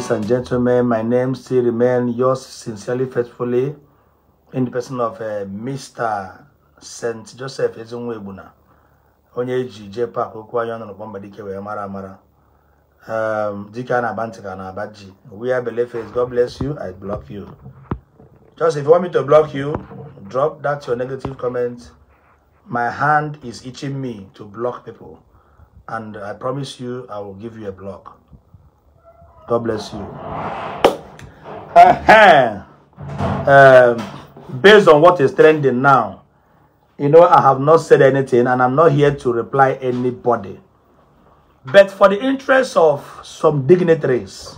Ladies and gentlemen, my name still remains yours sincerely, faithfully, in the person of uh, Mr. St. Joseph Ezinwebuna, onye eji jepa akwụkwọ anyị ọnụ n'ụkpọ mba dike mara amara. Um, dike a na-aba We are believers. God bless you. I block you. Just if you want me to block you, drop that your negative comment. My hand is itching me to block people. And I promise you, I will give you a block. God bless you. Uh-huh. Um, based on what is trending now, you know, I have not said anything and I'm not here to reply anybody. But for the interest of some dignitaries,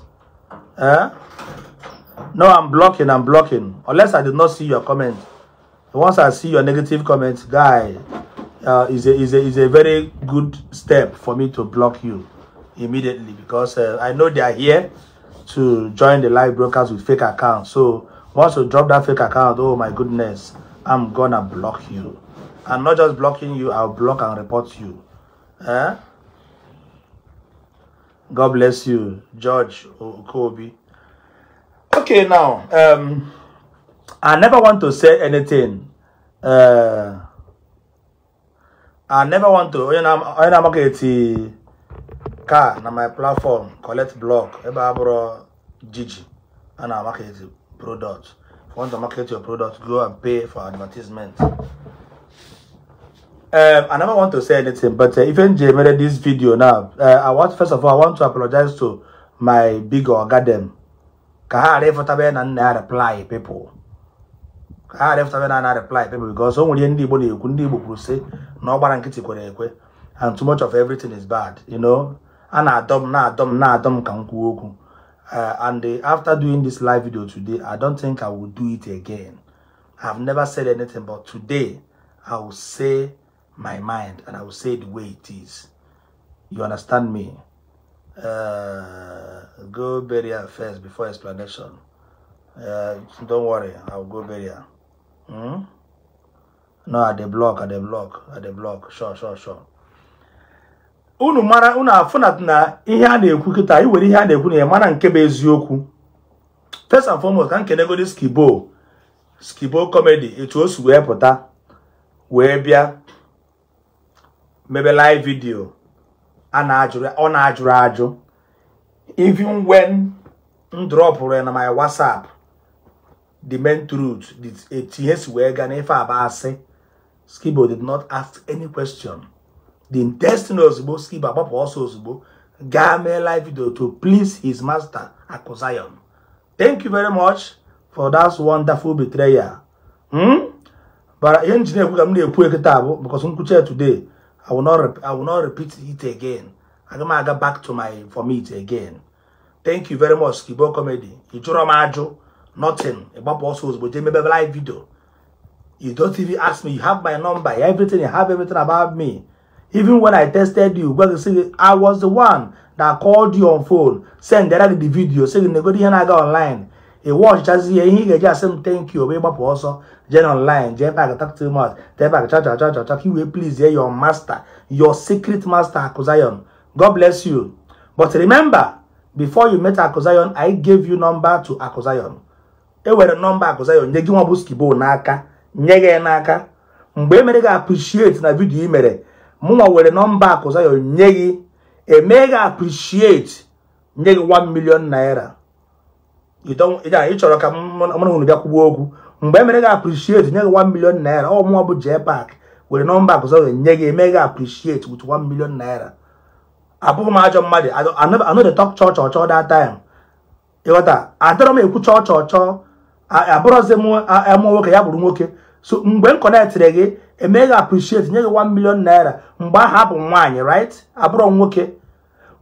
uh, no, I'm blocking, I'm blocking. Unless I did not see your comment. Once I see your negative comment, guy, uh, is, a, is, a, is a very good step for me to block you immediately because uh, I know they are here to join the live brokers with fake accounts. So once you drop that fake account, oh my goodness, I'm gonna block you. I'm not just blocking you, I'll block and report you. Eh? God bless you, George Kobe. Okay, now, um, I never want to say anything. Uh, I never want to. You know, I'm, you know, I'm okay ka na my platform collect block ebe a bụrụ jiji a na-market product if you want to market your product go and pay for advertisement um, I never want to say anything, but uh, even Jay made this video now. Uh, I want first of all, I want to apologize to my big organ. Kahare for taben and I reply people. Kahare for taben and reply people because only in the body you couldn't be say no baran kitty and too much of everything is bad, you know. And I dumb, now na-adọ m na-adọ m ka and after doing this live video today i don't think i will do it again i've never said anything but today i will say my mind and i will say the way it is you understand me uh, go burial first before explanation uh, don't worry i'll go burial hmm? no at the block at the block at the block sure sure sure unu mara unu afọ na ihe a na-ekwu kita anyị were ihe a na-ekwu na ya mara nke bụ eziokwu first and foremost ka nkenegodi skibo skibo comedy etu o si wee pụta wee bịa mebe live video ọ na-ajụrụ ajụ even when m dropụrụ na my whatsapp the main truth etu ihe si wee gaa n'ife abụ skibo did not ask any question The intestin ozugbo skip agbapụ ọsọ ozugbo gaa mee live video to please his master Aku thank you very much for that wonderful betrayal hmm? But ihe nji na-ekwu ka m na because I'm because today I will not I will not repeat it again I'm going to go back to my for me again thank you very much Kibo Comedy You draw my ajụ nothing also. But ozugbo jee a live video you don't even ask me you have my number everything you have everything about me even when I tested you, but you I was the one that called you on phone, send direct the video, saying negodi here na ga online. He watch just here, he ga just say thank you, be gbapụ also je online, je back talk too much, je back cha cha cha cha, you please hear your master, your secret master Akuzayon. God bless you. But remember, before you met Akuzayon, I gave you number to Akuzayon. E were number Akuzayon, nye gị nwa bụ n'aka, nye n'aka. Mbe e mere gị appreciate na video i mere, mụnwa were nọmba akụ Zion nye gị gị appreciate nye gị 1 million naira ị chọrọ ka mụrụ hụrụ bịa kwụgbuo okwu mgbe e mere gị appreciate nye gị 1 million naira ọ mụnwa bụ jee pak were nọmba akụ Zion nye gị gị appreciate with 1 million naira abụghị m ajọ mmadụ anọdụ tọk chọọ chọọ chọọ that time ịghọta adịrọ m ekwu chọọ chọọ chọọ abụrọzi m nwoke ya bụrụ nwoke so mgbe m kọnetịrị gị emeghị appreciate nye gị 1 million naira mgbe ahụ bụ nwaanyị right abụrụ nwoke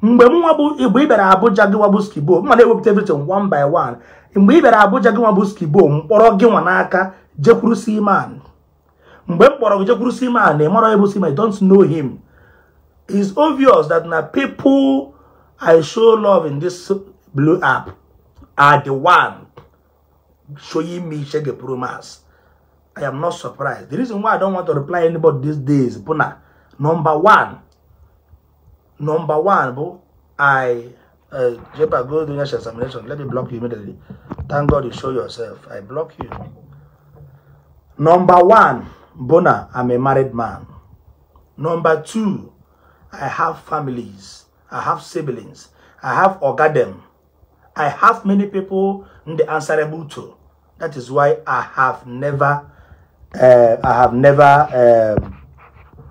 mgbe nwa bụ mgbe ị bịara Abuja gị nwabụ skibo mma na-ewepụta everything one by one mgbe ị bịara Abuja gị nwabụ skibo mkpọrọ gị nwa n'aka jekwuru Seaman mgbe m kpọrọ gị jekwuru Seaman na ịmara ebu Seaman don't know him it's obvious that na people I show love in this blue app are the one showing me shege promise I am not surprised. The reason why I don't want to reply anybody these days, Buna, number one, number one, bro, I, uh, Jepa, go do your examination. Let me block you immediately. Thank God you show yourself. I block you. Number one, Bona, I'm a married man. Number two, I have families. I have siblings. I have orgadem. I have many people in the answerable to. That is why I have never Uh, I have never reply um,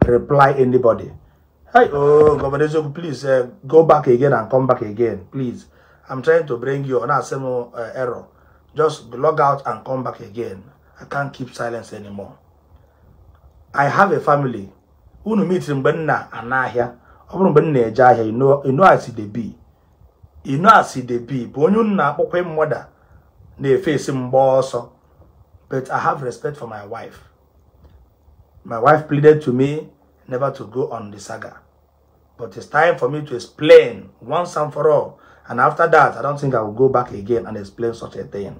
replied anybody. Hey, oh, Governor Zogu, please uh, go back again and come back again, please. I'm trying to bring you on a ero uh, error. Just log out and come back again. I can't keep silence anymore. I have a family. Unu meeting mgbe nna anahịa. Ọ bụrụ mgbe nna eje ahịa, you know as they be. You know as they be. Bụ onye nna na-akpọkwa na-efe esi mgba But I have respect for my wife. My wife pleaded to me never to go on the saga. But it's time for me to explain once and for all. And after that, I don't think I will go back again and explain such a thing.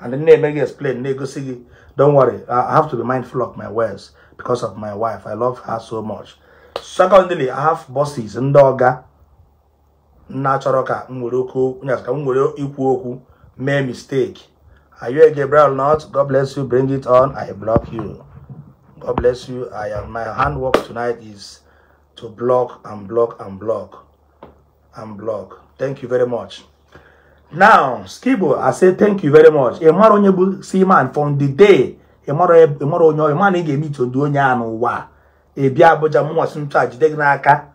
And then they explain, negotiate. see, don't worry, I have to be mindful of my words because of my wife. I love her so much. Secondly, I have bosses, ndoga, natural ka, nwere ikwu okwu, mee mistake. Are you a Gabriel not? God bless you. Bring it on. I block you. God bless you. I am my handwork tonight is to block and block and block and block. Thank you very much. Now, Skibo, I say thank you very much. Emaro nyebu man from the day. Emaro emaro nyo man nge to do nya no wa. E bia Abuja mo wasu ntu ajide n'aka.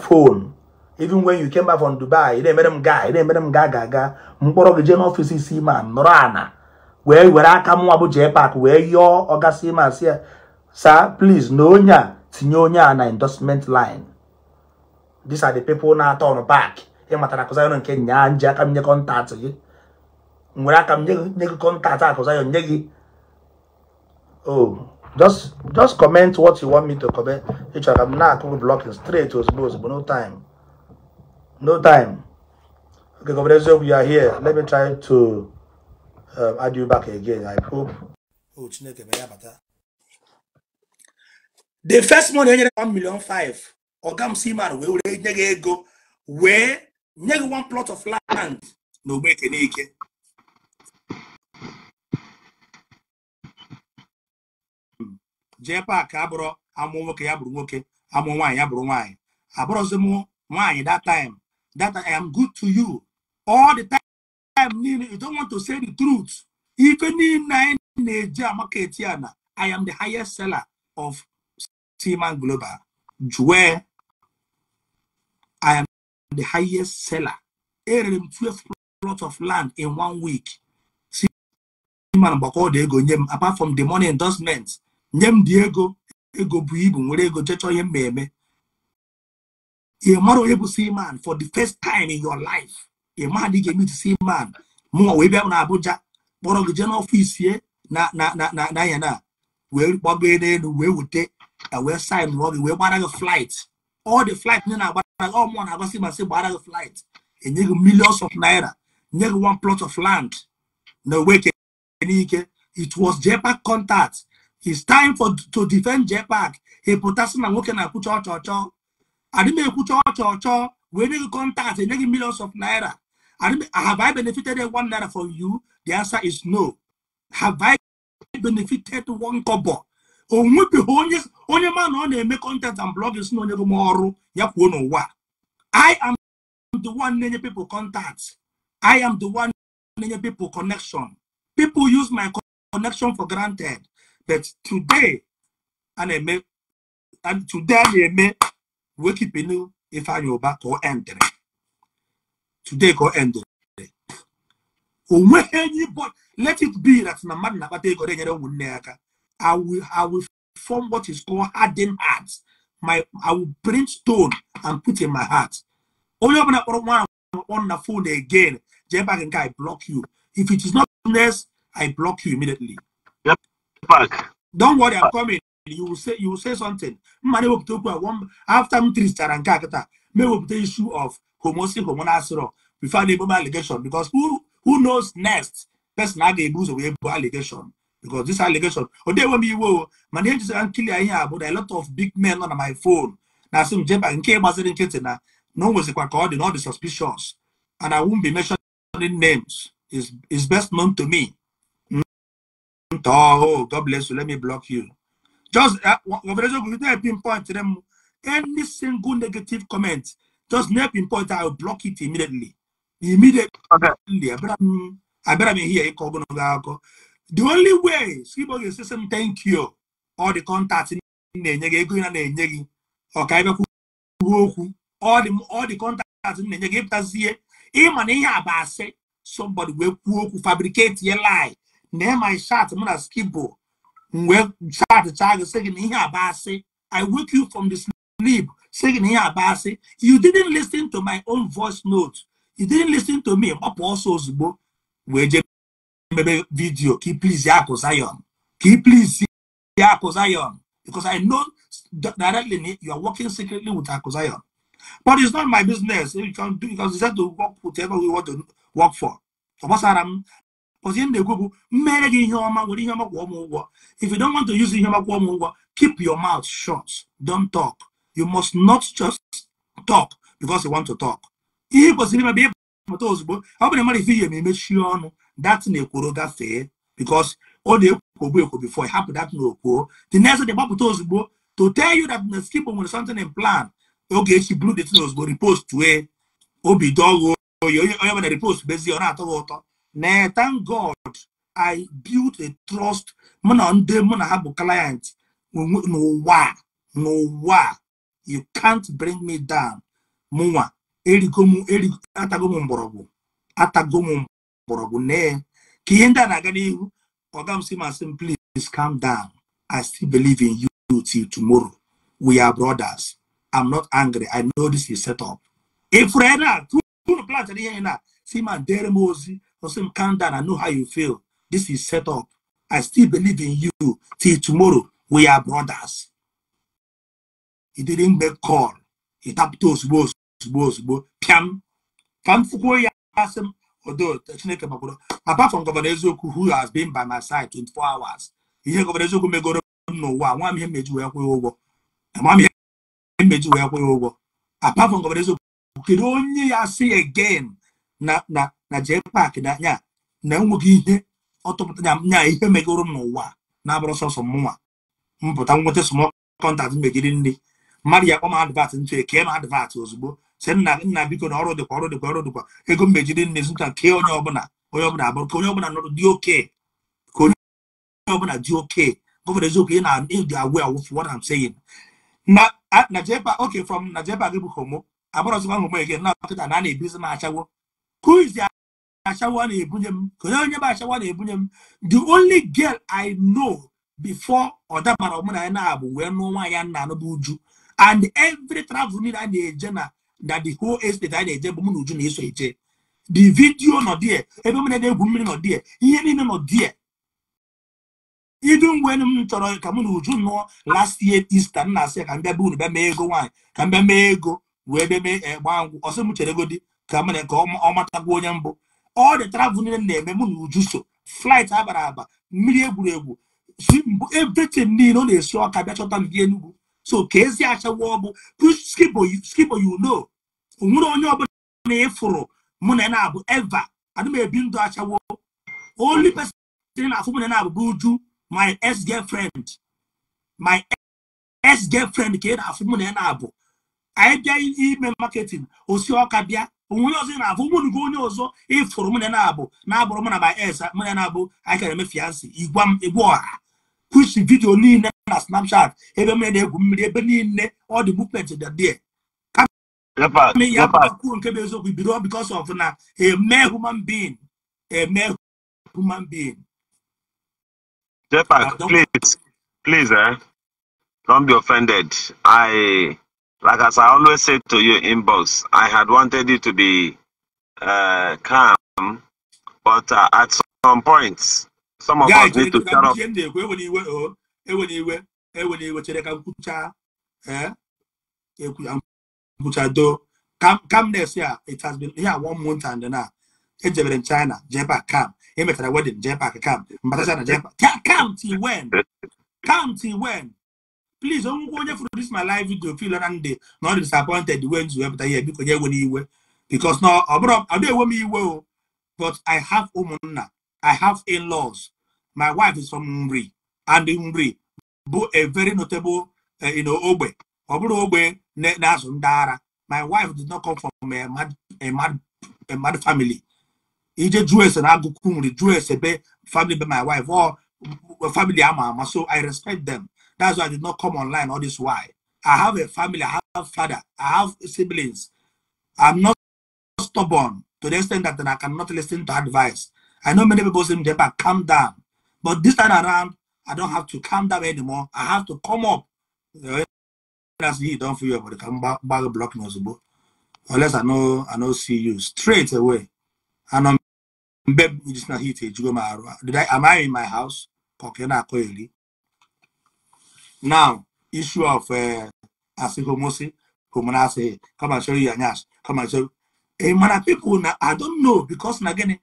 phone. even when you came back from Dubai ị na-emere m gaa ị na-emere m gaa ga aga mkpọrọ gị jee n'ọfịs isi ma nọrọ ana wee were aka mụnwa bụ jee pak wee yọọ ọgasị ma sị ya sa please na onye a tinye onye a na endorsement line these are the people na-atọ ọnụ back ịmatara akụzayon nke nyaa nji aka m nye kọntaktị gị nwere aka m nye gị kọntaktị akụzayon nye gị oh just just comment what you want me to comment ịchọrọ ka m na-akụ blọkin straight ozugbo ozugbo no time no time okay governor eziokwu you are here let me try to um, add you back again i hope o oh, chineke ya bata the first money enyere 1 million 5 ọga m siman wee were nye gị ego wee nye gị one plot of land n'ogbe ogbe ekenike jee paak abụrụ amụ nwoke ya bụrụ nwoke amụ nwaanyị ya bụrụ nwaanyị abụrụzi m nwaanyị that time that I am good to you. All the time, you don't want to say the truth. Even in Nigeria, I am the highest seller of Seaman Global. Where I am the highest seller. Erem 12 plots of land in one week. Seaman Bako m apart from the money endorsements, Nyem Diego, Ego Buibu, Ego Checho Yem Meme. ị mara onye bụ Seaman for the first time in your life ị ma dị ga-emit Seaman mụnwa wee bịa na Abuja kpọrọ gị jee n'ọfịs ya na na na na na ya na wee gbago n'elu wee wute wee sign gị wee gbara gị flight all the flight ndị na-agbara gị ọmụọ na-agbasị masị gbara gị flight enye gị millions of naira nye one plot of land na weke n'ike it was JPAC contact it's time for to defend JPAC ị pụtasị na nwoke na-akwụcha ọchọọchọ I may put your church, when you contact a e millions of naira. have I benefited one naira from you? The answer is no. Have I benefited one kobo? onwe bihe onye onye ma na ọ na-eme content and blogging si na onye bụ m ọrụ ya kwuo n'ụwa i am the one na-enye people contact i am the one na-enye people connection people use my connection for granted but today a today a na-eme I ifá yorùbá kò ẹ̀ǹdẹ̀rẹ̀ today kò ẹ̀ǹdẹ̀rẹ̀ onwe but let it be that na man na na-akpata ego dị nyere aka I will, I will form what is called harden heart my I will bring stone and put in my heart only open kpọrọ one on the phone again jay back and I block you if it is not next I block you immediately. Yep. Back. Don't worry, I'm coming you will say you will say something mma na-ewepụta okwu one after m tirichara nke a kịta ma ewepụta issue of homosi hormonal syrup before the ebobo allegation because who, who knows next person a ga-ebu ụzọ wee allegation because this allegation Oh, they enwe m be o mana say I'm a bụ na a lot of big men on my phone na-asị m jeba nke gbaziri nkịtị na na no one was a dị na ọ suspicious and I won't be mentioning names It's it's best known to me. Oh, God bless you. Let me block you. Just uh, Governor pinpoint to them any single negative comment. Just never pinpoint. I will block it immediately. Immediately. Okay. I better, mm, I better be here. The only way Sibo is saying thank you all the contacts in na-enye gị ego ị na-enye gị ọka ebe kwuo okwu ọ dị kọntaktị na-enye gị ịpụtazie ịma na ihe a bụ asị somebody wee kwuo okwu fabricate ye lie na ịma shat mụ na skibo well, chachịcha gị sị gị na ihe i wake you from the sleep sị gị na ihe you didn't listen to my own voice note you didn't listen to me gbapụ ọsọ ozugbo We jee mebe video. Keep please ya akụ zion ka please ya zion because i know directly you are working secretly with akụ zion but it's not my business you can do because you said to work whatever we want to work for ọ gbasara but in the na if you don't want to use ihe ọma kwụọ keep your mouth shut don't talk you must not just talk because you want to talk ihe kwesịrị ime bụ ịpụta ozugbo ọ bụrụ mmadụ ife because ọ na-ekwobu before hapụ the next day told ozugbo to tell you that the skip something in plan Okay, she blew the tin ozugbo repost wee obi dọghụ onye ọbụla repost bezie ọ na-atọ gị na thank god i built a trust mụ na ndị mụ na ha bụ client no n'ụwa you can't bring me down mụnwa erigo m erigo atago m mgbọrọgwụ atago m mgbọrọgwụ nee ka ihe ndị a na-aga n'ihu please calm down i still believe in you till tomorrow we are brothers i'm not angry i know this is set up ifuru ena tụrụ plant ihe na si ma dere m ozi I said, calm down. I know how you feel. This is set up. I still believe in you. Till tomorrow, we are brothers. He didn't make call. He tapped us, boss, boss, boss. Piam. Kam fuko ya asim. Although, Chineke makodo. Apart from Governor Ezoku, who has been by my side 24 hours, ihe Governor Ezoku megoro n'ụwa, nwa m ihe mmeji wee kwụghị ụgwọ. Nwa m ihe mmeji wee kwụghị ụgwọ. Apart from Governor Ezoku, kedu onye ya si again na na na JPAC na anya na enweghị ihe ọtụpụta nya nya ihe megoro m n'ụwa na-abụrụ sọsọ mụnwa mpụta nweta small contact megiri nri mmadụ ya akpọ m advat ntụ eke m advat ozugbo sị nna nna biko na ọrụ dịkwa ọrụ dịkwa ọrụ dịkwa ego m mejiri nri zụta nke onye ọbụla onye ọbụla abụrụ ka onye ọbụla nọrọ dị oke ka onye ọbụla dị oke gọvanọ eziokwu ị na-eji agwụ awụ for what I'm saying na na JPAC okay from na JPAC gị bụ homo abụrụzikwa homo ege na ọkịta na a na-ebizi na achagwo who is the Ashawa na Ashawa m The only girl I know before na Omunayana wee were no one yana no uju And every travel need an agenda na the whole estate na eje bụ m na uju na eso eje. The video nọ die, ebe mmiri na egwu mmiri nọ die, ihe niile nọ die. Idu mgbe m chọrọ ka mụ na uju nụọ last year Easter m na-asị ya ka m bịa unu bịa mee ego nwaanyị ka m bịa mee ego wee bịa mee eh, gbaa ngwụ ọsị m chere godi ka mere ka ọ matagwu onye mbụ ọ dị travel niile na-eme mụ na uju so flit abara aba mmiri egwuregwu si mbụ everything niile ọ na-esi ọka bịa chọta ndị enugwu so ka ezi achawa ọ bụ skibo you onwere onye ọbụla na ịfụrụ mụ na na-abụ eva ana ebi ndụ achawo only person na-afụ mụ na na-abụ bụ uju my ex girlfriend my ex girlfriend ka ị na-afụ mụ na na-abụ anyị bịa ime marketing osi ọka bịa onwe ọzọ ị na-afụ nwunye gị onye ọzọ ịfụrụ mụnye na-abụ na-abụrụ mụ na my ex mụnye na-abụ anyị kara eme fiansị igwa m egwu ọha kwụsị vidio niile na snapchat ebe mụnye na-egwu mmiri ebe niile ọ dị movement dị dị ah, ya ah. kwuo nke bụ eziokwu bido because of na eme human being eme human being Jepak, ah, please, please, eh? Don't be offended. I Like as I always said to you, inbox, I had wanted you to be uh, calm, but uh, at some points, some of yeah, us need to shut up. Oh, eh, eh, calmness, yeah, it has been yeah one month and now. ejebere eh, in china jee back kam emechara wedin wedding, back kam But china jee back kam till when kam till when please do go there for this my live video feel and ndị not disappointed when you have ihe biko nye ewere because now ọ I ọ dị ewe m iwe but i have ụmụnna i have in-laws my wife is from Umri and Umri bụ a very notable uh, you know, Obe. ọ bụrụ ogbe my wife did not come from a mad, a mad, a mad family ije jụọ ese na agụkwu nri be family by my wife or family ama ama so i respect them that's why I did not come online all this while. I have a family, I have father, I have siblings. I'm not stubborn to the extent that I cannot listen to advice. I know many people say, but calm down. But this time around, I don't have to calm down anymore. I have to come up. That's you don't feel about the bag block but Unless I know I know see you straight away. And I'm um, babe it is not heated. Did I am I in my house? not Koeli. Now, issue of uh, asihomosi, homonasi, come and show you Anyash, come and show. Hey, na people, now, I don't know because na again,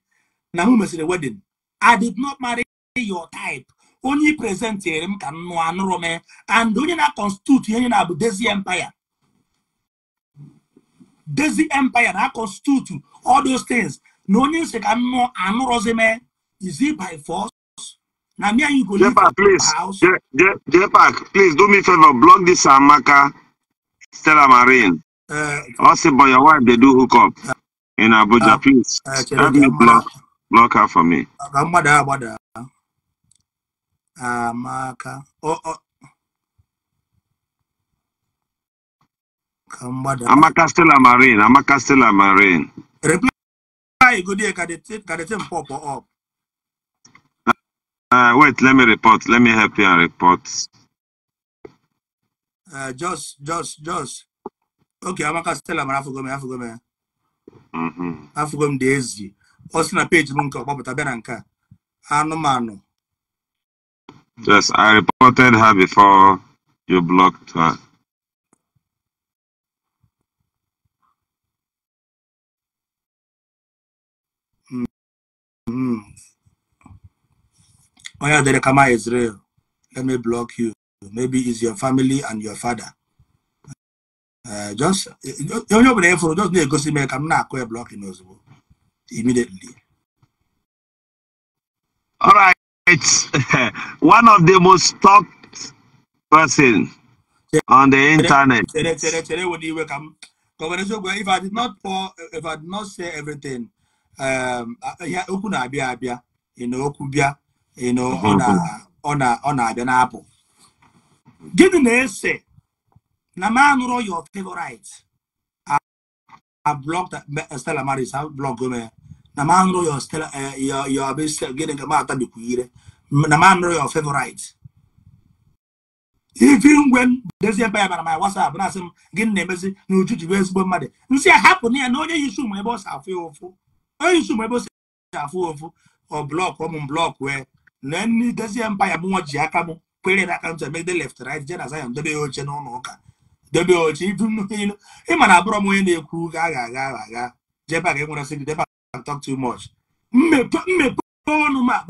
na who the wedding? I did not marry your type. Only present here, m ka nnụ anụrụ m and onye na-constitute ihe na-abụ Desi Empire. Desi Empire na-constitute all those things. Na onye nsi ka nnụ anụrụzi m, is it by force? Now me and you go Jepak, please. house. Je, Je, Jepak, please do me a favor. Block this Amaka Stella Marine. Uh, also, by your wife, they do hook up uh, in Abuja. Uh, please uh, help me block, block her for me. Uh, Amada, Amada. Amaka. Oh, oh. Amaka Stella Marine. Amaka Stella Marine. Reply. Go there. Can they take? Can they take pop up? Uh, wait, let me report. Let me help you and report. Uh, just, just, just. Okay, Amaka Stella mara afụgo m afụgo m afụgo m dị ezi ọ na page m nke ọkpọpụta bịa na nke a anụmanụ Yes, I reported her before you blocked her. Mm. Oh yeah, the come Israel. Let me block you. Maybe it's your family and your father. Uh, just you know, ịfụrụ just na-egosi mere ka m na-akụ ya blọkin ozugbo immediately. All right. One of the most talked person on the internet. Chere chere chere wụ if I did not pour if I did not say everything um, okwu na-abịa abịa ị na okwu bịa ọ na-abịa na-apụ gịnị na-ese na ma anụrụ your favorite a blog Stella Maris a blog ya na ma anụrụ your Stella e, your gịnị ka ma atabikwu ire na ma anụrụ your favorite ifi ngwe dezie mba ya bara ma WhatsApp na-asị m gịnị na-emezi na uju ji ezigbo mmadụ nsị a hapụ na ya na onye yisi ụmụ ebe ọ si afụ ya ụfụ onye yisi ụmụ ebe ọ si afụ ya ụfụ ọ blọk ọmụ blọk wee na nne dozie mpa ya bụ nwa ji aka m kwere na aka ntụ emegide left right je na Zion oche n'ụlọ ụka debe oche ị ma na abụrọ m onye na-ekwu ga agha agha agha aga jebe aga enwere sị debe talk too much mmepe ọnụ ma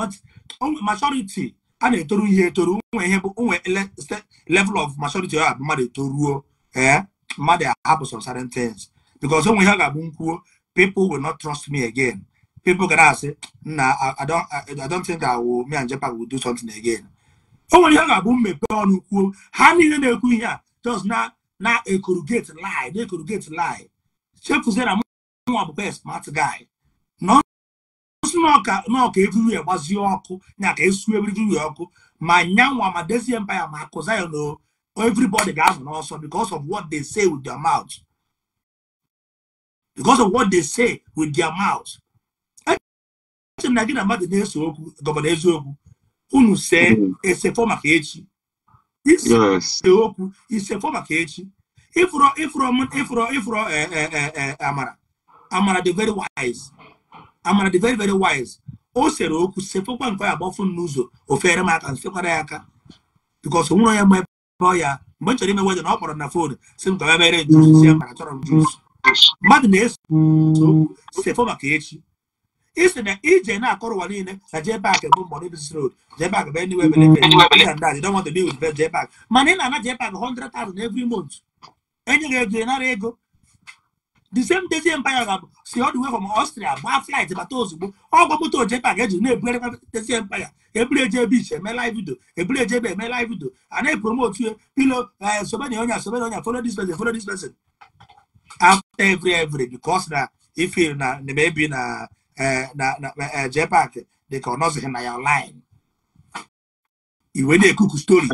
majority a na-etoru ihe etoru nwe ihe bụ nwe level of majority ọha bụ mmadụ etoruo ee eh, mmadụ ahapụ some certain things because nwe ihe ga-abụ nkwuo people will not trust me again people can ask, nah, I don't, I don't think that will, me and Japan will do something again. O nwere ihe ga-abụ mmepe ọnụ kwuo ha niile na-ekwu ihe a just na na ekorugate lie na ekorugate lie chefuzie na mụnwa bụkwa smart guy nọọka nọọka evriwe gbazie ọkụ nya ka esu evriwe ọkụ ma nyanwa ma desi empaya ma akụzaya na everybody ga-anọ n'ọsọ because of what they say with their mouth because of what they say with their mouth ntị na gị na mmadụ na-eso okwu gọvanọ eziokwu unu see esefọ maka echi ise okwu isefọ maka echi ịfụrọ ịfụrọ ịfụrọ ịfụrọ amara amara dị very wise amara dị very very wise o sere okwu que nke ya agbafụ n'ụzọ ofere m aka nsekwara ya aka bikọs nwụrụ ya mgbe ọ ya mgbe m chọrọ ime wedin ọ kpọrọ na fon si m ka ya mere jus ya mara chọrọ m jus mmadụ na-eso okwu maka echi isi na ije na-akọrọ ụwa niile na jee bak bụ mbọ bs rod jee bak bụ eniwe belebe jee bak mana ị na-ana jee bak 100,000 every month enye gị ego nara ego the same day empire ga-abụ si ọ dị wee gbaa flight bata ozugbo ọgwọ moto bak eji na-ebugarịkwa tezi empire eburu eje beach eme eje ebe eme a pilo eh, onye onye JPAC dị ka ọ nọzighị na ya online iwe na-ekuku stori na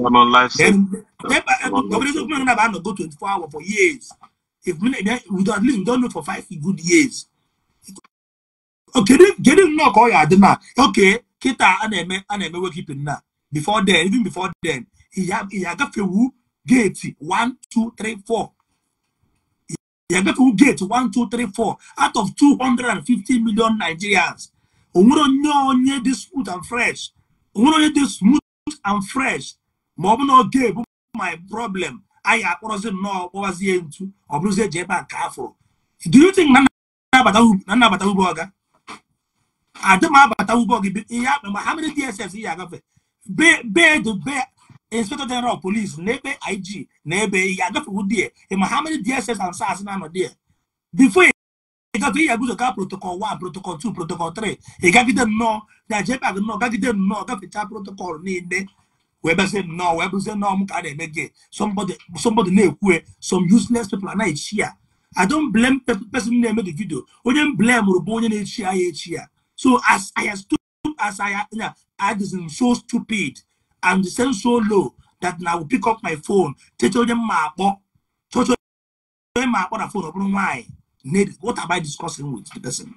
go 24 hours for years if we at least we for five good years kedu nnọọ ka ọ adị na oke kịta a na-eme wekipin na before then even before then ya agafewu geeti 1 2 3 4 Yagafu get one, two, three, four out of 250 million Nigerians. Onye this smooth and fresh. this smooth and fresh. Ma ọ bụ my problem I akpọrọzi not know what was bụrụzie ji ebe a ka afọ do you think na nnabata ugbo ọga adị m abata ugbo gị ihe akpa ma ha mere inspector general of police na ig na ebe ya agafewu die ma ha many dss and sars na-anọ die before ịgatụ ihe agụzọ ka protocol 1 protocol 2 protocol 3 ịgagide nnọọ na jpag nnọọ gagide nnọọ gafechaa protocol niile wee bịazie nnọọ wee bụzie nnọọ m ka a na-eme gị somebody na-ekwu some useless people na-echi ya i don't blame person na-eme the video onye m blame bụ onye na-echi ya echi ya so as i as i, I, I so stupid I'm descending so low that now I will pick up my phone. tell them my mapo. Tell them my other phone. Why? What am I discussing with the person?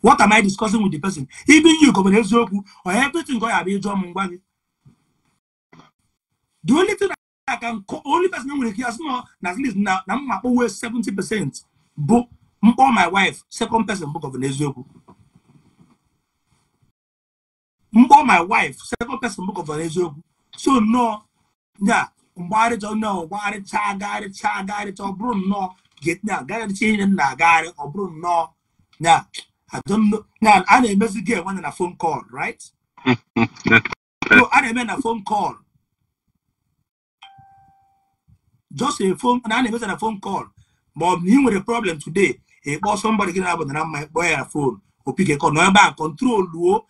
What am I discussing with the person? Even you, Governor Zoku, or everything God have you done. The only thing I can call, only person I will hear now at least now, I'm always 70%. Book, all my wife, second person, book of Nezoku. More my wife second person book of So no, yeah. Guide it? Guide it? Or nnọọ no. Get now. onye it? Change agagharịcha agagharịcha ọ it? Or getna no. Yeah, I don't bụrụ nnọọ I a na Get one in a phone call right so I na-eme a phone call just a phone na a na-emezi na phone call But ọ with a problem today ị kpọọ somebody gị na-abụ na mma ịkpọọ ya phone opike kọ nọ ebe a kọntrol luo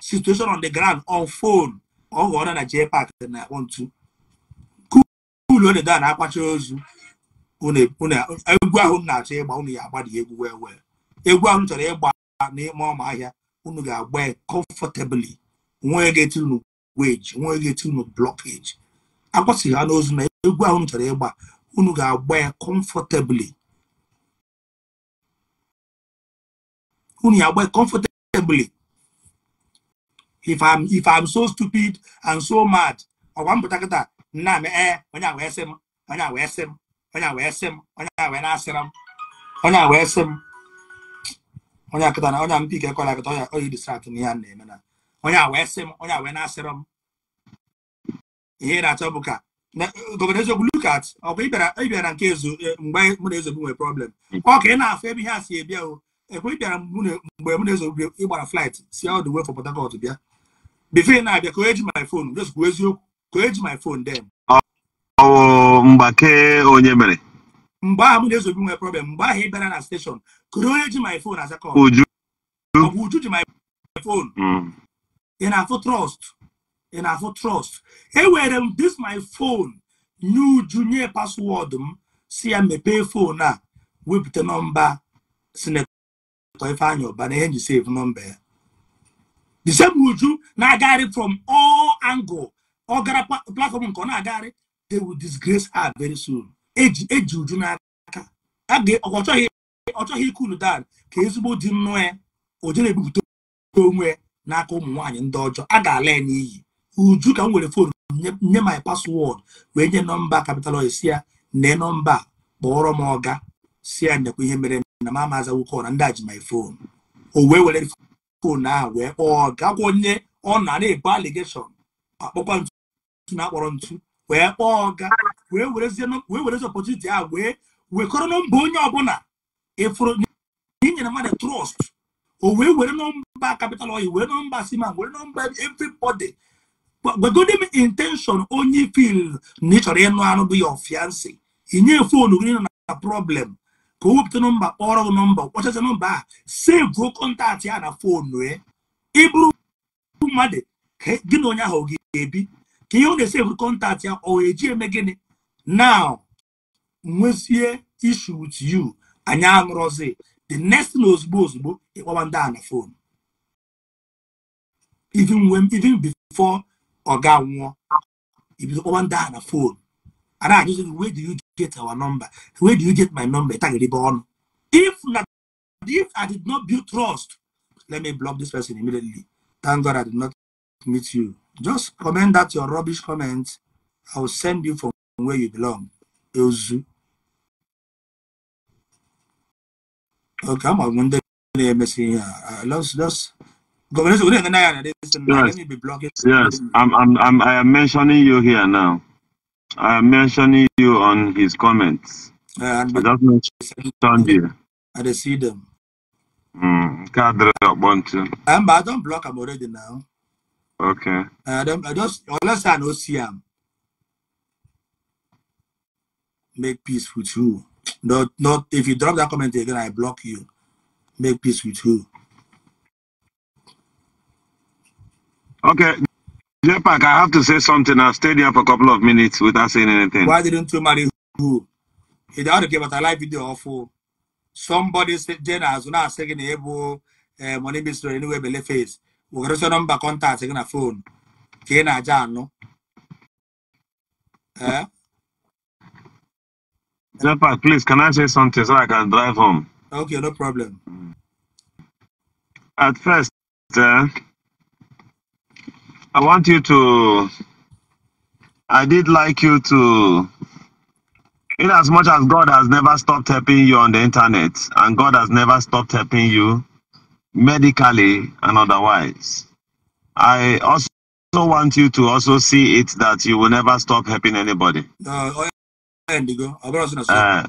situation on the ground on phone ọ ghọrọ na jee pak na-akpọ ntu kuulu odeda na-akpacha ozu egwu ahụ na-achọ ịgba unu ya agbada egwu wee wee egwu ahụ chọrọ ịgba n'ime ọma ahịa unu ga-agba comfortably nwee ga-eti unu weji nwee ga-eti unu blockage akwụsịghị ha n'ozu na egwu ahụ chọrọ ịgba unu ga-agba ya comfortably unu ya agba comfortably if I'm if I'm so stupid and so mad ọgwa mpụta nna onye a wee sị onye a wee sị onye a wee sị onye a wee na-asịra onye a wee sị m onye akịta na a e ya na-eme na onye a wee onye a wee ihe na ka ọ bụ ịbịara nke ezu eh, mgbe mụ ị na-afụ ebe ihe a si ekwe ịbịara mgbe mụ na ezogbu ịgbara flight si ọdụ wee bịa before na-abịa ka o eji my phone just kwuo eziokwu ka o eji my phone then oh, mgbake onye mere mgbe ahụ m na-ezobi nwere problem mgbe ahụ ị bịara na steshọn kụrụ onye ji my phone asakọ uju ọbụ uju ji my phone ị hmm. na-afụ trust? ị na-afụ trust? Enwere m um, this my phone nye um, ah. uju nye paswọdụ m si ya mepee foonu a wepụta nọmba sinetọ Ifeanyị ọba na ihe nji save nọmba ya the uju na-agagharị from all angle ọ gara platform nke ọ na-agagharị they will disgrace her very soon eji uju n'aka ọ chọghị ike unu dan ka ezigbo dị nnọọ ya o na-ebupụta onwe ya n'aka ụmụ nwaanyị ndị ọjọọ a ga-ala ya n'iyi uju ka m were fon nye my password wee nye nọmba kapital si ya nee nọmba kpọrọ m ọga si ya nekwa ihe mere na m amaza nwoke ọra ndị a ji my phone o wee were fon ahụ wee kpọọ ọga gwa onye ọ na na-ebu aligeshọn akpọkwa ntu na-akpọrọ ntu wee kpọọ ọga wee werezie ọpọtuniti a wee wekọrọ nọmba onye ọbụla ịfụrụ inyere mmadụ trọst o wee were nọmba kapital oyi wee nọmba siman were nọmba everybody gwegode m intenshon onye fil na ị chọrọ ịnụ anụ bụ ya ọfiansị inye fonu gị nọ na problem ka o wepụta nọmba kpọrọ gị nọmba ọchacha nọmba a gwuo kọntaktị ya na fonu ịbụrụ ọgụ mmadụ gị na onye ahụ ga-ebi ka ihe ọ na-esi eburu kọntaktị ya ọ eji eme gịnị now nwezie issue with you anyị anụrọzi the next na ozugbo ozugbo ịkpọwa ndị a na fon even nwụọ ibido kpọwa ndị a na fon ajụzi where do you get our number where do you get my number ọnụ if na if i did not build trust let me block this person immediately Thank God I did not meet you. Just comment that your rubbish comment. I will send you from where you belong. Ozu. Okay, I'm here. Uh, let's just Yes, yes. I'm, I'm, I'm, I am mentioning you here now. I am mentioning you on his comments. Uh, I just mentioned I see them. Nke adịrị ọkpọ ntị. block. I block am already now. Okay. Eh, I don't. I just unless I no see am. Make peace with you. Not not if you drop that comment again, I block you. Make peace with you. Okay. Jepak, I have to say something. I stayed here for a couple of minutes without saying anything. Why didn't you marry who? He ought to give us a live video awful. somebody je na azụ na-asị gị na ịbụ ee eh, money mystery anywhere bele face wegoresị nọmba kọntaktị gị na fon ka ị na-aja anụ eh? Jepa, please, can I say something so I can drive home? Okay, no problem. At first, uh, I want you to. I did like you to in as much as God has never stopped helping you on the internet and God has never stopped helping you medically and otherwise, I also want you to also see it that you will never stop helping anybody. Oh, uh,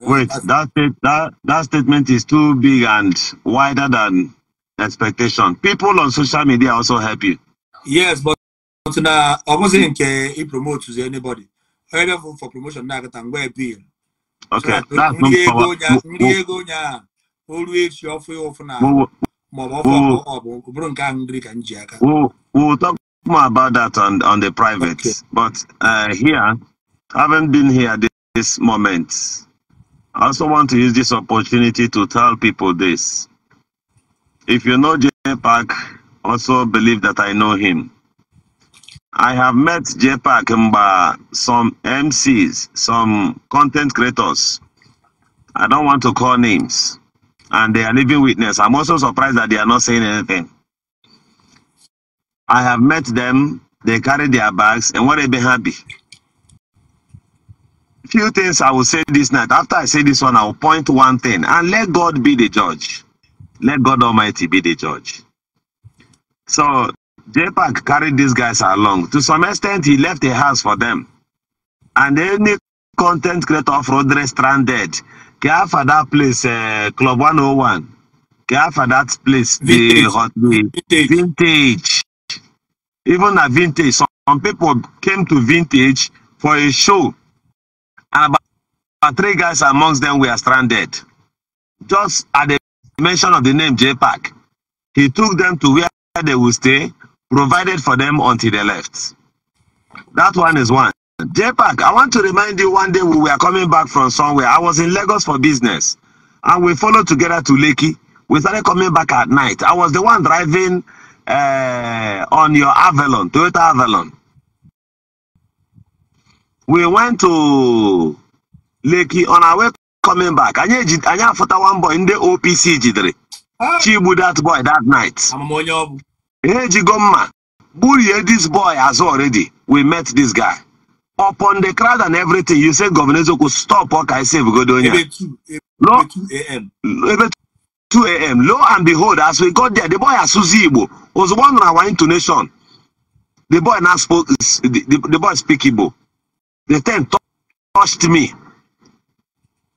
wait, that, that, that statement is too big and wider than expectation. People on social media also help you. Yes, but, but now I wasn't uh, he promotes anybody heard of for promotion na akatangwa being okay always no power ndị now nya olu we'll talk more about that on on the private okay. but uh, here having been here this, this moment I also want to use this opportunity to tell people this. If you know Jay Park, also believe that I know him. I have met J-Pack some MCs, some content creators. I don't want to call names. And they are living witness. I'm also surprised that they are not saying anything. I have met them, they carry their bags, and what they be happy. Few things I will say this night. After I say this one, I will point one thing and let God be the judge. Let God Almighty be the judge. So JPAC carried these guys along. To some extent, he left a house for them. And any content creator off-road stranded, care for that place, uh, Club 101, care for that place, vintage. the hot vintage. vintage. Even a vintage, some people came to vintage for a show. And about, about three guys amongst them were stranded. Just at the mention of the name JPAC, he took them to where they will stay provided for them until they left. That one is one. JPAC, I want to remind you one day we were coming back from somewhere. I was in Lagos for business and we followed together to Lekki. We started coming back at night. I was the one driving uh, on your Avalon, Toyota Avalon. We went to Lekki on our way coming back. Anyị afụta one boy in the OPC jidere. Chigbu that boy that night. Hey, Jigoma, Burie, this boy has already. We met this guy. Upon the crowd and everything, you said Governor Zoko, stop what I say, Godonia. Ebe 2 a.m. 2 a.m. Lo and behold, as we got there, the boy Asuzi Igbo was one our intonation. The boy now spoke, the, the, the boy speak Igbo. The ten touched me.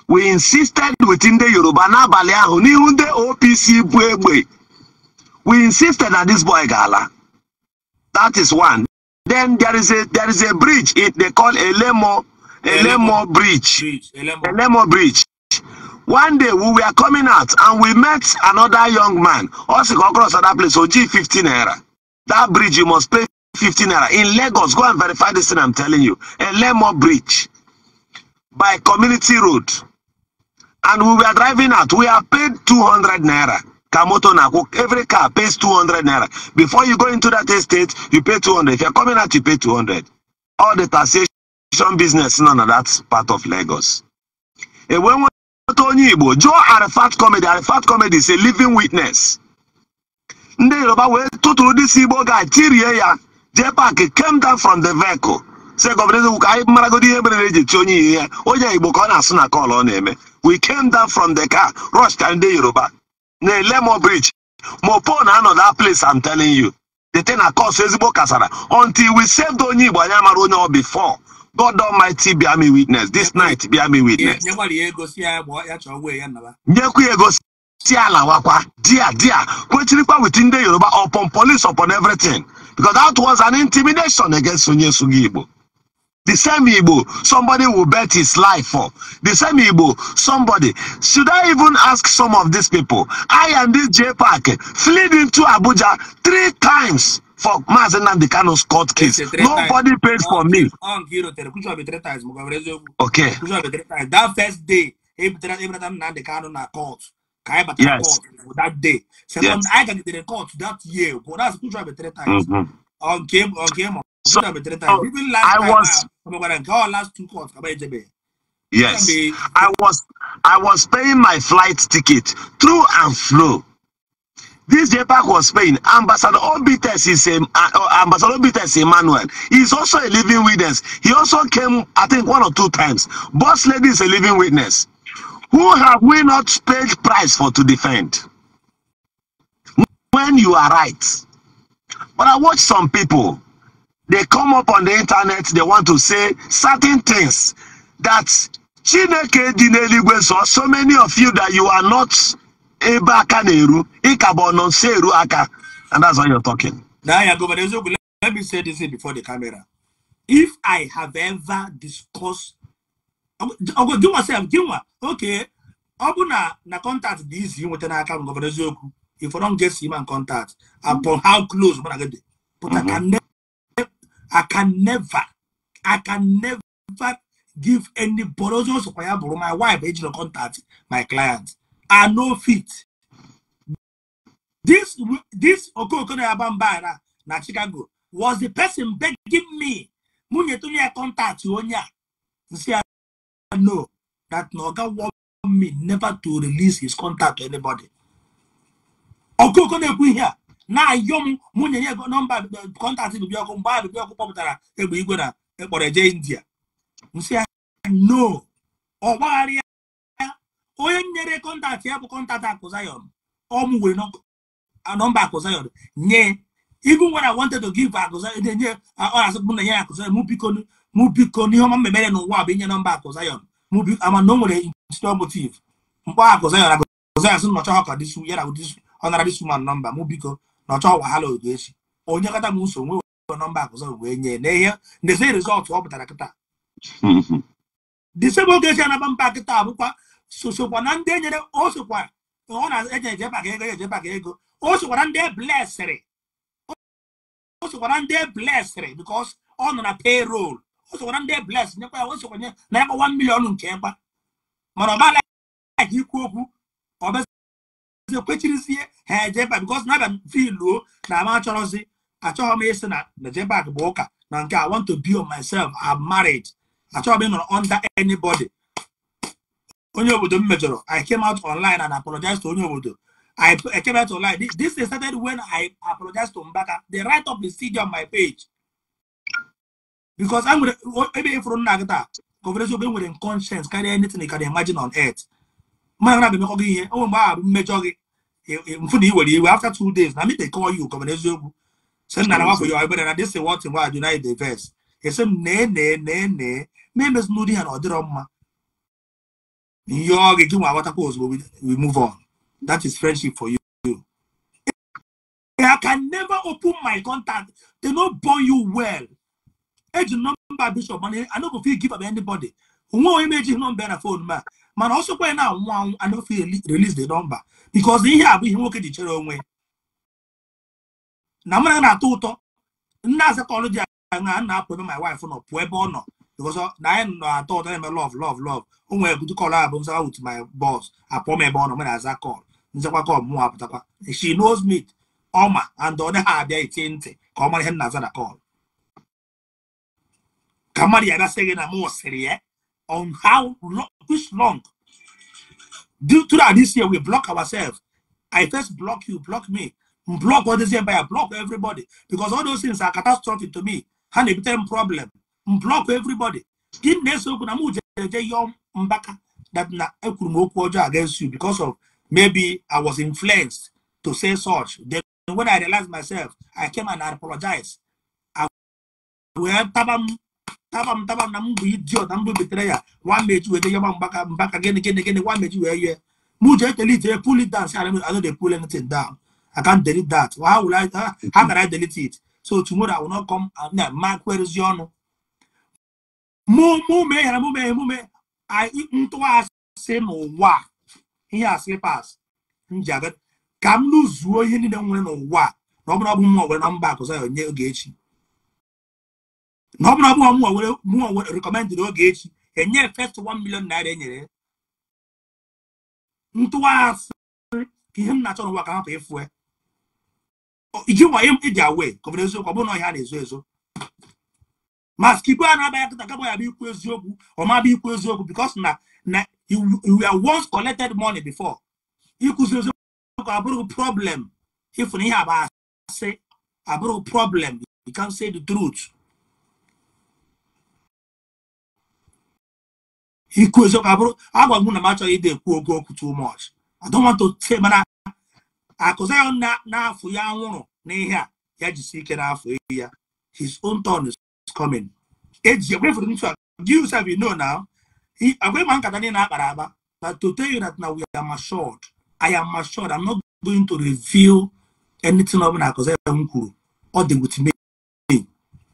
We insisted within the Yoruba n'abalị ahụ n'ihu ndị OPC bụ egbe. We insisted that this boy Gala. That is one. Then there is a there is a bridge. It they call Elemo Elemo, Elemo Bridge. bridge. Elemo. Elemo Bridge. One day we were coming out and we met another young man. Also go across other place. So G 15 naira. That bridge you must pay 15 naira in Lagos. Go and verify this thing I'm telling you. Elemo Bridge by community road. And we were driving out. We are paid 200 naira. ka moto na-akwụ every car pays 200 naira before you go into that estate you pay 200 if you're coming out you pay 200 all the taxation business nọ na that part of Lagos ewe nweta onye Igbo jụọ Arafat comedy Arafat comedy is a living witness ndị Yoruba wee tụtụrụ ndị si Igbo ga tirie ya jee paaki came down from the vehicle say gọvanọ Ezekwuka anyị maragodi ihe mere eji ti onye ihe ya onye Igbo ka ọ na-asụ na kọl ọ na-eme we came down from the car rush ka ndị Yoruba na Lemo Bridge mopo na-anọ that place I'm telling you the thing na cause ezigbo kasara until we saved onye Igbo anyị amara onye ọ before God Almighty be me witness this night be me witness nyekwa ya ego si ala wakwa dia dia kwechirikwa with ndị Yoruba upon police upon everything because that was an intimidation against onye Sugi Igbo The same Igbo somebody will bet his life for. The same Igbo somebody. Should I even ask some of these people? I and this J Parker fled into Abuja three times for Mazen and the Kano's court case. Nobody times. paid for me. Okay. That first day, Abraham and the Kano na court. Yes. that day. Second, yes. I can get the that year. But that's three times. Mm -hmm. On game, on game. So, I was. Ah, yes, I was. I was paying my flight ticket through and through. This JPAC was paying. Ambassador Obites is a, uh, Ambassador Obites Emmanuel. He's also a living witness. He also came, I think, one or two times. Boss lady is a living witness. Who have we not paid price for to defend? When you are right. But I watch some people they come up on the internet they want to say certain things that chineke dị n'eluigwe so so many of you that you are not ebe aka na-eru ịkaba ọnọ nso eru aka and that's why you're talking. Naya Governor Ezogbu, let me say this before the camera. If I have ever discussed, ọgụ gịnwa sef gịnwa okay ọ bụ na na contact dị izi nweta n'aka m Governor Ezogbu if I don get him in contact upon how close mụ na gị dị pụta ka nne I can never, I can never give any borrowers of my wife, age no contact, my clients. I know fit. This this Okokono Abambara na Chicago was the person begging me. Munye to me contact you onya. See, I know that Noga warned me never to release his contact to anybody. Okokono ekwu here. na-ayọ m mụ nyere ego nọmba kọntaktị bibi ọkụ mgbe a bibi ọkụ kpọpụtara egbe igwe na ekpọrọ eje india nsị ya no ọgbaghara ya onye nyere kọntaktị ya bụ kọntaktị akụzayọn ọmụ were nọmba akụzayọn nye ibu nwere I wanted to give akụzayọn na-enye ọ na-asị m na-enye akụzayọn mụ biko biko n'ihe ọma mmemere n'ụwa bụ inye nọmba akụzayọn mụ biko ama na o nwere institutional motive mkpọ akụzayọn akụzayọn sị nnọchọ ya na ọ nara dis woman nọmba mụ na ọ chọghọwa ha loodo echi onye kata m nso nwe nọmba akụzọ wee nye na ihe ndezi rizọtụ ọ pụtara kịta disebe oge eji anaba mba kịta bụkwa sosokwa na ndị enyere o sokwa ọ na-enye ejebaka ego ejebaka ego o na ndị blesịrị o na ndị blesịrị bikos ọ nọ na payroll o na ndị blesị nyekwa ya o sokwanye na ya kwa 1 million nke ekpa mana ọ bala ikwu okwu ọ ekwechirizie ha ejeba because na abịa filuo na ama achọrọzi achọghị m ịsị na mejebak bụ ụka na nke I want to be on myself am married achọghị m ịnọrọ under anybody onye obodo m mejọrọ I came out online and apologize to onye obodo I came out online. This, is started when I apologize to Mbaka. the right of the on my page. Because i going to, maybe if e you're not that, conversation conscience, carry anything you can imagine on earth. mana na-abịamekọ gị ihe onwe mgbe ahụ bụ mmejọ gị mfu na i iwe after two days na mite kọọ yi ụkọmana eziokwu sị nna na nwafọ ya ebere na dịsị wọtin wa jụ naide ves esi m nee nee nee nee ma emezi n'ụdị ha na ọ dịrọ mma ihe ọ gị gị nwa aghọtakwa ozugbo we move on that is friendship for you I can never open my contact. They no born you well. Age number bishop money. I no go fit give up anybody. m image number na phone ma? mana ọsọkwa ya na-anwụ anwụ anọfe release the number because ihe a bụ ihe nwoke ji chere onwe na mmanya na-atọ ụtọ nna asatọlụ ji anya nna apụ ebe my wife nọ pụọ ebe ọ nọ because na anyị nọ atọ ụtọ na-eme love love love o nwere good call abụ nzawa with my boss apụọ m ebe ọ nọ mere aza call nzakwa call mụ apụtakwa she knows me ọma and ọ dịghị abịa itie ntị ka ọ mara ihe nna aza na call ka mmadụ ya gasị gị na m sịrị ya on how long, which long. Due to that, this year we block ourselves. I first block you, block me, block all by a block everybody, because all those things are catastrophic to me. And a term problem. Block everybody. Give this that na against you because of maybe I was influenced to say such. Then when I realized myself, I came and I apologized. taba m taba na m bụ idiot na mbụ betere ya nwa mechi weta yaba mgbaka mbaka gịnị gịnị gịnị nwa mechi wee yie m ji ekele ije pull it down si I don't dey pull anything down I can't delete that how will ha ah, how can I delete it so tomorrow I will not come ah, na ma kwerezi ọnụ mụ mụ mee ya mụ mee emume ntụgharịsị n'ụwa ihe a slipas njaga ka m lụzuo ihe niile nwere n'ụwa na ọ bụrụ ọ bụ m nwere na mba akụza ya onye oge echi na ọ bụrụ ọbụghọ mụnwa were mụnwa were rekọmendị n'oge echi enye fest 1 million naira enyere ntụwa asị ka ihe m na-achọ n'ụwa ka hapụ ịfụ e. iji nwa iji awe ka ọ bụ eziokwu ọ bụrụ na ọhịa na-ezo ezo ma skipu a na-aba ya kịta gaba ya bụ ikwu eziokwu ọ ma bụ ikwu eziokwu bikos na na you are once collected money before ịkụzi eziokwu abụrụ problem ịfụ na ihe aba asị abụrụ problem you can say the truth ikwu eziokwu abụrụ agwa m na m achọghị ịdị ekwu oge okwu too much I te want to say mana akụza ya n'afọ ya nwụrụ n'ihe a ya jisi ike n'afọ ehi ya his own turn is coming eji egwefere ntu a you yourself you no na agwa ịma nkata niile akpara agba but to tell you that now we are matured I am matured I'm not going to reveal anything ọ bụla akụza ya m kwuru ọ dị with me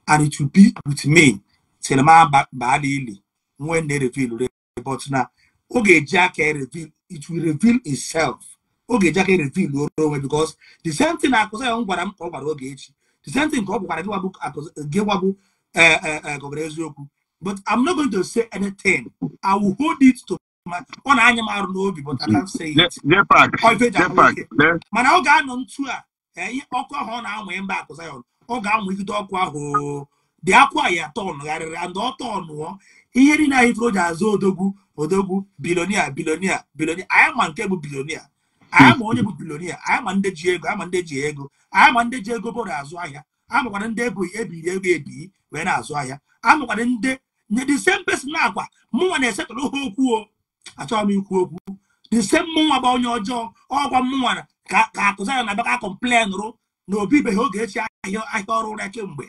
and it will be with me till m baa n'ili when they reveal but na ọ ga-eji aka e reveal it will reveal itself ọ ga-eji aka e reveal oro onwe because the same thing akụzi ya m gwara m ka ọ gwara oge echi the same thing ka ọ gwara gị gwabụ gọvanọ eziokwu but I'm not going to say anything I will hold it to ọ na-anya m arụ n'obi but I can't say it mana ọ ga-anọ ntu a eh, ọkụ ahụ ọ na-anwụ mba akụzi ya ọ ga-anwụ ikide ọkụ ahụ dị akwa ya tọn gharịrị and ọ tọnụọ ihe niile anyị tụrụ o ji azụ odogwu odogwu bilonia bilonia bilonia anyị ma nke bụ bilonia anyị ma onye bụ bilonia anyị ma ndị ji ego anyị ma ndị ji ego anyị ma ndị ji ego bụrụ azụ ahịa amakwara ndị ebu ebiri ego ebi wee na-azụ ahịa amakwara ndị the same person na-akwa mụnwa na-esetụrụ ha okwu o achọghị m ikwu okwu the same mụnwa bụ onye ọjọọ ọgwa mụnwa ka akụzi anya na baka kọmplen rụ na obibeghị oge echi ahịa ahịa ọrụ ụra kemgbe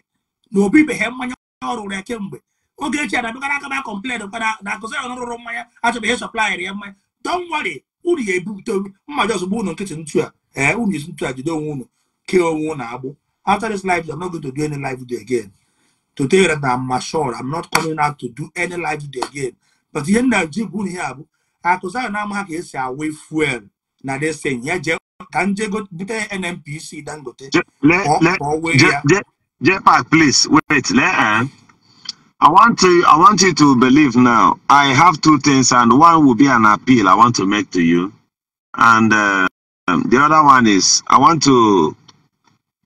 na obibeghị mmanya ọrụ ụra kemgbe Ogechi adabegara aka ma complain kpara na akụzi ọnụ rụrụ mmanya achọbeghị ịsọplayịrị ya mmanya don't worry unu ya ebupụta mmadụ ozugbo ụnụ nkịtị ntu a ee unu esi ntu a jide onwe ụnụ kee onwe unu agbụ after this live i'm not going to do any live video again to tell you that i'm mature i'm not coming out to do any live video again but ihe nna ji gwu ihe a bụ akụzi ahụ na-ama ka esi awe fuel na desin ya jee ka nje bute nnpc dangote ka ọ wee ya jepak please wait lee ah. I want to I want you to believe now. I have two things, and one will be an appeal I want to make to you, and uh, the other one is I want to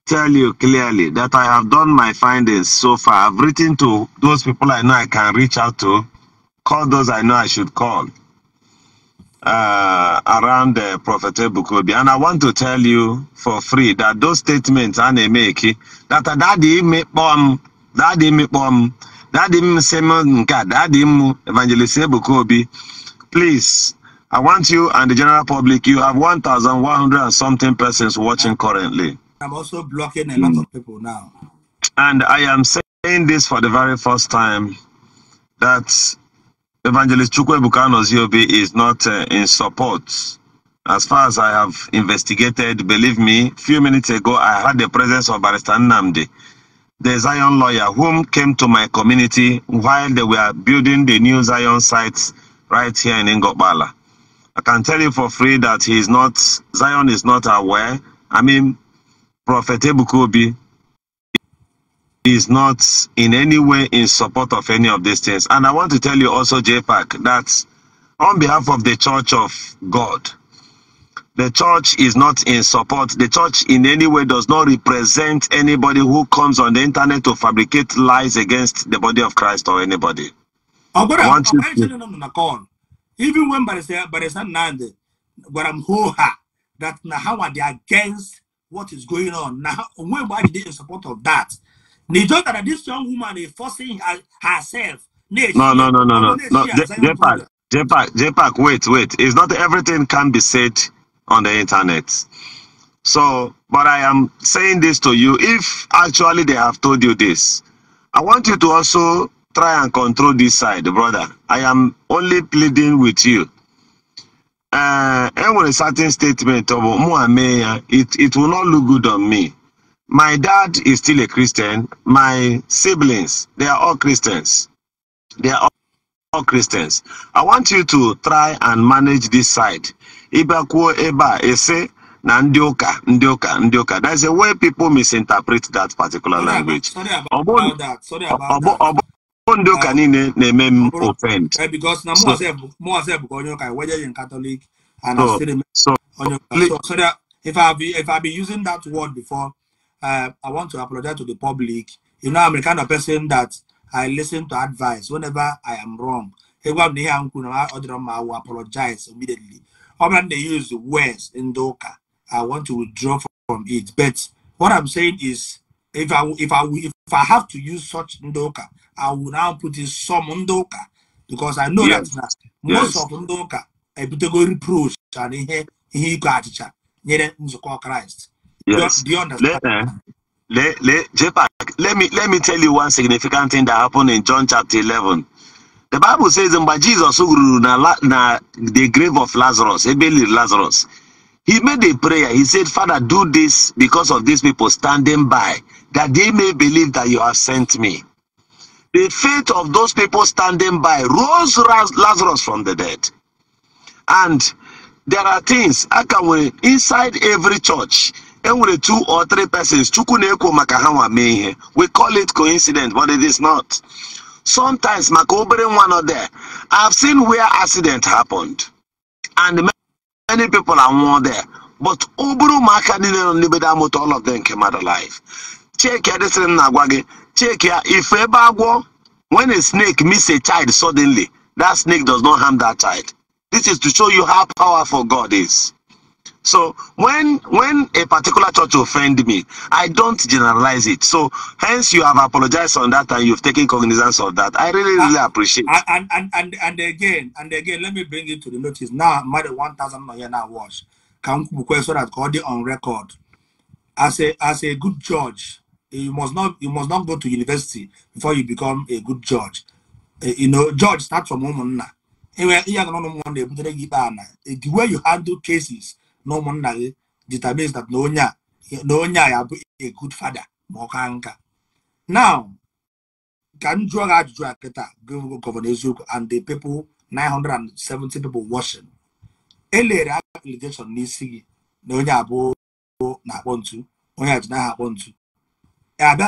tell you clearly that I have done my findings so far. I've written to those people I know I can reach out to, call those I know I should call uh, around the uh, Prophet Bukobi. And I want to tell you for free that those statements I make that that they make bomb um, that they make bomb. Um, Daddy Simon Nka, Daddy Evangelist Bukobi, please, I want you and the general public, you have 1,100 and something persons watching currently. I'm also blocking a lot of people now. And I am saying this for the very first time that Evangelist Chukwebukano Ziobi is not uh, in support. As far as I have investigated, believe me, few minutes ago, I had the presence of Barrister Namdi the Zion lawyer, whom came to my community while they were building the new Zion sites right here in Ngobala. I can tell you for free that he is not, Zion is not aware. I mean, Prophet Ebukobi is not in any way in support of any of these things. And I want to tell you also, JPAC, that on behalf of the Church of God, The church is not in support. The church in any way does not represent anybody who comes on the internet to fabricate lies against the body of Christ or anybody. Oh, but I, want you to... Even when Barisan Nande, but I'm that how are they against what is going on? Now, why did they in support of that? They thought that this young woman is forcing her, herself. No, no, no, no, no. no. j Jepak. j j wait, wait. It's not everything can be said on the internet. So, but I am saying this to you. If actually they have told you this, I want you to also try and control this side, brother. I am only pleading with you. Uh, and with a certain statement of Muhammad, it, it will not look good on me. My dad is still a Christian. My siblings, they are all Christians. They are all Christians. I want you to try and manage this side ịbakwuo ebe a ese na ndị ụka ndị ụka ndị ụka that's a way people misinterpret that particular language ọ bụ ndị ụka niile na-eme m offend eh, so, so, so, if I've if I've been using that word before, uh, I want to apologize to the public. You know, I'm the kind of person that I listen to advice whenever I am wrong. I apologize immediately. How they use words in Doka? I want to withdraw from it. But what I'm saying is, if I if I if I have to use such Ndoka, I will now put in some Ndoka because I know yes. that most of Ndoka I reproach and ihe ihe iko achịcha nyere Christ. Yes. Do, you understand? Let, eh, let, let, let me let me tell you one significant thing that happened in John chapter 11. The Bible says, and by Jesus na, na the grave of Lazarus, Ebeli Lazarus, he made a prayer. He said, Father, do this because of these people standing by, that they may believe that you have sent me. The faith of those people standing by rose Lazarus from the dead. And there are things I can akawe inside every church every two or three persons we call it coincidence but it is not sometimes maka obere nwa nọ there i've seen where accident happened and many people are more there but obere ụmụaka niile nọ n'ebe da all of them came out alive chike adịsịrị m na-agwa gị chike ya ife ebe agwọ when a snake miss a child suddenly that snake does not harm that child this is to show you how powerful god is So when when a particular church offend me, I don't generalize it. So hence you have apologized on that and you've taken cognizance of that. I really really ah, and, appreciate. And, and and and again and again, let me bring it to the notice. Now more one thousand here now watch. Can so that got it on record. As a as a good judge, you must not you must not go to university before you become a good judge. Eh, you know, judge start from home now. Uh, the way you handle cases na ụmụnna gị database na onye a na onye a ya bụ a good father ma ọ ka nka now ka m jụọ gị ajụjụ a kịta gọvanọ eziokwu and the people 970 people watching elere application n'isi gị na onye abụọ na-akpọ ntu onye ji n'aha akpọ ntu e, abịa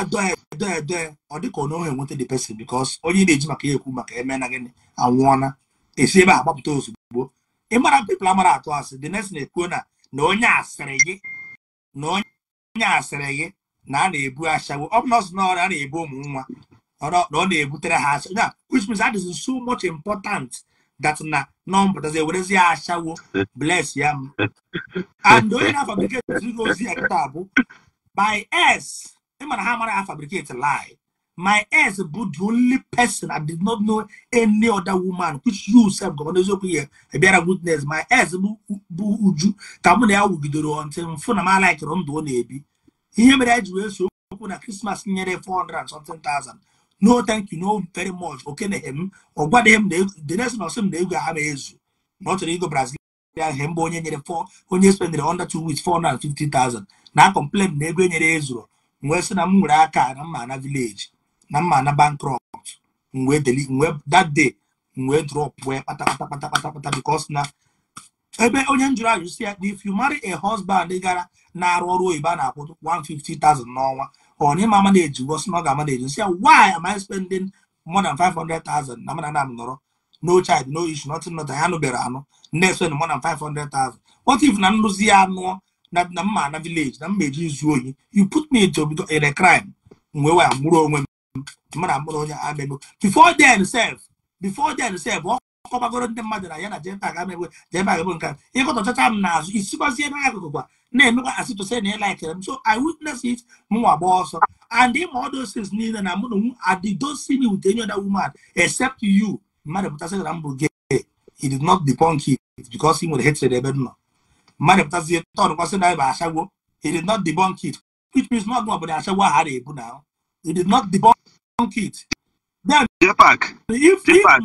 doe doe ọ dịka ka onye enweta the person because onye na-eji maka ya ekwu maka eme na gịnị anwụọna esi ebe a gbapụta ozugbo ịmara mara pepl amara atụ asị dị next na-ekwuo na na onye asịrị gị na onye asịrị gị na a na-ebu ashawo ọ bụ nọọsụ na ọrịa a na-ebu ụmụ nwa na ọ na-ebutere ha asha ya which means that is so much important that na nọmbatazi ewerezi ya ashawo bless ya m and onye na-afabriketi ozi ya kịta bụ by s ịmara ha amara ha fabriketi lie my ex bụ the only person i did not know any other woman which you sef gọvanọ eziokwu ihe bịara witness my ex bụ uju ka mụ na ya wugidere ọntị mfụ na m alaikịrị ndụ ọ na-ebi ihe mere anyị ji wee so okwu na krismas nyere 400 and something thousand no thank you no very much okeneghe m ọ m the next na m na ego ha ma ezu na ọ chọrọ ego brazilian he mbụ onye nyere onye spendere under two weeks 450,000 na a complain na ego e nyere m wee sị na m nwere aka na mma na vileji na mma na bankrupt mgbe that day mgbe drop wee kpata kpata kpata kpata because na ebe onye njụrụ ajụ si ya na if you marry a husband gara na-arụ ọrụ oyibo a na-akwụ 150,000 n'ọnwa ọ na ịma ama na-ejigo si na ọ ga-ama na-eji si ya why am I spending more than 500,000 na mana na m nọrọ no child no issue nothing nothing ha nụbere anụ na-espend more than 500,000 what if na nrụzi ya anụọ na mma na village na mma eji izu oyi you put me into a crime mgbe wee mụrụ onwe m before then sef before then sef ọ kọbagoro ndị mmadụ na ya na jempa ga emegbe jempa ga nke a ịkọta ọchacha m n'azụ isikwazie ebe akụkụ kwa na-emekwa asị to say na m so i witness it mụnwa gba ọsọ and ịma ọ doses niile na mụ na nwu adidosi me with any other woman except you mmadụ pụtasị na m bụ gay he did not debunk it because he nwere hatred ebe m nọ mmadụ pụtazie tọdụkwasị na ebe ashawo he did not debunk it which means not ọ bụ ọbụla ashawo ahụ a na-ebu na He did not debunk it. Then, if, if, how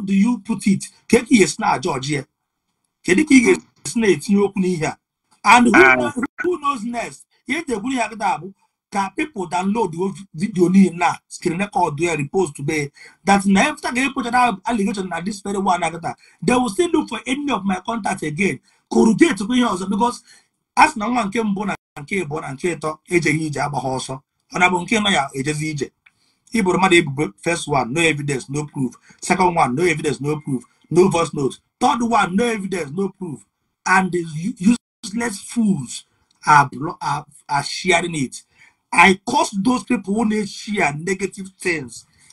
do you put it ka ka iyesi George? jọji ya kedu ka ị and who, uh, who knows next If people download video now, screen record ya repost that after ga epochara allegation this very one they will still look for any of my contacts again corrugate ihe ọzọ because a sị na nwa nke mbụ na nke ịbụ na nke ịtọ ejeghị ije agba ha ọsọ ọ na bụ nke nọ ya ejezi ije iburu mmadụ ebubo first one no evidence no proof second one no evidence no proof no voice note third one no evidence no proof and useless fools are, are, are sharing it i curse those people who na share negative things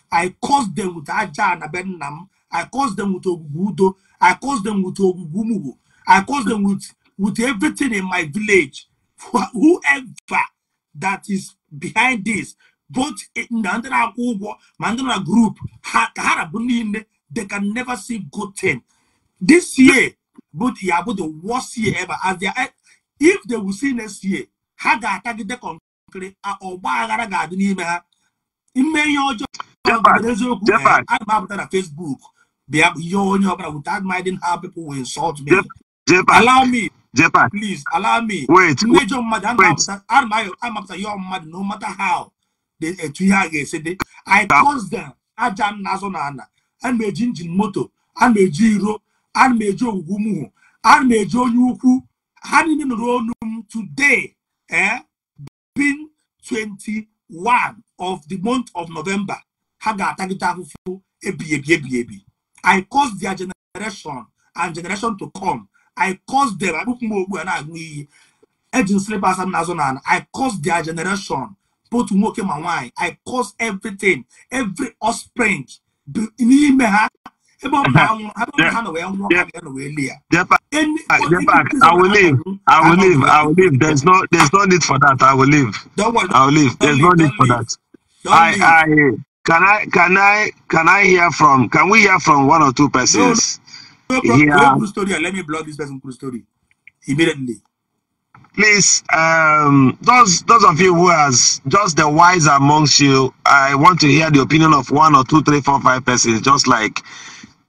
i curse them with aja na be nna m i curse them with ogwugwu udo i curse them with ogwugwu mugbo i curse them with with everything in my village. Whoever that is behind this, both in the Andana Ugo, Mandana group, they can never see good thing. This year, but yeah, but the worst year ever. As they are, if they will see next year, how uh, uh, they ha ga-ata gide kọnkịrị ọgba aghara ga-adị n'ime ha ime ihe ọjọọ I'm about to na fesbuk bịa ihe onye ọbụla without minding how people will insult me allow me Japan. Please allow me. Wait. Major mad and I'm after your mad no matter how. They eh, said I caused them. I Ajan Nazonana. am a Jinjin Moto. I'm a Jiro. I'm a Joe Gumu. am a Joe Yuku. am in Ronum today. Eh? Being 21 of the month of November. Haga Tagita Hufu. Ebi, I caused their generation and generation to come I caused them. I put Nazonan. I caused their generation, Put woke and wine. I caused everything, every offspring. I will leave. I will leave. I will leave. There's no there's no need for that. I will leave. I will leave. There's no need for that. I I can I can I can I hear from can we hear from one or two persons? yeah. Go story and let me block this person cool story immediately. Please, um, those those of you who has just the wise amongst you, I want to hear the opinion of one or two, three, four, five persons, just like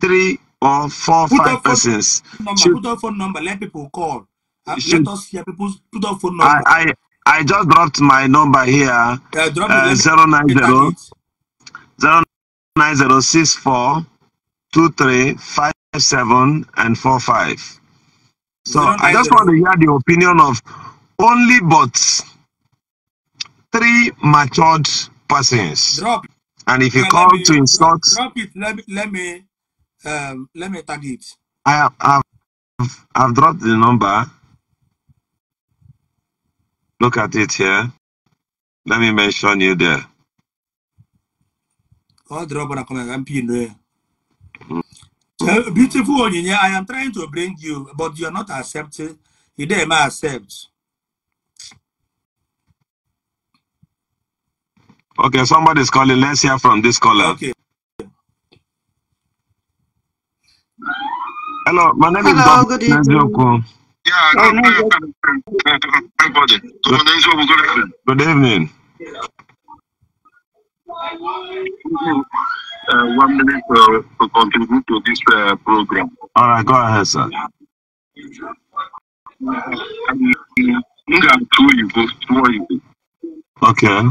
three or four, put five persons. Number, put our phone number. Let people call. Uh, let us hear people's put our phone number. I, I, I just dropped my number here. Uh, drop uh, 090 090 seven and four five. So I just want to hear the opinion of only but three matured persons. Drop. And if you yeah, call me, to insult, drop it. Let me let me um, let me tag it. I have I've, I've dropped the number. Look at it here. Let me mention you there. Oh, drop on a comment. I'm beautiful Onyinye, I am trying to bring you, but you are not accepting. You dare not accept. Okay, somebody's calling. Let's hear from this caller. Okay. Hello, my name Hello, is Dr. Yeah, good, good evening. Good evening. Uh, one minute uh, to contribute to this uh, program. All right, go ahead, sir. Okay.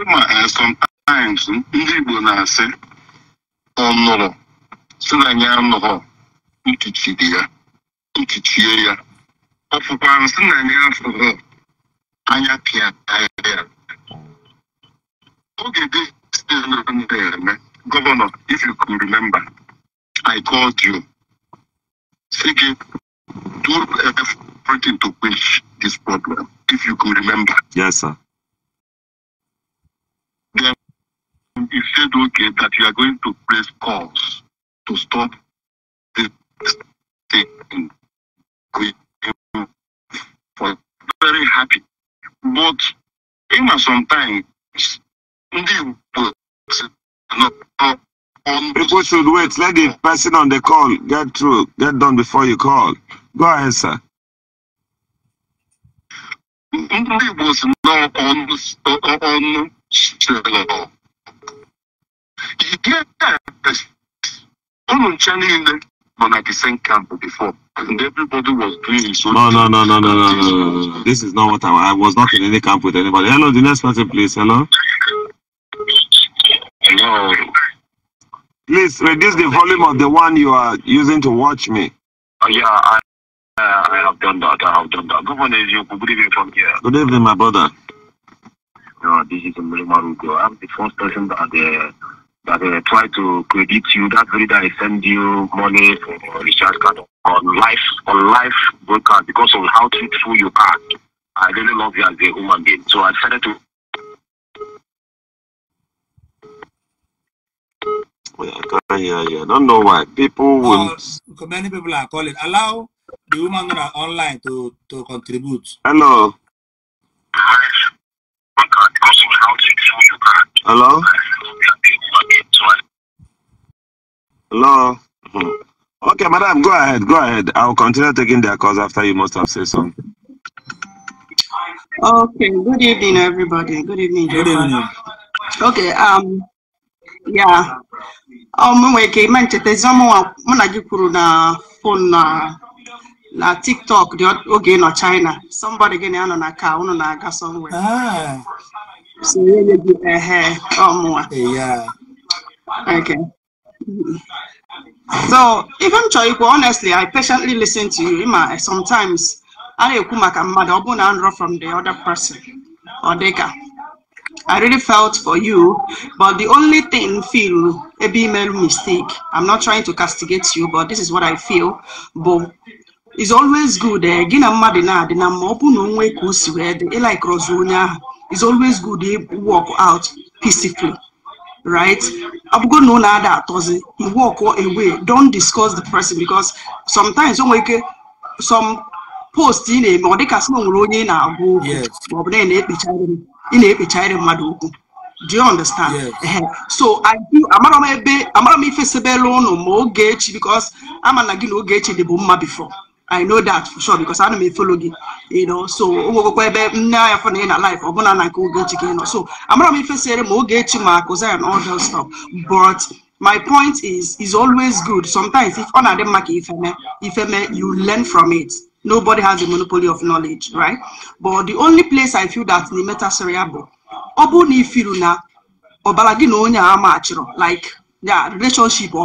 Um, sometimes ndị Igbo na-asị ọnụrụ si na here. anụghọ ntuchiri here. ntuchie ya ọfụkwa nsị na anyị afụghọ anya pịa here. Okay, still not this governor, if you can remember, I called you seeking do everything to quench this problem, if you can remember. Yes, sir. Then you said, okay, that you are going to place calls to stop this thing. We are very happy. But ịma sometimes ndị Igbo People should wait. Let the person on the call get through, get done before you call. Go ahead, sir. 95 camp before. And everybody was doing his own. No, no, no, no, no, no, no, no, This is not what I, I was not in any camp with anybody. Hello, the next person, please. Hello. Hello. Please reduce the volume of the one you are using to watch me. Uh, yeah, I, uh, I have done that. I have done that. Good morning, you. Good evening from here. Good evening, my brother. No, this is Murimarugo. I'm the first person that. Uh, that uh, try to credit you. That reader is send you money for uh, a uh, recharge card on life on life card because of how truthful you are. I really love you as a human being. So I decided to. Yeah, I yeah. I don't know why people oh, will. Uh, many people are calling. Allow the woman are online to to contribute. Hello. Hello. Hello. Hmm. Okay, madam, go ahead. Go ahead. I'll continue taking their calls after you must have said something. Okay. Good evening, everybody. Good evening. Good evening. Okay. Um. Yeah. Um. Nwere ike ime nchetazi ọmụnwa na gị kwuru na fon na tiktok dị oge nọ china somebody gị na nọ na ka unu na-aga somewhere. Ah. So, ehe, ọmụnwa. Yeah. Okay. So even Choikwa, honestly, I patiently listen to you. Ima, sometimes I kumaka from the other person or deka. I really felt for you, but the only thing feel a female mistake. I'm not trying to castigate you, but this is what I feel. But it's always good. Eh, gị na na na-adị na mma ọ bụ na onwe It's always good to walk out peacefully. right? going to na ada atozi. You walk away. Don't discuss the person because sometimes some some post ị na-eme ọ nwere onye ị na-agwa okwu maọbụ na ị na-ekpechara mmadụ okwu do you understand so amara m ebe amara m ife sebere ụnụ ma ogechi because ama na gị na ogechi dị bụ mma before I know that for sure because I'm a follow you know so now. I'm anya a life. ị am gonna na nke again. So, i so gonna be facing more ogechi ma akụza and all that stuff but my point is is always good sometimes if on na market, if ka you learn from it nobody has a monopoly of knowledge right but the only place i feel that the bụ ọ bụrụ na ifiru na ọbara gị na onye a machịrọ like yeah, relationship if you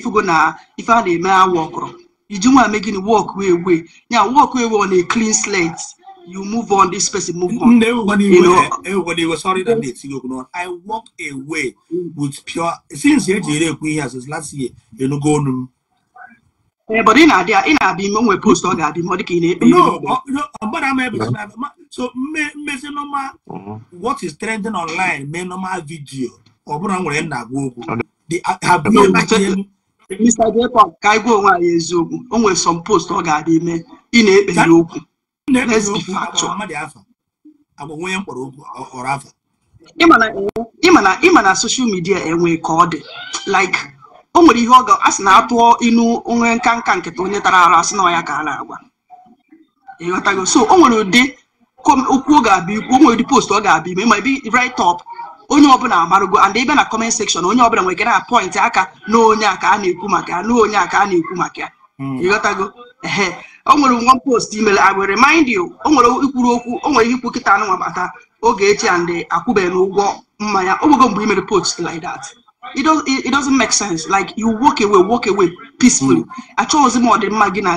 ifugo na if I na-eme a worker. You want to make it work, way way. Yeah, work way on a clean slate. You move on, this person move on. Everybody, you know, everybody was sorry that mm. they still going on. I walk away with pure since year we has since last year, you know, go on. Yeah, but in idea, in idea, when we post on that, more than No, no, but I'm able to. Mm. So, me, me, say no normal. Mm-hmm. What is trending online? Me normal video. Or, but I'm going to go. They have been. Mr. Jacob ka anyị gwa onwe anyị eziokwu o nwere some post ọ ga-adị ime ị na ekpe ya okwu ịma na soshal midia enwe ka ọ dị like o nwere ihe ọ ga asị na atụọ inu onwe nka nka nkịta onye tara ara asị na ya ka a na-agwa ịghọtago so o nwere ụdị okwu ọ ga-abịa ikwu o nwere ụdị post ọ ga-abịa ime ma ebe right up onye ọbụla amarugo and ịbịa na kọment sekshọn onye ọbụla nwere na pọịntị aka n'onye aka a na-ekwu maka ya n'onye aka a na-ekwu maka ya ịghọtago hmm. ehe o nwere nwa post imere i will remind you o nwere ikwuru okwu o nwere ihe ikwu kịta anụ nwabata oge echi and akwụbeghị ụgwọ mmanya ogogo nwego mgbe imere post like that it, doesn't make sense like you walk away walk away peacefully achọghịzi m ọdịmma gị na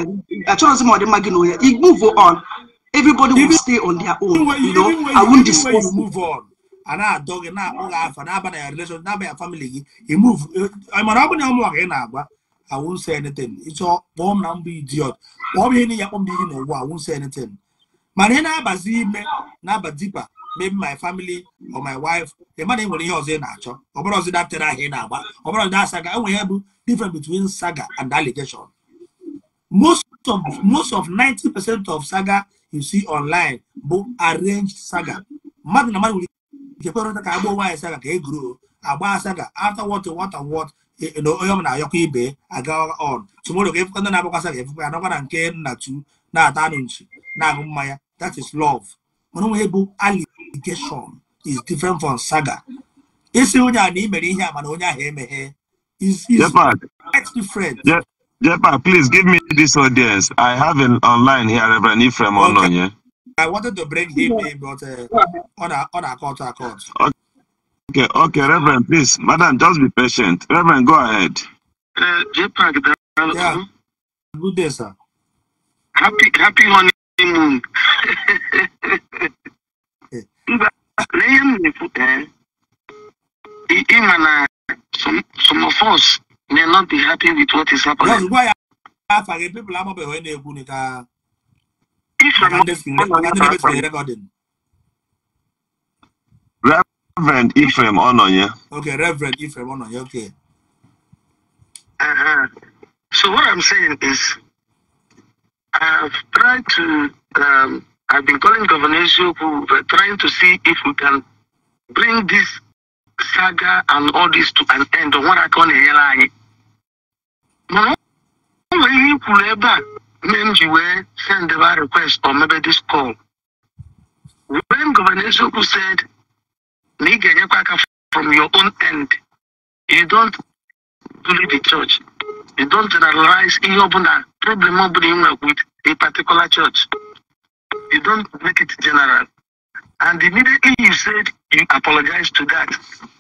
achọghịzi m ọdịmma gị na onye move on everybody will stay on their own you know i won't dispose move on ana adọ gị na-akpọ gị afa n'abalị ya relation n'abalị family gị imove mana ọ bụ na ụmụnwa gị na-agba awụnsa eneten ịchọ kpọọ m na mbụ idiot kpọọ m ihe niile kpọọ m ihe na ụwa awụnsa eneten mana ihe na-abazi ime na-aba dipa maybe my family or my wife ị mana enwere ihe ọzọ ị na-achọ ọ bụrụ ọzọ datere ahịa ị na-agba ọ bụrụ ọzọ saga enwere ihe bụ different between saga and allegation most of most of 90 percent of saga you see online bụ arranged saga mmadụ na mmadụ nwere nchekwarọta ka agba nwaanyị saga ka eguru agba asaga after what what and what e, e, na onye ọbụla ayọkọ ibe aga on tomorrow ka efụkọ ndị na-agbakwa asaga e ya nọkwa na nke nna tu na-ata anụ nchi na-aṅụ mmanya that is love mana onwe bụ allegation is different from saga isi onye a na ị ihe a mana onye ahụ emeghe is different Jepa, please give me this audience. I have an online here, Reverend Ephraim Ononye. Okay. I wanted to bring him in, but uh, on a on a court, a court. Okay, okay, Reverend, please, Madam, just be patient. Reverend, go ahead. Uh, yeah. Good day, sir. Happy, happy honeymoon. some, some of us may not be happy with what is happening. That's why people are I have people. I'm Reverend Ephraim Ononye. Okay, Reverend Ephraim Ononye, okay. Uh-huh. So what I'm saying is, I've tried to, um, I've been calling Governor trying to see if we can bring this saga and all this to an end. What I call a lie menji wee send the request or maybe this call. When Governor Soku said, from your own end, you don't believe the church. You don't generalize in your problem with a particular church. You don't make it general. And immediately you said you apologized to that.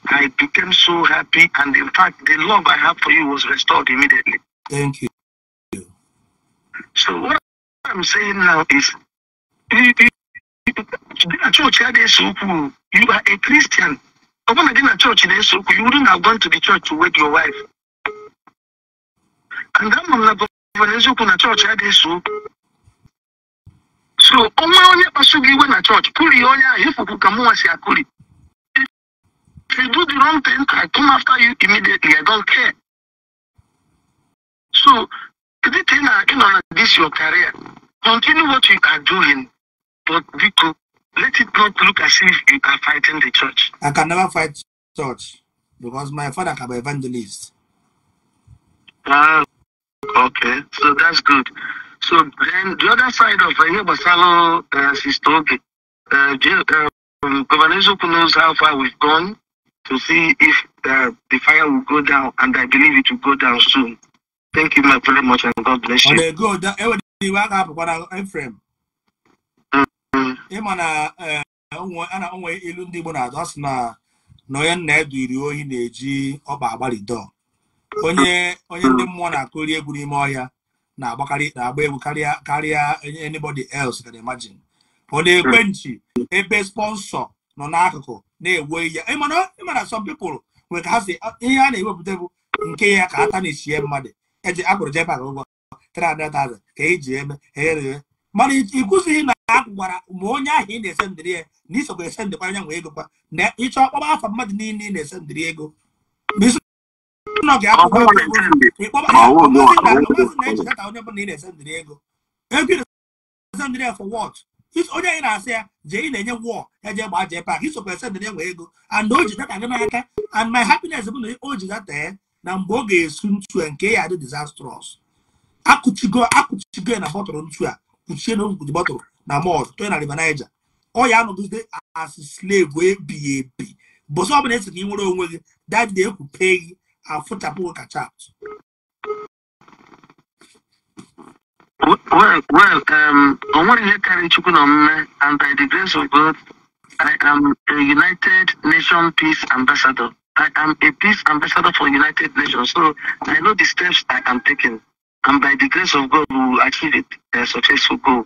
I became so happy, and in fact, the love I have for you was restored immediately. Thank you. So what I'm saying now is, eh, eh, eh, church had a so You are a Christian. I want to get a church in so you wouldn't have gone to the church to wed your wife. And that mom na church had a so. So onwe onye kpasu iwe na church kuri onye ahụ ịfụpụ ka mụnwa si akụri. If you do the wrong thing, I come after you immediately. I don't care. So anything this your career, continue what you are doing, but Vico, let it not look as if you are fighting the church. I can never fight church because my father can be evangelist. Ah, uh, okay, so that's good. So then the other side of uh, Basalo uh, talking. uh, um, Governor Zuku knows how far we've gone to see if uh, the fire will go down, and I believe it will go down soon. Thank you very much and God bless you. Ọ na-ego ụda enwere iwe a ga-apụkwa na Efrem. Ịma na na-enwe onwe ilu ndị Igbo na-adụ asị na na onye nna edu iri ohi na-eji ọba agbalịdọ. Onye onye ndị mmụọ na-akụri egwu n'ime ọhịa na-agbakarị na-agba egwu karịa karịa anybody else can imagine. Ọ na-ekwe nchi ebe sponsọ nọ n'akụkụ na ewe ewu ya. Ịma na some people nwere ka ha si ihe a na-ewepụta bụ nke ya ka aka na-echie mmadụ. eji akwụrụ JPAC ụgwọ 300,000 ka eji eme e mana na a ma onye ahụ ị na-ese ndịrị ya na isokwa ese ndịkwa anya nwe ego na ịchọ ọkpọba afọ mmadụ niile ị na-ese ndịrị ego na onye ị na-ese ndịrị ego ego ese ndịrị ya for anyị na-asị ya jee ị na-enye wọl eje gbaa JPAC isokwa ese ndịrị ya nwe ego and o ji data gị n'aka and my happiness bụ na o ji data na mgbe ọ ga-esu ntu a nke ya dị disastrous akụchigo akụchigo na bọtụlụ ntu a kpuchie na okwuji bọtụlụ na mọd tụọ na river niger ọ ya anọgide as slave ebighị ebi bụsọ ọbụla esi ka ị nwere onwe gị dadị ekwupe gị afụchapụ kacha atụ well, well, um, on what you na Chukunome, and by the grace of God, I am a United Nations Peace Ambassador. I am a peace ambassador for United Nations, so I know the steps I am taking, and by the grace of God, we will achieve it, a successful goal.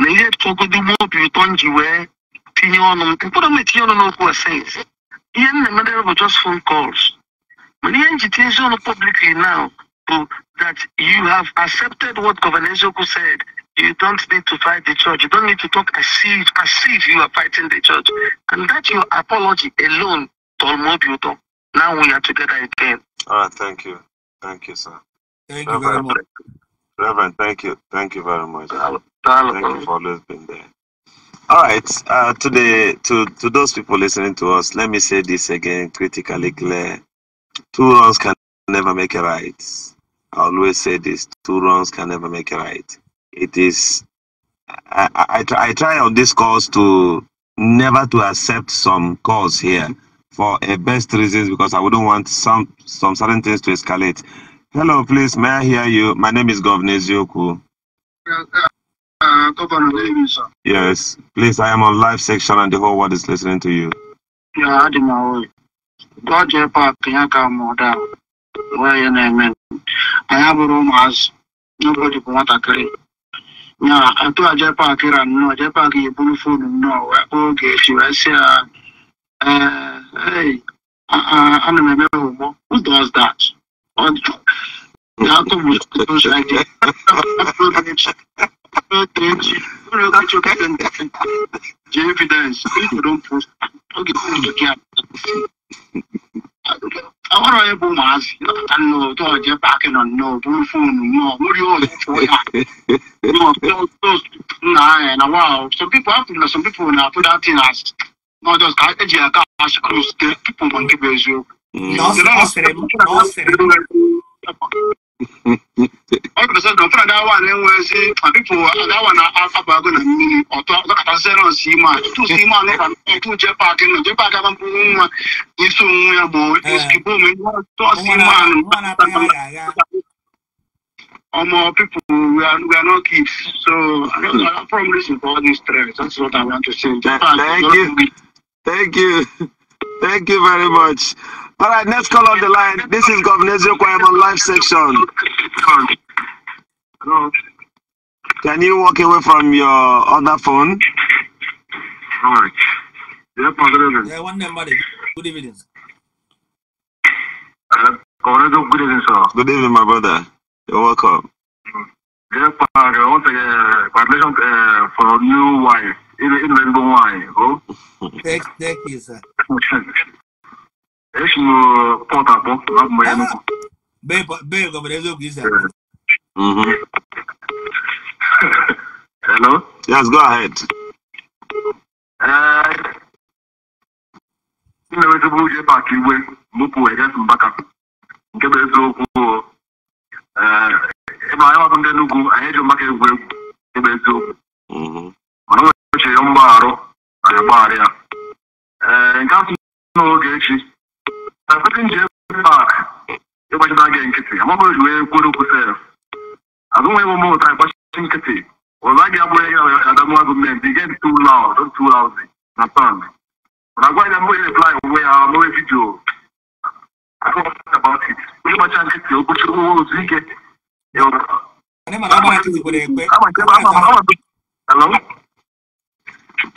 na ihe tụgodo gbuo obi ụtọ m ji wee tinye ọnụ m mkpụrụ m etinye ọnụ n'okwu a sayens ihe m na just phone calls mana ihe m publicly now bụ that you have accepted what Governor Ezeoku said you don't need to fight the church you don't need to talk as if as if you are fighting the church and that your apology alone Talmud Luton. Now we are together again. All ah, right, thank you. Thank you, sir. Thank Reverend, you very much. Reverend, thank you. Thank you very much. Hello. Hello. Thank you for always being there. All right, uh, to, the, to, to those people listening to us, let me say this again critically clear. Two wrongs can never make a right. I always say this two wrongs can never make a right. It is, I, I, I try on this course to never to accept some cause here for a best reasons because I wouldn't want some some certain things to escalate. Hello, please, may I hear you? My name is Governor Zioku. Governor Yes, please, I am on live section and the whole world is listening to you. Yeah, I didn't know. your papa, you come on down. Where your name? I have a room as nobody want to carry. Yeah, I told Jepa Kiran, no, Japa you put food, no, okay, she was here. Uh, hey, I I ana m eme homo who does that? The You know atom will those like the evidence people don't post okay do I want àwọn ọ̀rọ̀ yẹn bó know. Don't nù tó ọ̀jẹ́ on. No, don't phone no more. ọ̀rọ̀ do you want ọ̀pẹ́ ọ̀pẹ́ ọ̀pẹ́ nà ẹ̀ nà wà some people have to know. some people now put that thing as n'ọjọọ ka eji ya aka ash cross ke tupu mgbe nke bụ eziokwu ọ pụtasị na ọfụrụ adawa na-enwezi ọpịpụ adawa na abago na mmiri ọtọ ọkọtasị na ọsị ime a tutu ime a n'ụka ọtụ je paakị nọ je paakị aba mkpụrụ nwa isi onwe ya bụ esikipụ ome ọsị ime a ọmọ people we are we are not kids so i don't know from reason for all this stress that's what i want to say. Japan, Thank you. Thank you very much. All right, next call on the line. This is Governor Ziokwayamon live section. Hello. Can you walk away from your other phone? All right. one number. Good evening. Uh, good evening, sir. Good evening, my brother. You're welcome. Yeah, congratulations uh, uh for new wife. é é ó aí que irembo nwaanyị o esi m pọt akpọ abụ m ya nnukwu bee gọbara eziokwu isa hello yes go ahead ah não é é por só um ịna-enwetụbụ uje pak igwe mụpụ ejes mbaka nke bụ eziokwu ebe anyị ọbụ ndị Enugu é eji maka egwu egwu nke bụ eziokwu o chere mgbagharụ anyị agbaghara ya ee nke atụ n'oge echi na petin ji ebe pak ịgbachita gị nkịtị amabụrụ ji wee kwuru okwu sef azụnwa ebe mmụta ịgbachi nkịtị ọzọ a ga-abụrụ ya adamwa gọọmenti dị get too loud not too lousy na song mana gwa ya mbụ ya reply onwe ya mewe vidio about it onye gbacha nkịtị okpochi onwe otu ike Hello?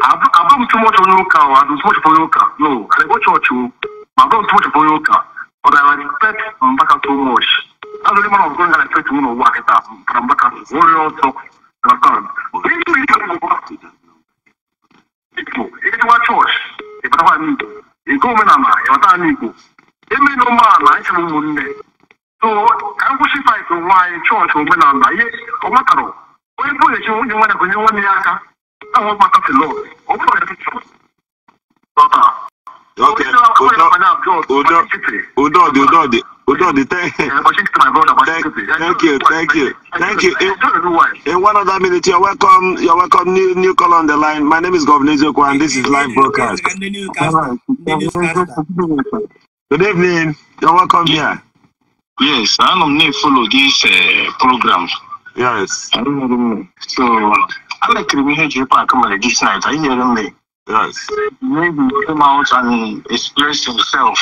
abamu tí wọ́n ti fọyín kan o àdùn tí wọ́n ti fọyín kan no àlẹ́gbọ́ church o abamu tí wọ́n ti fọyín kan but I respect Mbaka so much that's the man of God I respect him wọ́n wà kẹta from Mbaka wọ́n rí ọ́ sọ understand èyí tí wọ́n ti fọyín kan Igbo èyí tí wọ́n church ìbára wà ní Igbo ìgò omenala ìbára ní Igbo eme ní ọmọ àlà ẹ̀ṣẹ̀ mú mu nne so ka m kwụsị fight nwa anyị church omenala ihe ọ matara onye bụla echi nwunye nwanne ya ka onye nwanne ya aka àwọn ọmọ kan ti lọ òun náà ti tún lọ́tà. ok udon udon udon udon thank thank you thank you thank you in, in one other minute you're welcome you're welcome new new call on the line my name is governor ezeko and this is live broadcast good evening you're welcome here yes i don't need follow this uh, program yes i don't know so I'm a criminal J Park this night. Are you hearing me? Uh, maybe come out and express himself.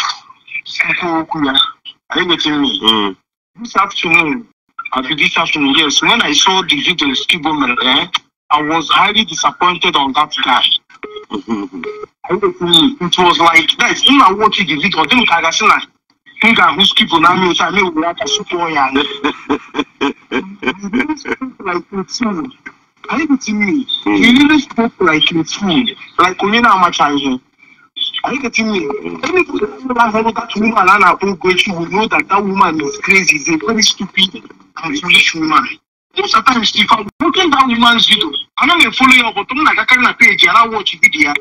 Are you uh, getting me? This afternoon, after this afternoon, yes, when I saw the video Skibomer, eh, I was highly disappointed on that guy. it was like that. When I watching the video, I think I got seen that. I think I was keeping on me, I mean, we have to support you. Like, it's Are you getting me? Mm. He really spoke like a fool, like Onina Amachanje. Are you getting me? Hmm. Anybody that woman and Anna Bogochi will know that that woman is crazy, is a very stupid and foolish woman. Most of the time, if I'm broken down woman's video, I know going to follow you but I'm not going to page and I watch video.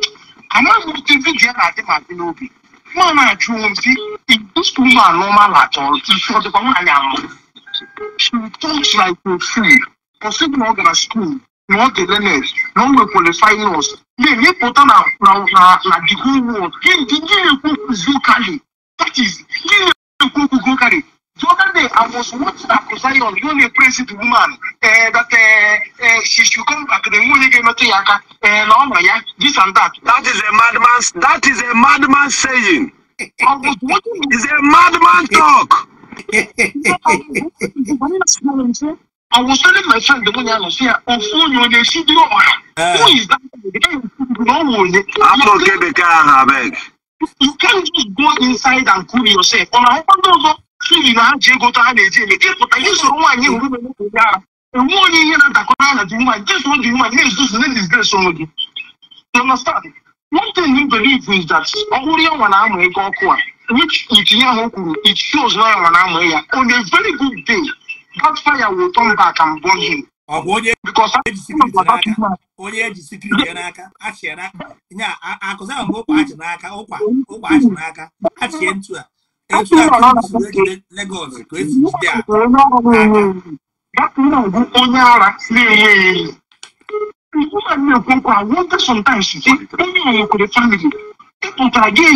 I'm not going to video and I think I'm going to be. Man, I drew him, see, if this woman normal at all, she's for the woman I am. She talks like a fool. Considering all the school, Monte Lenes, non we qualify us. Then you put on the whole world. Then the Guinea Kuku Zukali. That is Guinea Kuku Zukali. The other day I was watching Dr. Zion, the only president woman, uh, that uh, uh, she should come back. The only game to Yaka, uh, Lama, yeah, this and that. That is a madman's. That is a madman saying. I was watching. It's a madman talk. I was telling my friend the money I was here. On phone, you they Who is that? The guy who no one. I'm not get the car, beg. You can't just go inside and cool yourself. On our own door, feel in our jail go to our jail. The people that use the one you will be able to And one year that the corner the woman, just one the woman, yes, this is this grace on you. You understand? One thing you believe is that Oriya Wanamu Eko Okwa, which it shows now Wanamu Eya, on a very good day, that fire will turn back and burn him. ọ bụ onye onye eji sikiri ya n'aka achị n'aka nya akụzi ahụ bụ ụkwa achị n'aka ụkwa ụkwa achị n'aka achịe ntu a etu a kụziri Lagos ka esi jide a onye ara na-enye eyi I wonder sometimes onye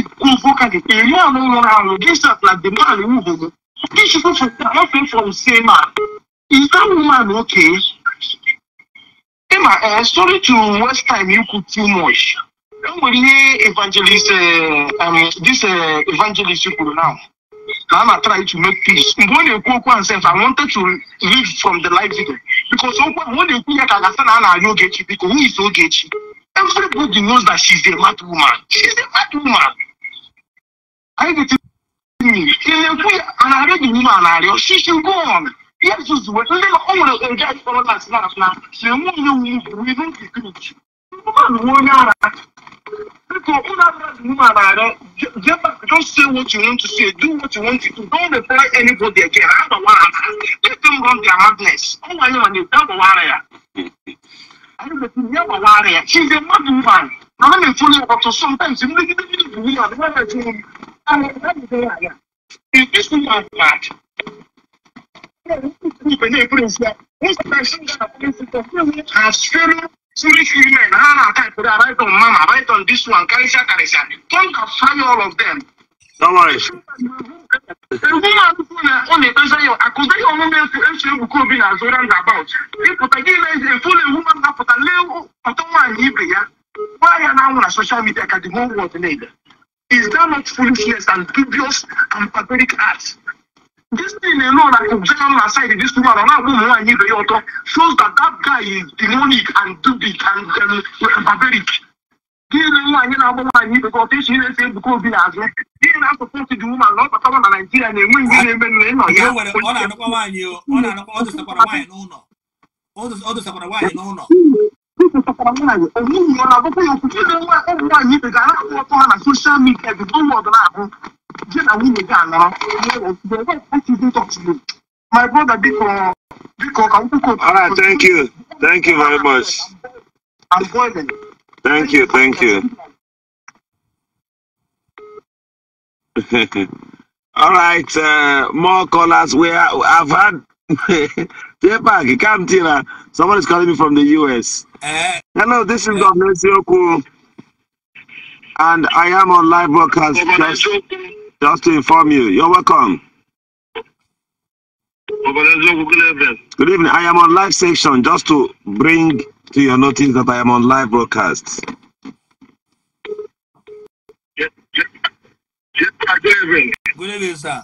ekwu okwu gị eri alụ nwụrụ alụ gị sat na dị mmadụ These people from, are not free from sin, man. Is that woman okay? Emma, uh, sorry to waste time, you could too much. Don't worry, evangelist, uh, um, this uh, evangelist you could now. Now I'm trying to make peace. When you go one self, I wanted to live from the life video. Because when you cook, I can understand how you get you, because who is so get you? Everybody knows that she's a mad woman. She's a mad woman. I get to. Tinekwi anarị dị n'ime anarị ọchịchị gọn ya zuzue ndị o nwere nje akpọrọ na snap na si enwe onye wu bụ ihu nkikichi mmadụ onye ara biko ụlọ abịa dị n'ime anarị just say what you want to say do what you want to do don't reply anybody again agbawa ha let them run their madness ọ nwanyị ma na-ete agbawara ya ya gbawara ya she's a mad woman na me nfo le ọtọ sometimes m legi legi legi wi adi ha na aka ìpèrè right on mama right on this one karisia karisia don't fire all of them. Don't worry. Why are now on social media can the whole world need? Is that not foolishness and dubious and pathetic acts? This thing alone that Obama aside this woman and that woman I need the shows that that guy is demonic and dubious and, um, and barbaric. Gịnị nwa anyị na-agba nwaanyị ibe gọta echi na-ese ebuka obi n'azụ gịnị na-asọpọtụ dị woman na ọkpata nwa na Naịjirịa na-enwe ihe na-eme na ịnọ ya ọ na-anụkwa nwaanyị ọ na-anụkwa ọ dụsakwara nwaanyị n'ụlọ ọ dụsakwara nwaanyị n'ụlọ This is a woman. A woman, I go for you. You know what? Oh, why you the guy? I want on social media. The blue world now. Just a woman again now. The way I even talk to you. My brother, because because I want to. All right, thank you, thank you very much. I'm boiling. Thank you, thank you. All right, uh, more callers. We are, I've had Tepag, come Tina. Someone is calling me from the US. Uh, eh. Hello, this is Governor uh, Sioku. And I am on live broadcast just, just to inform you. You're welcome. Good evening. I am on live section just to bring to your notice that I am on live broadcast. Good evening, sir.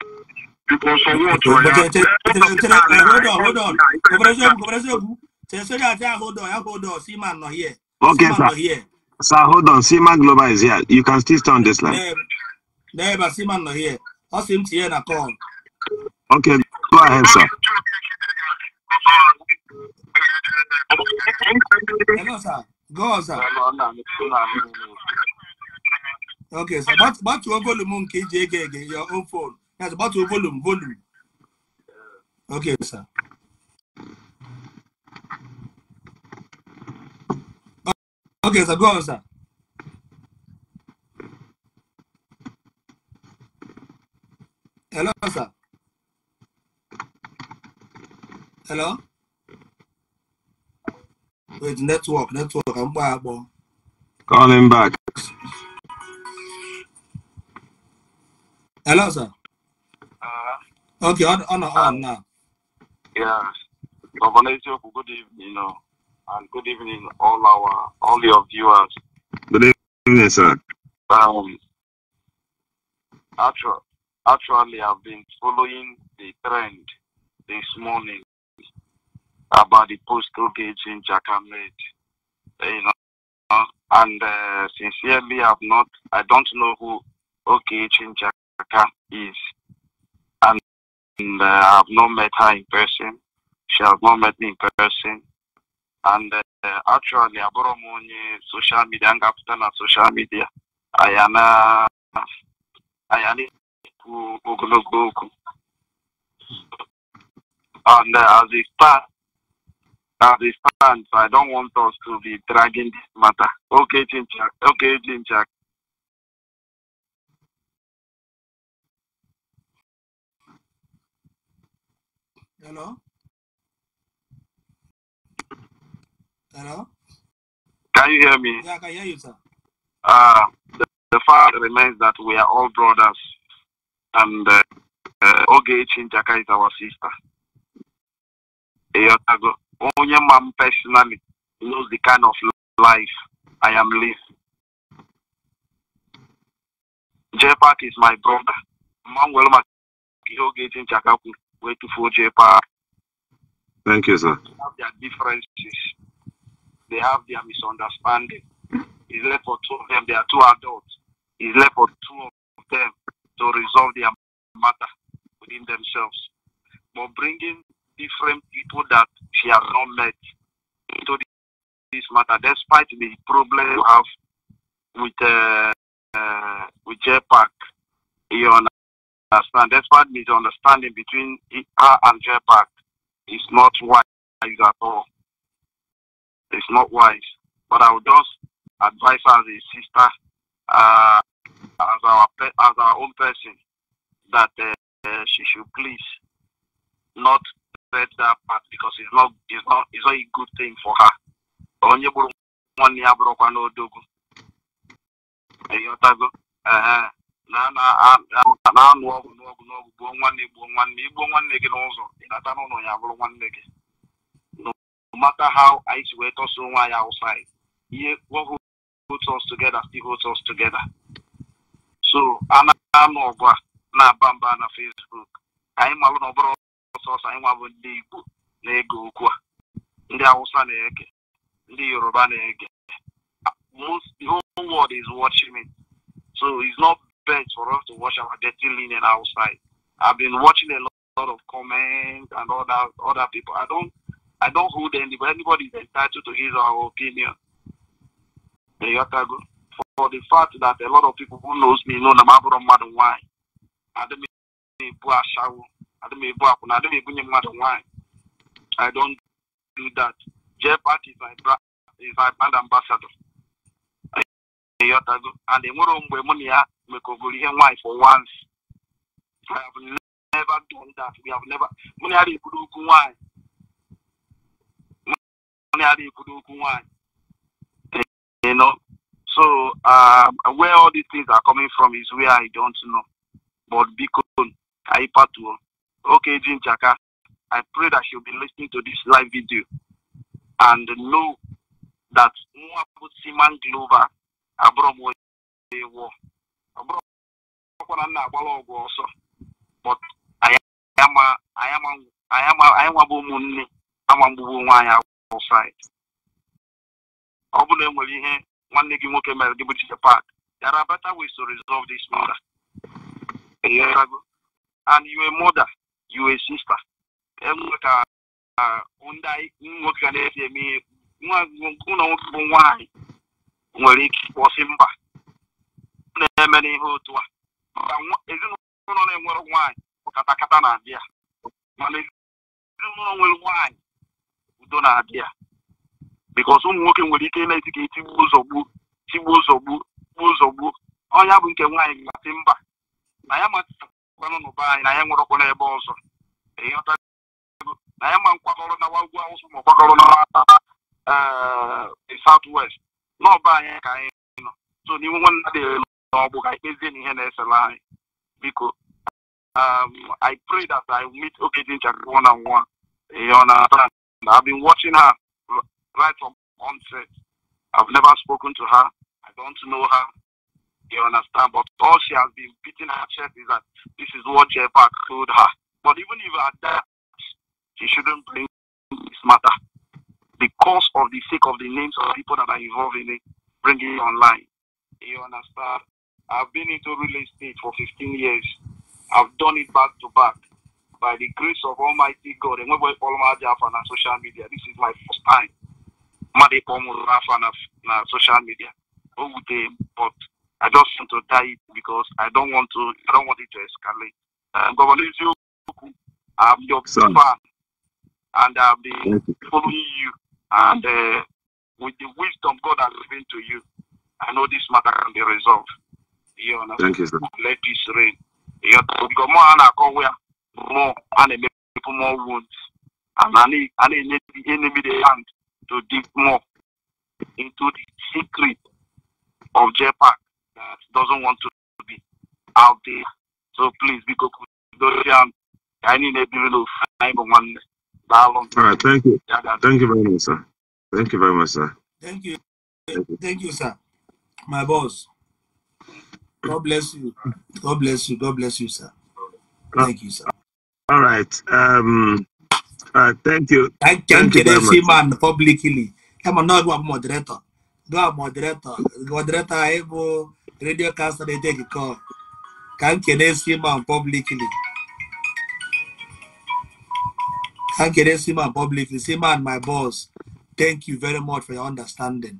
hold on hold on kòbẹ̀rẹ̀ṣẹ́gun kòbẹ̀rẹ̀ṣẹ́gun hold on hold on sí màá here. okay sir here. sir hold on sima global is here you can still stay on this line. dẹ́ẹ̀bà sima not here How seems here tiẹ̀ na call. okay go ahead sir. hello sir go on sir. okay sir gbatuo volume nke iji ege ege your own phone. That's about to volume, volume. Okay, sir. Uh, okay, sir, go on, sir. Hello, sir. Hello? Wait, network, network. I'm back, bro. Call back. Hello, sir. Uh, okay, on on, on um, now. Yes, Governor good evening, uh, and good evening all our all your viewers. Good evening, sir. Um, actually, actually, I've been following the trend this morning about the postal gate in Jakamed. You know, and uh, sincerely, I've not. I don't know who OKH in Jakarta is. And, uh, I've not met her in person. She has not met me in person. And uh, actually, I borrow money uh, social media and ga social media. I am a, I am ekwu Google Google. And as it stands, as it stands, I don't want us to be dragging this matter. Okay, Chinchak. Okay, Chinchak. Hello? Hello? Can you hear me? Yeah, I can hear you, sir. Uh, the, the fact remains that we are all brothers, and uh, uh, Oge Chinchaka is our sister. Only man personally knows the kind of life I am living. J is my brother. Mom will make Oge Chinchaka way to Foje Park. Thank you, sir. They have their differences. They have their misunderstanding. It's left for two of them. They are two adults. It's left for two of them to resolve their matter within themselves. But bringing different people that she has not met into this matter, despite the problem you have with uh, uh, with J Park, you know, understand, despite misunderstanding between her and Jetpack, is not wise at all. It's not wise. But I would just advise her as a sister, uh, as our as our own person, that uh, uh, she should please not let that part because it's not it's not it's not a good thing for her. Onye bụrụ na-anụ na ọgụ n'ọgụ n'ọgụ gbuo nwanne gbuo nwanne igbuo nwanne gị n'ụzọ ịnata n'ụlọ ya bụrụ nwanne gị no matter how anyị si wee tọsa onwe anyị outside ihe what holds us together still holds us together so ana na-anụ ọgụ a na-aba mba na Facebook anyị malụ na ọ bụrụ ọsọsọ anyị nwa bụ ndị Igbo na-ege okwu a ndị Hausa na-ege ndị Yoruba na-ege most the whole world is watching me so it's not best for us to wash our dirty linen outside. I've been watching a lot, of comments and other other people. I don't I don't hold anybody. Anybody is entitled to his or her opinion. For the fact that a lot of people who knows me know na mabụrụ mmadụ nwanyị adịm ebu ashawo adịm ebu akwụna adịm ebunye mmadụ nwanyị I don't do that. Jeff Park is my is my brand ambassador. ịghọtago and enwere mgbe mụ na ya mekọgoro ihe nwaanyị for once never done that we have never mụ na ya na-ekwuru okwu nwaanyị mụ na ya na-ekwuru okwu nwaanyị you know so um, where all these things are coming from is where I don't know but biko ka anyị patuo okay jinjaka I pray that she'll be listening to this live video and know that Mwabu Siman Glover abụrụ m onye ewu ọbụrụkwa na m na-agbara ọgwụ ọsọ anyị nwabụ ụmụnne ama mgbugbu nwaanyị awụsaid ọ bụrụ na enwere ihe nwanne gị nwoke mere gị bụ Chike Park there are better ways to resolve this mother, and you a mother you a sister enwe ka ndị nwoke ga na-esi eme ihe ụlọ nwoke bụ nwaanyị nwere ike ịkpọsi mba na-eme n'ihe otu a ezinụlọ na-enwere nwanyị katakata na-abịa mana ezinụlọ nwere nwanyị udo na-abịa bikos ụmụ nwoke nwere ike na-eti ka etigbu ụzọ gbuo tigbuo ụzọ gbuo gbuo ụzọ gbuo ọnya bụ nke nwaanyị gasị mba na ya matakwanụ n'ụba anyị na ya nwerekwana n'ebe ọzọ na ya ma nkwakọrọ na ugwu awụsa ma ọ kwakọrọ ee eh, south west n'ọba anyị ka anyị so n'iwu nwanne dị n'ọgbụ ka anyị kpezie na ihe na-esela anyị um, I pray that I meet Okedinchak one eh, on one. You understand? I've been watching her right from onset. I've never spoken to her. I don't know her. You understand? But all she has been beating her chest is that this is what Jeff told her. But even if at that, she shouldn't bring this matter because of the sake of the names of people that are involved in it, bringing it online. You understand? I've been into real estate for 15 years. I've done it back to back. By the grace of Almighty God, and when we follow my on social media, this is my first time. Made on social media. But I just want to die because I don't want to I don't want it to escalate. Um, Governor I'm your Son. fan and I've been following you And uh, with the wisdom God has given to you, I know this matter can be resolved. You know, Thank you, sir. Let peace reign. You know, because more and more, where more and make people more wounds. And I need, I need the enemy the hand to dig more into the secret of JPAC that doesn't want to be out there. So please, because I need a little time on one. All right, thank you. Thank you very much, sir. Thank you very much, sir. Thank you. Thank you, thank you sir. My boss. God bless you. God bless you. God bless you, sir. Uh, thank you, sir. All right. Um, uh, thank you. I can't get a man publicly. I'm not a moderator. Do a moderator. Moderator, I have radio caster. They take a call. Can't get a man publicly. Thank you, Sima publicly. Sima and my boss, thank you very much for your understanding.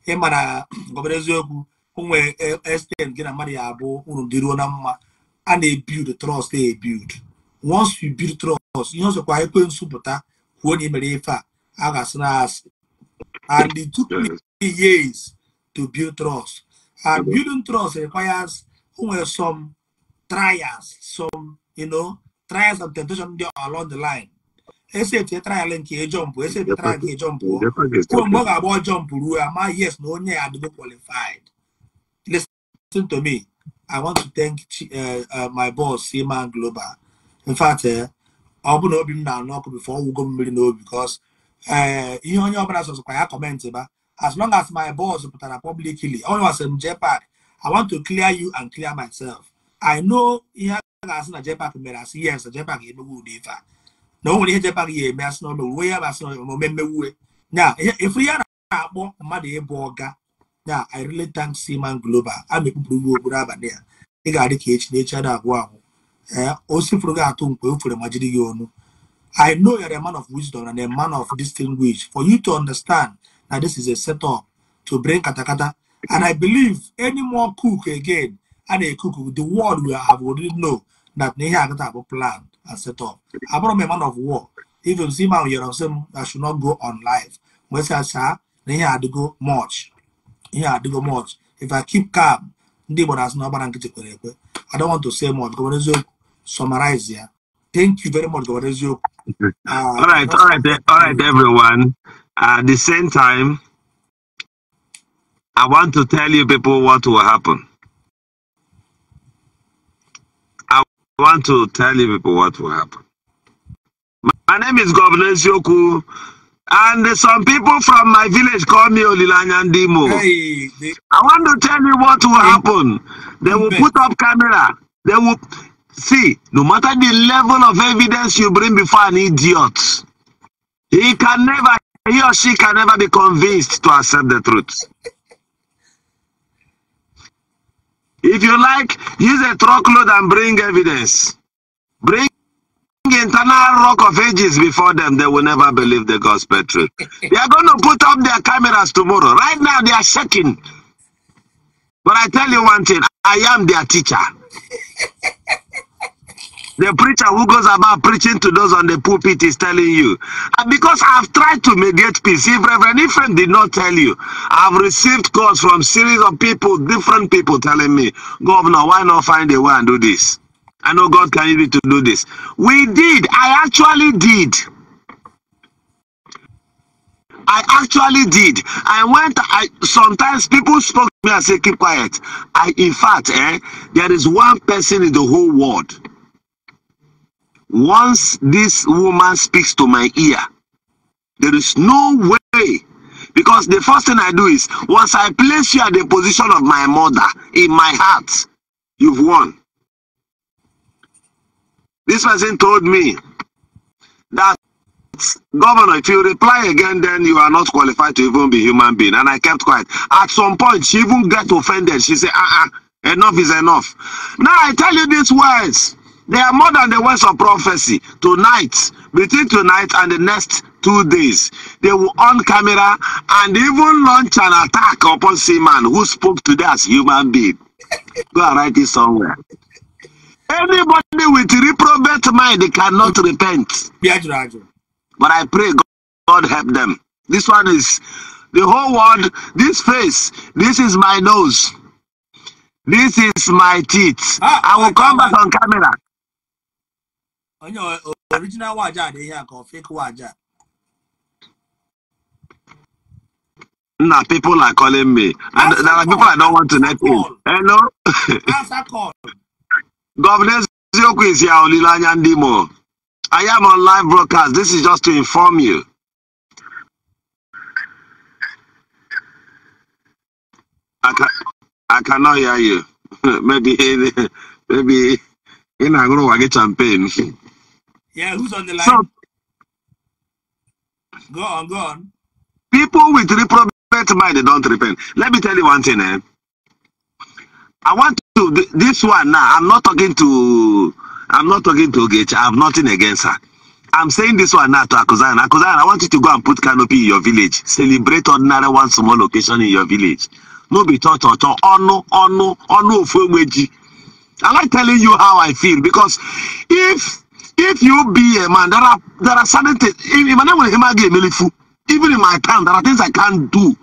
Hey, man, na gọbara eziokwu o nwere estem gị na mmadụ ya abụ unu dịruo na mma a build ebild trust build. once you build trust ihe ọzọkwa ekwe nsụpụta kwuo na imere ife a a ga-asị and it took me years to build trust and building trust requires o some trials some you know trials and temptation along the line esi etu etrayal nke ejọmpụ esi etu etrayal nke ejọmpụ oh. kwuo mgbe ọ ga-agba jọmpụ ruo ama yes na onye ya adịgo qualified listen to me i want to thank uh, uh, my boss Seaman Global in fact ọ eh, bụ na obi m na-anụ ọkụ bifo ọwụgo mmiri n'obi because eh, ihe onye ọbụla sọsọkwa ya kọmentị ba as long as my boss pụtara publicly onye wasị m JPAC i want to clear you and clear myself i know ihe a ga-asị na JPAC mere as yes JPAC emegbu ụdị ife a na onwere ihe jebe agaghị eme asị n'ọnụ uwe ya bụ asị n'ọnụ omume na efu ya na-akpọ mmadụ ịbụ ọga na i really thank Seaman Global a na okpuru abalị ya ị ga-adị ka echi na echi ada agwụ agwụ ee o sifụrụ gị atụ mkpe ma jiri gị ọnụ I know you're a man of wisdom and a man of distinguish for you to understand that this is a setup to bring katakata and I believe any more cook again a na-ekuku the world will have already know that na ihe agata abụ planned and set up. I brought a man of war. If you see my year of some, I should not go on live. When I say, then I had to go march. Here I had to go march. If I keep calm, ndị Igbo na-asụ n'ọgbara nkịtị kwere ekwe. I don't want to say more. Gọvanọ eziokwu summarize here. Thank you very much, Gọvanọ eziokwu. Uh, all right, all right, all right, everyone. At the same time, I want to tell you people what will happen. I want to tell you people what will happen. My name is Governor Sioku, and some people from my village call me Olilanyandimo. Hey, I want to tell you what will happen. They will put up camera. They will see, no matter the level of evidence you bring before an idiot, he can never, he or she can never be convinced to accept the truth. If you like, use a truckload and bring evidence. Bring internal rock of ages before them. They will never believe the gospel truth. they are going to put up their cameras tomorrow. Right now, they are shaking. But I tell you one thing I am their teacher. The preacher who goes about preaching to those on the pulpit is telling you. And because I've tried to mediate peace, if Reverend Ephraim did not tell you, I've received calls from series of people, different people telling me, Governor, why not find a way and do this? I know God can lead you to do this. We did. I actually did. I actually did. I went, I sometimes people spoke to me and say, keep quiet. I in fact, eh, there is one person in the whole world once this woman speaks to my ear, there is no way. Because the first thing I do is, once I place you at the position of my mother in my heart, you've won. This person told me that, Governor, if you reply again, then you are not qualified to even be human being. And I kept quiet. At some point, she even got offended. She said, uh-uh, enough is enough. Now I tell you these words. They are more than the words of prophecy. Tonight, between tonight and the next two days, they will on camera and even launch an attack upon Seaman who spoke to that as human being. Go and write it somewhere. Anybody with reprobate mind they cannot repent. But I pray God help them. This one is the whole world, this face, this is my nose. This is my teeth. Ah, I will come back on camera. onye original waja dị ihe a ka ọ fake waja Nna people are calling me. And there are people I don't want to net in. Hello? Answer Governor is here, Olilanya Ndimo. I am on live broadcast. This is just to inform you. I, can I hear you. maybe maybe in a group champagne. Yeah, who's on the line? So, go on, go on. People with reprobate mind they don't repent. Let me tell you one thing. Eh? I want to this one now. I'm not talking to. I'm not talking to Gage. I have nothing against her. I'm saying this one now to Akuzan. Akuzan, I want you to go and put canopy in your village. Celebrate ordinary one small location in your village. No be taught or taught. Oh no, oh no, oh no, I like telling you how I feel because if if you be a man, there are there are certain things. If my name will him even in my town, there are things I can't do.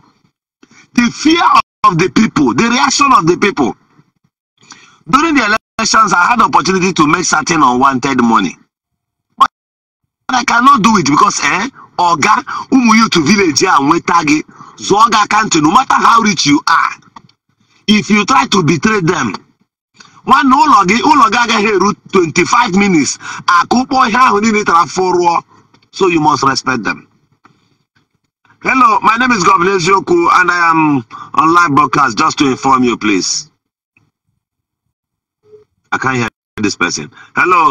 The fear of the people, the reaction of the people. During the elections, I had opportunity to make certain unwanted money. But I cannot do it because eh, Oga, umu you to village here and Wetagi, Zoga country, no matter how rich you are, if you try to betray them, One ụlọ gị ụlọ gị agaghị eru 25 minutes akụkpọ ihe ahụ niile tara fụrụọ so you must respect them hello my name is governor eziokwu and i am on live broadcast just to inform you please i can't hear this person hello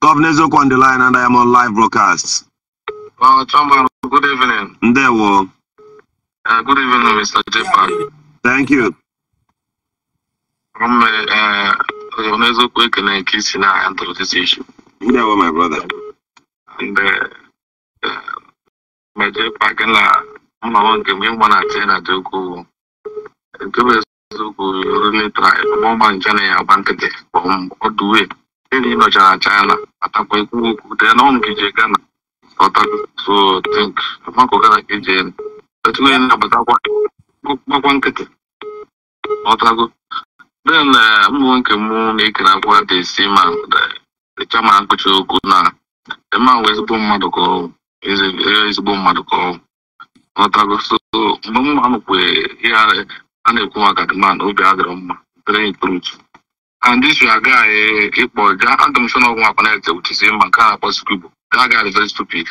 governor eziokwu on the line and i am on live broadcast well, Chumba, good evening. Ndewo. Uh, good evening, Mr. J. Thank you. Um, uh, uh n'eziokwu ekele nke isi na-handle isi issue. Ndị awa my brother. And uh, uh, mejekwa gị na mmanwụ nke m ịgba na tie na dị ukwuu. Nke bụ eziokwu runetra mọma nje na ya agba nkịtị kpọm ọdụwe. Enyi nọchara China atakwa ekwu okwu dee na ọnụ gije Ghana. Ọtaso tink makụ Ghana ka ije enu. Otu onye na-agbatakwa gbakwa nkịtị. Ọtago. Then na Munke Moon, they can acquire the same the ma which you could not. The man was born Madoko, is is born Madoko. Not a go so no man way here and a Kumaka man, Obiagram, very truth. And this a boy, I don't show no one connected with the same man, can't possible. That guy is ga stupid.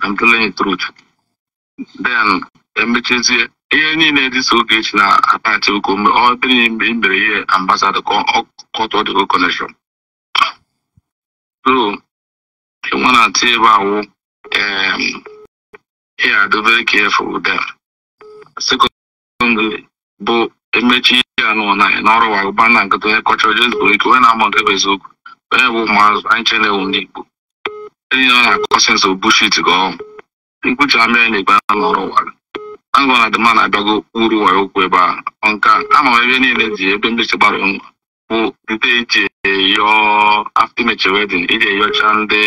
I'm Then, e ihe niile dị so Ogechi na-atachị oko mgbe ọ bịrị mere ihe ambasadọ ka ọ tụọ dị connection so nwa na-atụ ebe awụ ya adobere careful ụda them bụ emechi ihe anụ na n'ọrụ wagụba na nkịta onye kọchọrọ jezbo ike onye na-amụ nke bụ eziokwu onye bụ ụmụazụ anyị chenewu ndị Igbo enyi nọ na-akọ sens obushit gị ọhụ nkwuchi amịa na igbe ọrụ wagụ Angọ na Dema na-abịago uru ụwa okwu ebe a nka ama m ebe niile ji ebe ndị chegbara ngwa bụ ndị iji eyo after imechi wedin iji eyọcha ndị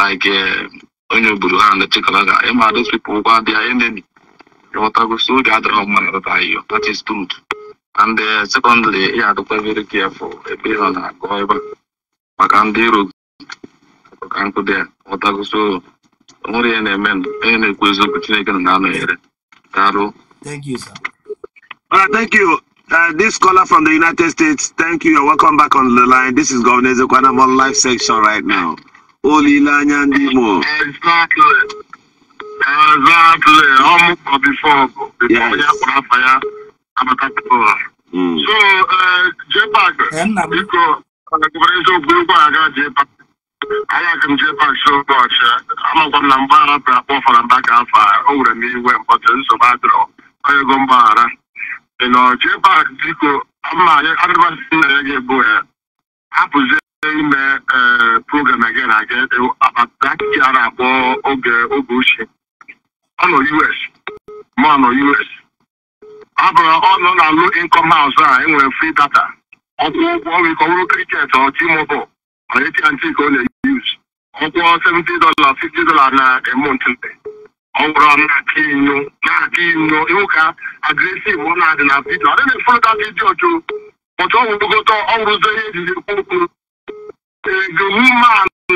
like eh, onye obodo ha na ga ịma those people gwa dị enemy enemi so oge adịrọ mma na rụta iyo that is truth and eh, secondly ya adịkwa very careful ebe ị nọ na-agụ ebe maka ndị iro ka nkụ dị ya ghọtago onwere ihe na-eme onye na-ekwu eziokwu Chineke na anọnyere Hello. Thank you, sir. All right, thank you. Uh, this caller from the United States, thank you. You're welcome back on the line. This is Governor Zekwana. I'm on live section right now. Olilanya Ndimo. Exactly. Exactly. Almost before. before yes. I'm a caterpillar. Mm. So, uh, J-Pack, mm. you go, uh, Governor Zekwana, J-Pack. anyị jee pak so ọcha amakwa m na mgba a rapụrụ akpọ fara mba ka afọ o nwere m iwe mkpọtụ nsogbu adịrọ onye ego mgbaghara ị nọ jee pak biko ama nna ya ga-ebu ya hapụzie ime ee program aga na aga e, abataki a na-akpọ oge oge ochie ọ nọ us ma ọ nọ us ọ bụrụ ọ nọ na lo income house a enwere free data ọkwụ ụgwọ ọ nwere ike ọ bụrụ kriket ọ timobol echianchi ka ọ na-eyuz ọkwụọ 70 dọla 50 dọla na emont ọ na-aka inyo na ka inyo ịwụka agresiv ọ na-adị na vidio adịghị efọta vidio jụ ọtụ ọgwụgota ọgwụrụzo ihe ejiri ekwu okwu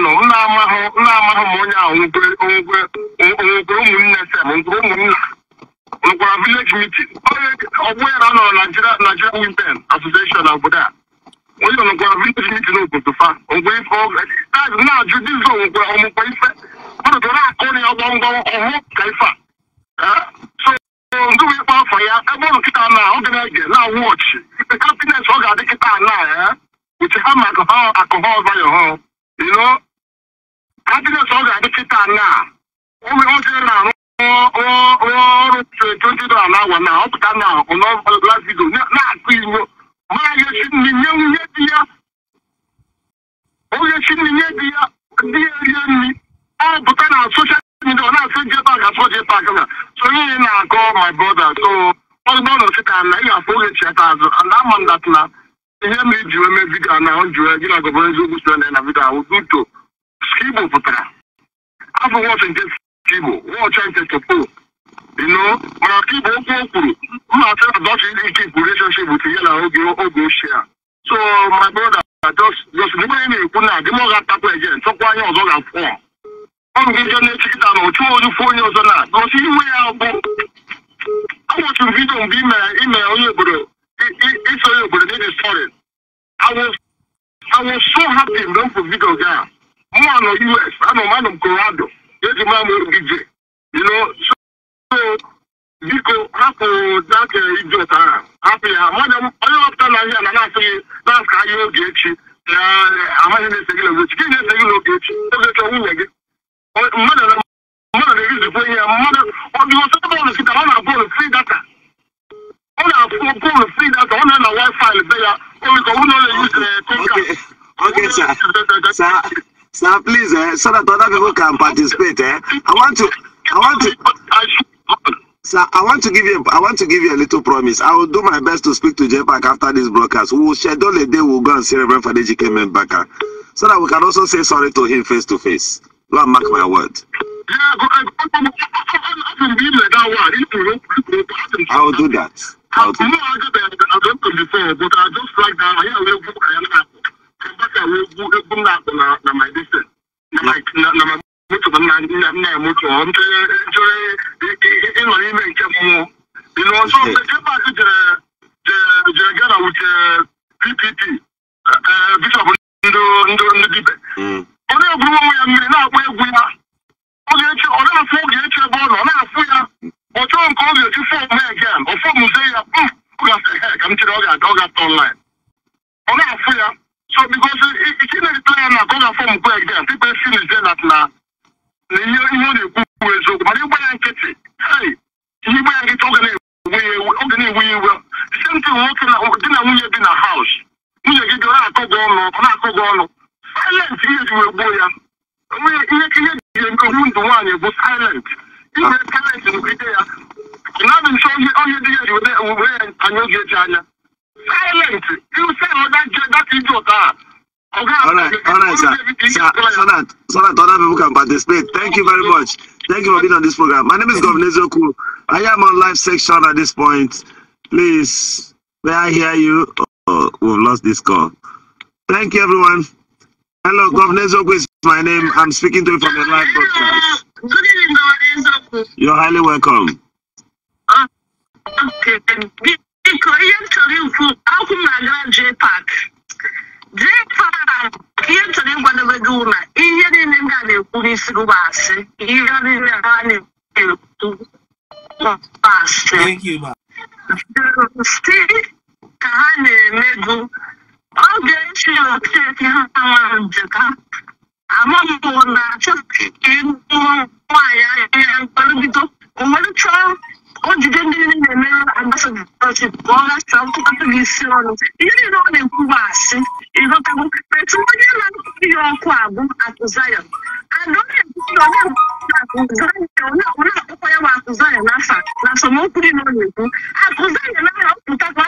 nọ m onye ahụ nwekwe vileji mitin ọgbụ ya na nọ na Nigeria Women Association na obodo onye nọ nkwa vintage n'iji n'obodo fa ngwe ife ọgụ na-ajụ dizọ ngwe ọmụkwa ife mmadụ na-akụ na ya gbọmgbọm ọhụ ka ife a so ndị wee afọ ya ebe ụlọ kịta na ọ na na wọchị ife ọ ga-adị kịta na ya uche ha ma akụhọ ha kapines ọ ga-adị kịta na ụmụ na-arụ ọrụ 20 na awa na na na-akụ igbo mana yesi ninye nye di ya oyesi di ya dị ya rie nri ọ pụta na soshal midia ọ na-asụ jepak asụ jepak na sonye ihe na-akọ my brother so ọzụgbọ nọ sị na ị ga-afụ oge chiata azụ and ama m na ihe m iji wee mee vidio na ọ gị na eziokwu na na vidio ahụ duto pụtara afọ wọchị nke nke no mana okwu o kwuru mma na dọchi ndị ike relationship bụ tinye na oge oge ochie a so my brother ị na-ekwu na adịm ọga atakwa ege chọkwa anya ọzọ ga-afụ ọ gị jọ na-echikịta na ochu ojufu onye ọzọ na n'osi iwe ya bụ m vidio mgbe imere onye obodo iso onye obodo dị sọrị awụ so hapi mgbe mfu vidio gị a mụ anọ us anọ m biko hapụrụ dake ije ahụ hapụ ya onye ọpụta n'ahịa na na-asị gị na asịghị ka ahịa oge echi na amaghị na-ese gị n'oge echi gị na-ese gị n'oge echi oge chọọ nwunye gị mmadụ na-eruzikwa ihe mmadụ ọ dị ọsọ bọọlụ kịta ọ na-abụ ụlụ fri ọ na bọọlụ fri data ọ na-ana be ya onye yuzi konka Sir, please, eh, so that other people can participate. Eh? I want to, I want to. Sir, I want to give you a, I want to give you a little promise. I will do my best to speak to JPAC after this broadcast. We will schedule a day we'll go and see Reverend Fadejike Membaka so that we can also say sorry to him face to face. Lord, mark my word. I will do that. I will do that. mutu nna nna ya mutu ọ ntụnye ntụnye nọ n'ime nke mmụọ ịnọ nso epas jere jere gana wute ppp bishọp ndụ ndụ ndị dibe ọ na egwu onwe ya mmiri na-akpọ egwu ya oge echi ọ na-afụ oge echi ebe ọ nọ ọ na-afụ ya ọ chọọ nke ọ ga-echi fọm again ọ fọm ze ya ọ ga-asị he ka m chere ọ ga-aga ọ ga-atọ online ọ na-afụ ya so because ike na-erite ya na ka ọ ga-afọ m kwe again people feel is there na na ihe ihe ọ na-ekwu bụ eziokwu mana ịgba ya nkịtị ihe ịgba ya nkịtị oge na-ewu ya ya iwe senti nwoke di na nwunye bi na haus nwunye gị bịa na-akọ gị ọnụ ọ na-akọ gị ọnụ silent ihe ji wee gbuo ya ihe ihe ji ewu ndụ nwaanyị bụ silent ihe silent nkịtị ya na-abụ nso onye dị ya ji wee anya oge eji anya silent ịrụsị ọda je data ije ụta a Alright, alright, sir. sir. So that other people can participate. Thank you very much. Thank you for being on this program. My name is Governor Zoku. I am on live section at this point. Please, may I hear you? Oh, we've lost this call. Thank you, everyone. Hello, Governor Zoku is my name. I'm speaking to you from the live broadcast. Good evening, Governor Zoku. You're highly welcome. Ah, okay, you, how come I graduate park? jee kpaa ihe nchọrọ ịgwadobe gị na ihe niile ndị a na-ekwu n'isi gị bụ asị ihe niile ha na-ekwu asị si ka ha na-eme gị oge echi okeke ha ama njeka amaghị na chọọ ka ịnụ nwaanyị ahịa mkpalibido o nwere chọọ o jide ndị niile mere ambasadọchi pụọ na sọkụkọtụ gị isi ọnụ ihe niile ọ na-ekwuba asị ịghọtago etu onye na-akụkọ ihe ọkụ abụ akụ zayon onye akpụkwa ya bụ akụ zayon n'afa na asọmokwu dị na ọ na-ekwu akụ zayon aha pụtakwa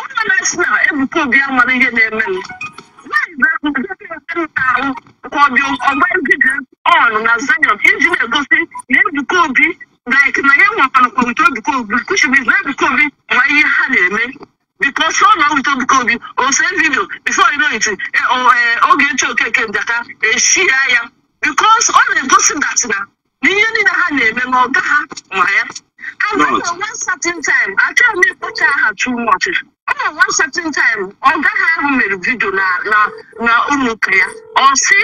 ụlọ na-esi na ebuka obi ya mara ihe na-eme m ahụ ka ọ dị ọgba egige ọnụ na zayon iji na-egosi na ebuka obi like na ya nwakwanakwa wit Obiku Obi kuchibiz na Obiku Obi nwa ihe ha na-eme biko so na wit Obiku Obi ose vidio bifo imet Ogechi Okeke Njaka eshia ya bikos ọ na-egosi dat na n'ihe niile ha na-eme na ọga ha ma ya agụna one certain time achọghị m ịkpọcha aha too much ọ na one certain time ọga ha ahụ mere vidio na ụlọ ụka ya ọ si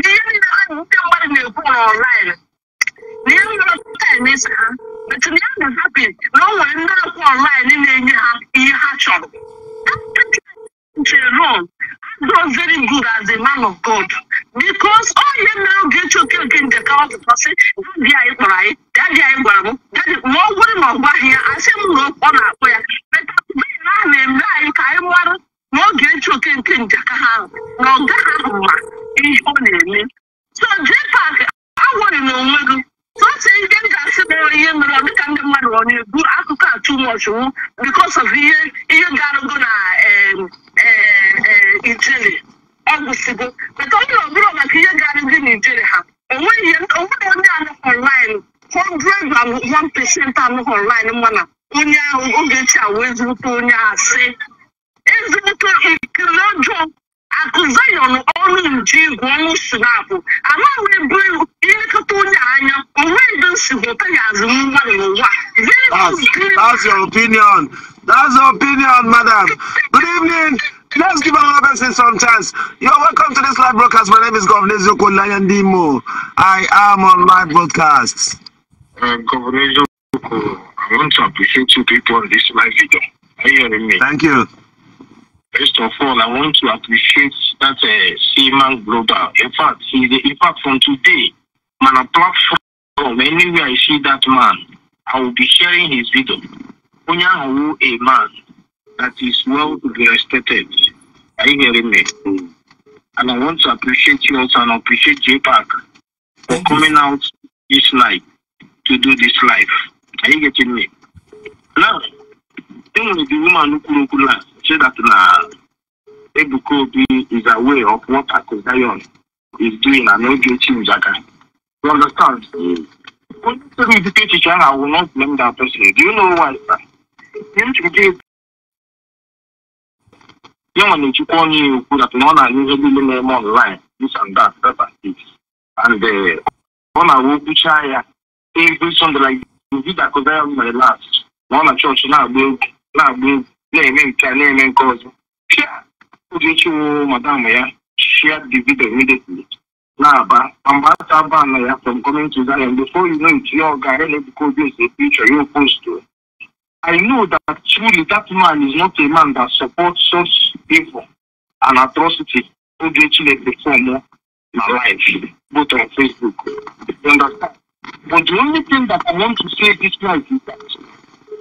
n'ihe niile ndị mmadụ na-ekwu na na ya nọrọ tenis ha etu ya na hapi na ọ nwere ndị akwụ ọnlaịn na-enye ha ihe ha chọrọ Jerome does very good as a man of God because all you now get your cake in the cow person daddy anyị kpọrọ anyị daddy anyị gwara m daddy ma ọ bụrụ na ọ gwaghị ya asị m na ọ na-akpọ ya metaụbena a na-eme anyị ka anyị mara na ọ ga-eche oke nke njaka ha ahụ na ọ gaghị ahụ ma ihe ọ na-eme so jepak awụrị na onwe gị otu ihe m ga-asị bụ ihe mere ọ dịka ndị mmadụ ọ na-ebu akụkọ a too much because of ihe ihe ga-arụgo na Ijele ọ gwụsịgo maka ọ bụrụ ọbụrụ maka ihe ga-arụgo na Ijele ha onweghị onwere onye anụ online hundred and one percent anụ online mana onye ahụ oge chi a wee zụrụta onye asị ezute ikiri ọjọọ akuza yɔn ɔno ndu wɔn sinapu ama wɔn ebire yɛn kata onye anya ɔwɔ ebi nsi hɔ ɔka yɛ adze mu That's your opinion. That's your opinion, madam. Good evening. Let's give another person some chance. You're welcome to this live broadcast. My name is Governor Zoko Lion I am on live broadcast. Uh, Governor Zoko, I want to appreciate two people on this live video. Are you hearing me? Thank you. First of all, I want to appreciate that uh, Seaman Global. In fact, he's the impact from today. Man, a platform, anywhere I see that man, I will be sharing his video. Onyahu, a man that is well to be respected. Are you hearing me? And I want to appreciate you also and appreciate JPAC for Thank coming you. out this night to do this live. Are you getting me? Now, being the woman kwuru okwu na na Ebuka Obi is aware of what Akụ is doing na n'oge echi njaga you understand onye sịrị ụdịka echiche ahụ awụ not blame that person do you know why sir? yanwa na-echukwa onye ya okwu dat na ọ na-anyụ ihe niile na-eme online this and that that and this and ọ na-awụ kwuchaa ya every like last na ọ na chọọchị na-agba egwu na-agba egwu na-eme nke a na-eme nke ọzọ pịa Uchechi wụ madam ya shia the video immediately na-aba ma mgbe afta aba na ya from coming to Zaria before you know it ya ọ gara na-ebuka obi ese picture ya post I know that truly that man is not a man that supports such evil and atrocity Uchechi na-perform na life both on Facebook you understand but the only thing that I want to say this night is that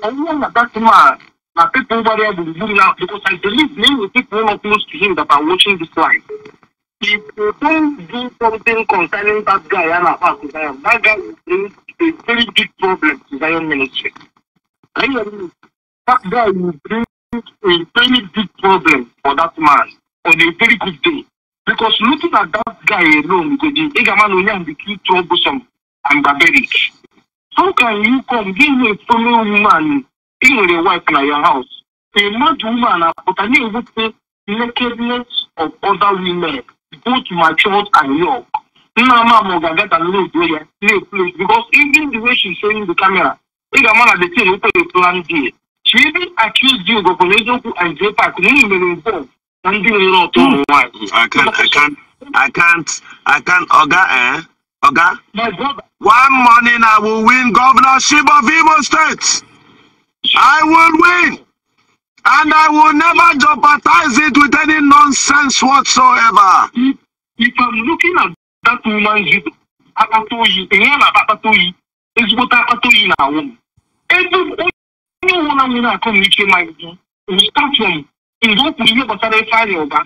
anyone that that man my people over there will zoom out because I believe many of the people not close to him that are watching this live. If they don't do something concerning that guy and about that guy will a very big problem to Zion ministry. I mean, that guy will bring a very big problem for that man on a very good day. Because looking at that guy alone, because the Igaman Onyan became troublesome and barbaric. How can you come give a fellow woman ị nwere wife na your house a mad woman apụta na-ewute nakedness of other women both matured and young nna amamụ ga-abịa ka na-edo ya na-eplay because even the way she's showing the camera ị ga-ama na the thing wụkwere plan d she even accused you gọkwara eziokwu and j park na unu mere involve na ndị nwere ọtụ ụmụ nwaanyị I can't, I can't, Oga, eh? Oga? My brother. One morning I will win governorship of Imo State. I will win. And I will never jeopardize it with any nonsense whatsoever. If, if I'm looking at that woman's akpatoyi, ihe na akpatoyi, ezigbo akpatoyi na awụ. Ebe onye ọbụla nwere akọ m ike ma gị, start from mgbe o kwuru ihe gbasara ife anyị ụba,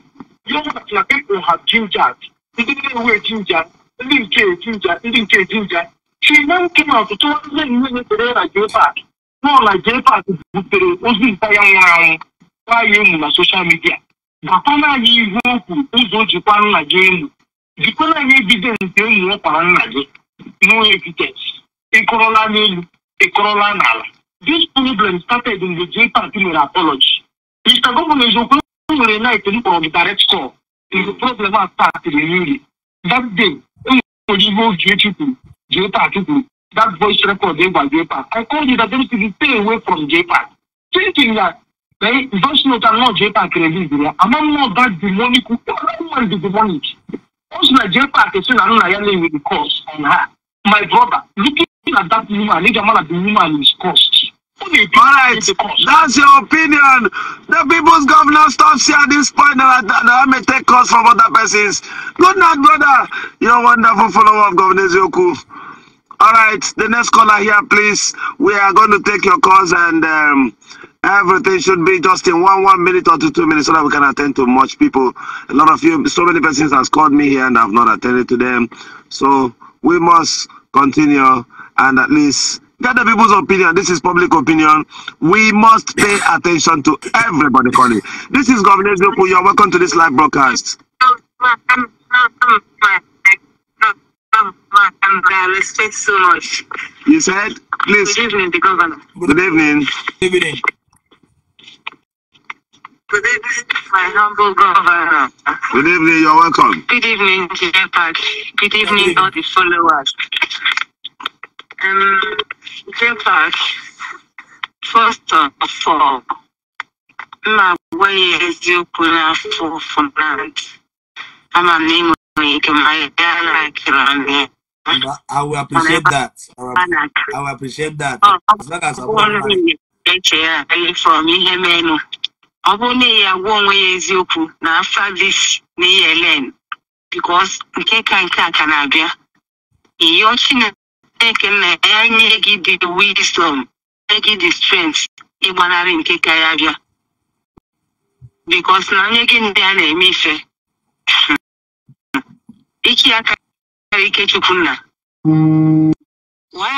ya ọbụla na people have ginger, ndị na-ewe ginger, ndị nke ginger, ndị nke ginger. She now came out to tell me, "Nwunye kere na gị ofe a." náà nàìjíríà àti bùtèrè ó sì ń taya nwụrụ anwụ kwaye emu na soshal midia gakwana anyị o okwu ụzọ o jikwa nna gị emu jikwana anyị evidensị emu ọkwara nna gị no evidence ịkụrụla n'elu ịkụrụla n'ala this problem started in the jpat mere apology mr gọvanọ eziokwu nwere night m kpọrọ gị direct call in the problem a startịrị n'iri that day enwere ihe oge echi kwuru jpat kwuru that voice record there by JPAC. I called it that to stay away from JPAC, thinking that eh, they voice note and not JPAC release there. I'm not that demonic. Everyone the demonic. Also, like JPAC is still another with the cause on her. My brother, looking at that woman, nigga man the woman is cost. Right. That's your opinion. The people's governor stops here at this point and I, I may take calls from other persons. Good night, brother. You're a wonderful follower of Governor Zoku. All right, the next caller here, please. We are going to take your calls and um, everything should be just in one one minute or two, two minutes so that we can attend to much people. A lot of you, so many persons has called me here and I've not attended to them. So we must continue and at least get the people's opinion. This is public opinion. We must pay attention to everybody calling. This is Governor Zupu. You're welcome to this live broadcast. governor and I respect so much. You said, please. Good evening, the governor. Good evening. Good evening. Good evening, my humble governor. Good evening, you're welcome. Good evening, Jay Park. Good evening, all the followers. Um, Jay Park, first of all, my way is you put out for from land. I'm a name you can write down like you I will appreciate I will, appreciate that. As long as I want eche ya from ihe menụ ọ bụrụ na ya gwa onwe ya eziokwu na afa dis na ihe len because nke ka nke a ka na-abịa ịyọ chineke na ya nye gị dị wisdom nye gị the strength ịgbanarị nke ka ya bịa because na onye gị ndị a na-eme ife iki aka Ikechukwunna. Why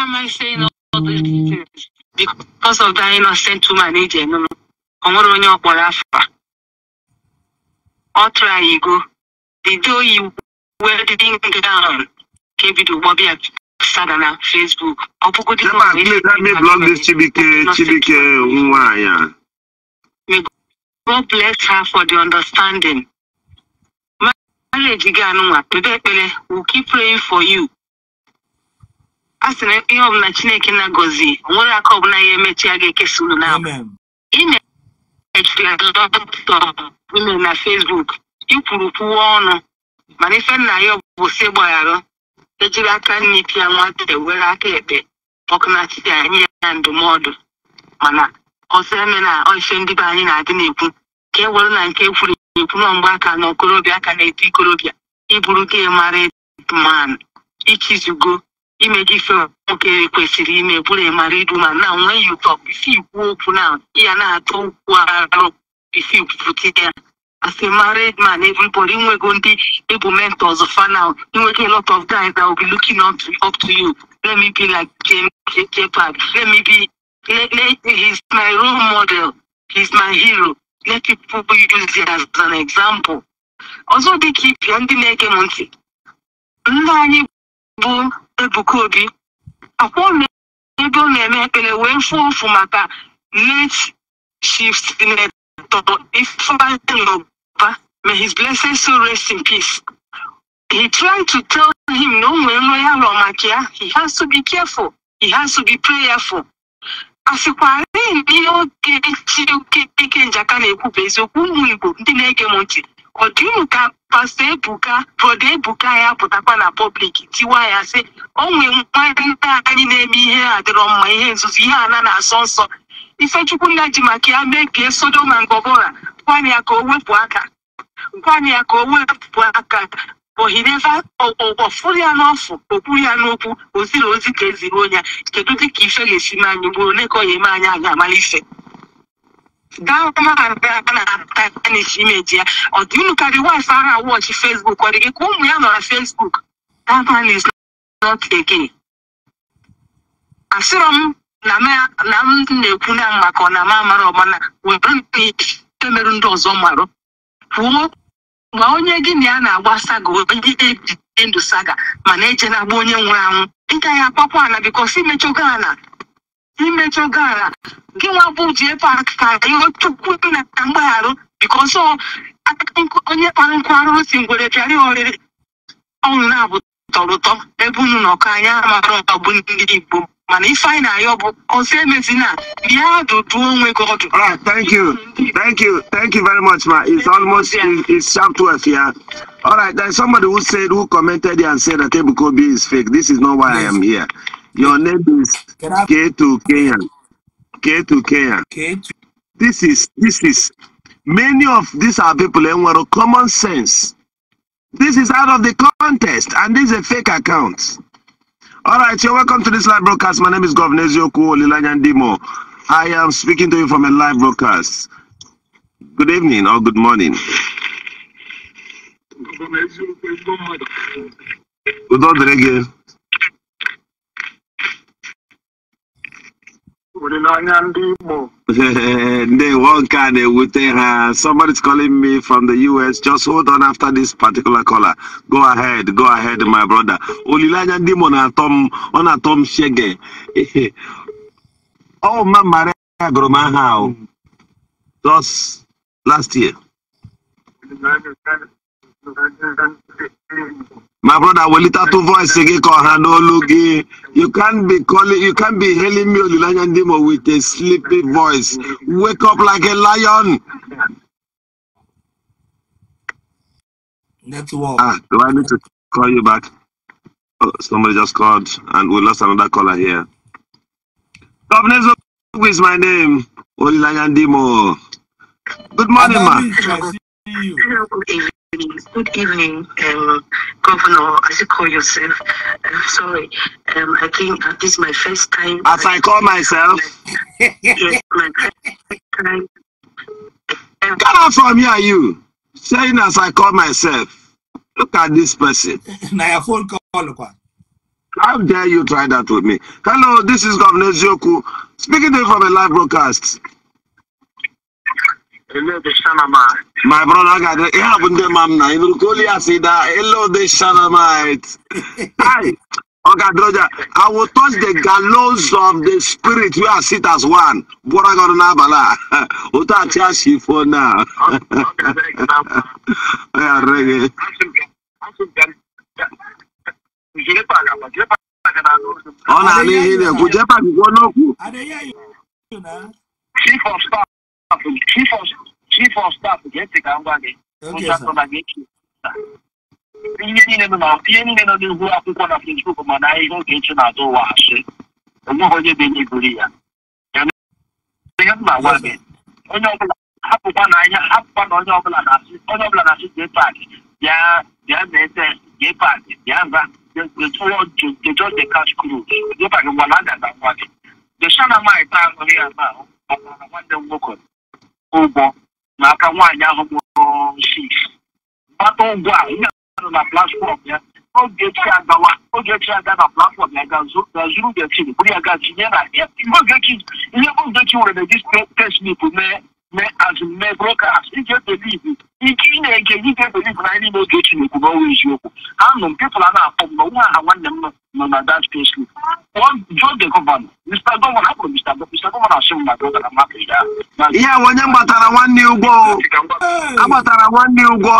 am I saying all these details? Because of that innocent woman eji eme m. Ọ nwere onye ọ kpọrọ afa. Ọ tụrụ anyị go. The day oyi wedding gown ka ebido ụgbọ bịa sada na Facebook. Ọ me blog this Chibike Chibike nwa ya. May God bless her for the understanding. ga-eji gị anụnwa kpebe ekpere we keep praying for you a sị na ihe ọbụla chineke na gozi onwere aka ọbụla ya emechi a ga-ekesa unu n'abụ ime ime na fesbuk ikwuru kwuwa ọnụ mana ife nna ya bụ si gbagharụ ejiri aka nne pịa nwata e, were aka ekpe ọkụ na chidi nye ya ndụmọdụ mana ọsọ eme na ife ndị be anyị na-adị na-ekwu ka e were na nke ekwuru na-eburu mgbaaka na okorobịa aka na-eto ikorobịa ịbụrụ gị mara man ichizugo ime gị fe nwoke kwesịrị ime bụrụ ịmara idu ma na nwee ya ụtọ isi ikwu okwu na ya na-atọ okwu arụ isi kwupụta ya as a married man, everybody we're going to be mentors of now. You get a lot of guys that will be looking up to up to you. Let me be like James J. Park. Let me be. Let, let, he's my role model. He's my hero. let people use it as an example ọzọ dịka ibia ndị na-ege m ntị nna anyị bụ Ebuka Obi akwụọla ebe ọ na-eme ekpere wee fụọ ụfụ maka late shift may his rest in peace he tried to tell him na o nwere nrọ ya rọ maka ya he has to be careful he has to be prayerful ndị oge siri oke ike njaka na-ekwu bụ eziokwu ụmụ Igbo ndị na-ege m ntị ọ dị ụmụ ka pastọ Ebuka brọda Ebuka ya pụtakwa na pọblik tiwa ya sị o nwee nwadịta anyị na-eme ihe adịrọ mma ihe nzuzo ihe ana na-asọ nsọ Ifechukwu nna ji maka ya mee ka na Gomora gwana ya ka o wepụ aka gwana ya ka o wepụ aka but he never ọfụrụ ya n'ọfụ okwuru ya n'okwu oziri ozi ka eziri onye kedu dịka ife ga-esi mee anyị gburu ole ka ọ ga-eme anyị a ga-amara ife daụmaaanisi imeji ya ọ dị unu karị wif ara fesbuk ọ dị gị ka ụmụ ya nọ na fesbuk asịrọ m na m na-ekwu na maka ọ na ama amara ọmana were na ihe ndị ọzọ marụ kwuo ma onye gị na ya na-agba saga onye ejide ndụ saga mana eje na-agba onye nwụrụ anwụ ịgaghị gaghị ala bikos imechọgo ala imechọgo ala gị nwa bụ ji efe aka ihe chukwu na mgbagharụ bikos onye kpara nkụ arụrụ si ngwere pịarị oriri ọnụ na-abụ tọrọ ụtọ ebe unu nọkọ anya mara ọbụ ndị igbo mana ife anyị na-ayọ bụ ọsọ emezina bịa dudu onwe gọdụ Alright, thank you thank you thank you very much ma it's almost it's, it's to us yeah all right there's somebody who said who commented and said that ebukobi is fake this is not why yes. i am here your name is k2 kenyan k2 kenyan k2 this is this is many of these are people enwere common sense this is out of the contest and this is a fake account All right, you're welcome to this live broadcast. My name is Governor Ezioku Olilanyandimo. I am speaking to you from a live broadcast. Good evening or good morning. Good morning. they one card with uh, somebody's calling me from the US. Just hold on after this particular caller. Go ahead, go ahead, my brother. Olilanya Dimo na Tom on a Tom Shege. Oh, my Maria Gromahao. Just last year. My brother Welita to voice again call Hanologi. You can't be calling you can't be hailing me Olilanya Ndimo with a sleepy voice. Wake up like a lion. Network. Ah, do I need to call you back? Oh, somebody just called and we lost another caller here. Governor is my name. Olilanya Ndimo. Good morning, ma. Good evening, um, Governor. As you call yourself, I'm sorry. Um, I think uh, this is my first time. As I, call myself. My, yes, my first time. Um, from here, you. Saying as I call myself. Look at this person. now phone call. How dare you try that with me? Hello, this is Governor Zioku speaking to you from a live broadcast. My brother got it. happened to mam na. Ibru koli asida. Hello the Shanamite. Hi. Okay, Droja. I will touch the gallows of the spirit. We are sit as one. Bora got na bala. Uta chia shifo na. Yeah, reggae. Ọ na-ala ihe na-ekwu, jepa gị kwuo n'okwu. Chief of staff staff chief of chief of staff ga-eche ka ngwa gị nchatọ na gị ihe niile nọ na ihe niile nọ n'ihu akwụkwọ na facebook mana ihe oge echi na-atụ ụwa asị onweghị onye bụ enye ya ihe m na-agwa gị onye ọbụla hapụkwa na anya hapụkwa na onye ọbụla na-asị onye ọbụla na-asị jee paakị bịa bịa mee test jee paakị bịa nza jejọ de cash cruise jee paakị ngwa na-aga na gị dechana nwaanyị taa nụrụ ya na nwanne m nwoke ụgwọ n'aka nwaanyị ahụ mụrụ sif gbata ụgwọ a ihe nọ na platfọm ya oge chi agawa oge chi aga na platfọm ya ga zuru gechi buru ya ga tinye na ya ihe ogechi ihe bụ ogechi nwere na eji tesmip mee as broadcast ị ga-ebelivu ike ị na-ege gị ga na anyị n'ime oge Chineke na ọnwa eziokwu anụ m pepụl a na-akpọ m na nwa aha nwanne m nọ na dat pesli kpọọ jụọ de gọvanọ mr gọvanọ hapụrụ mr mr gọvanọ asị m na gọvanọ mmadụ ya ihe a onye gbatara nwanne ụgwọ agbatara nwanne ụgwọ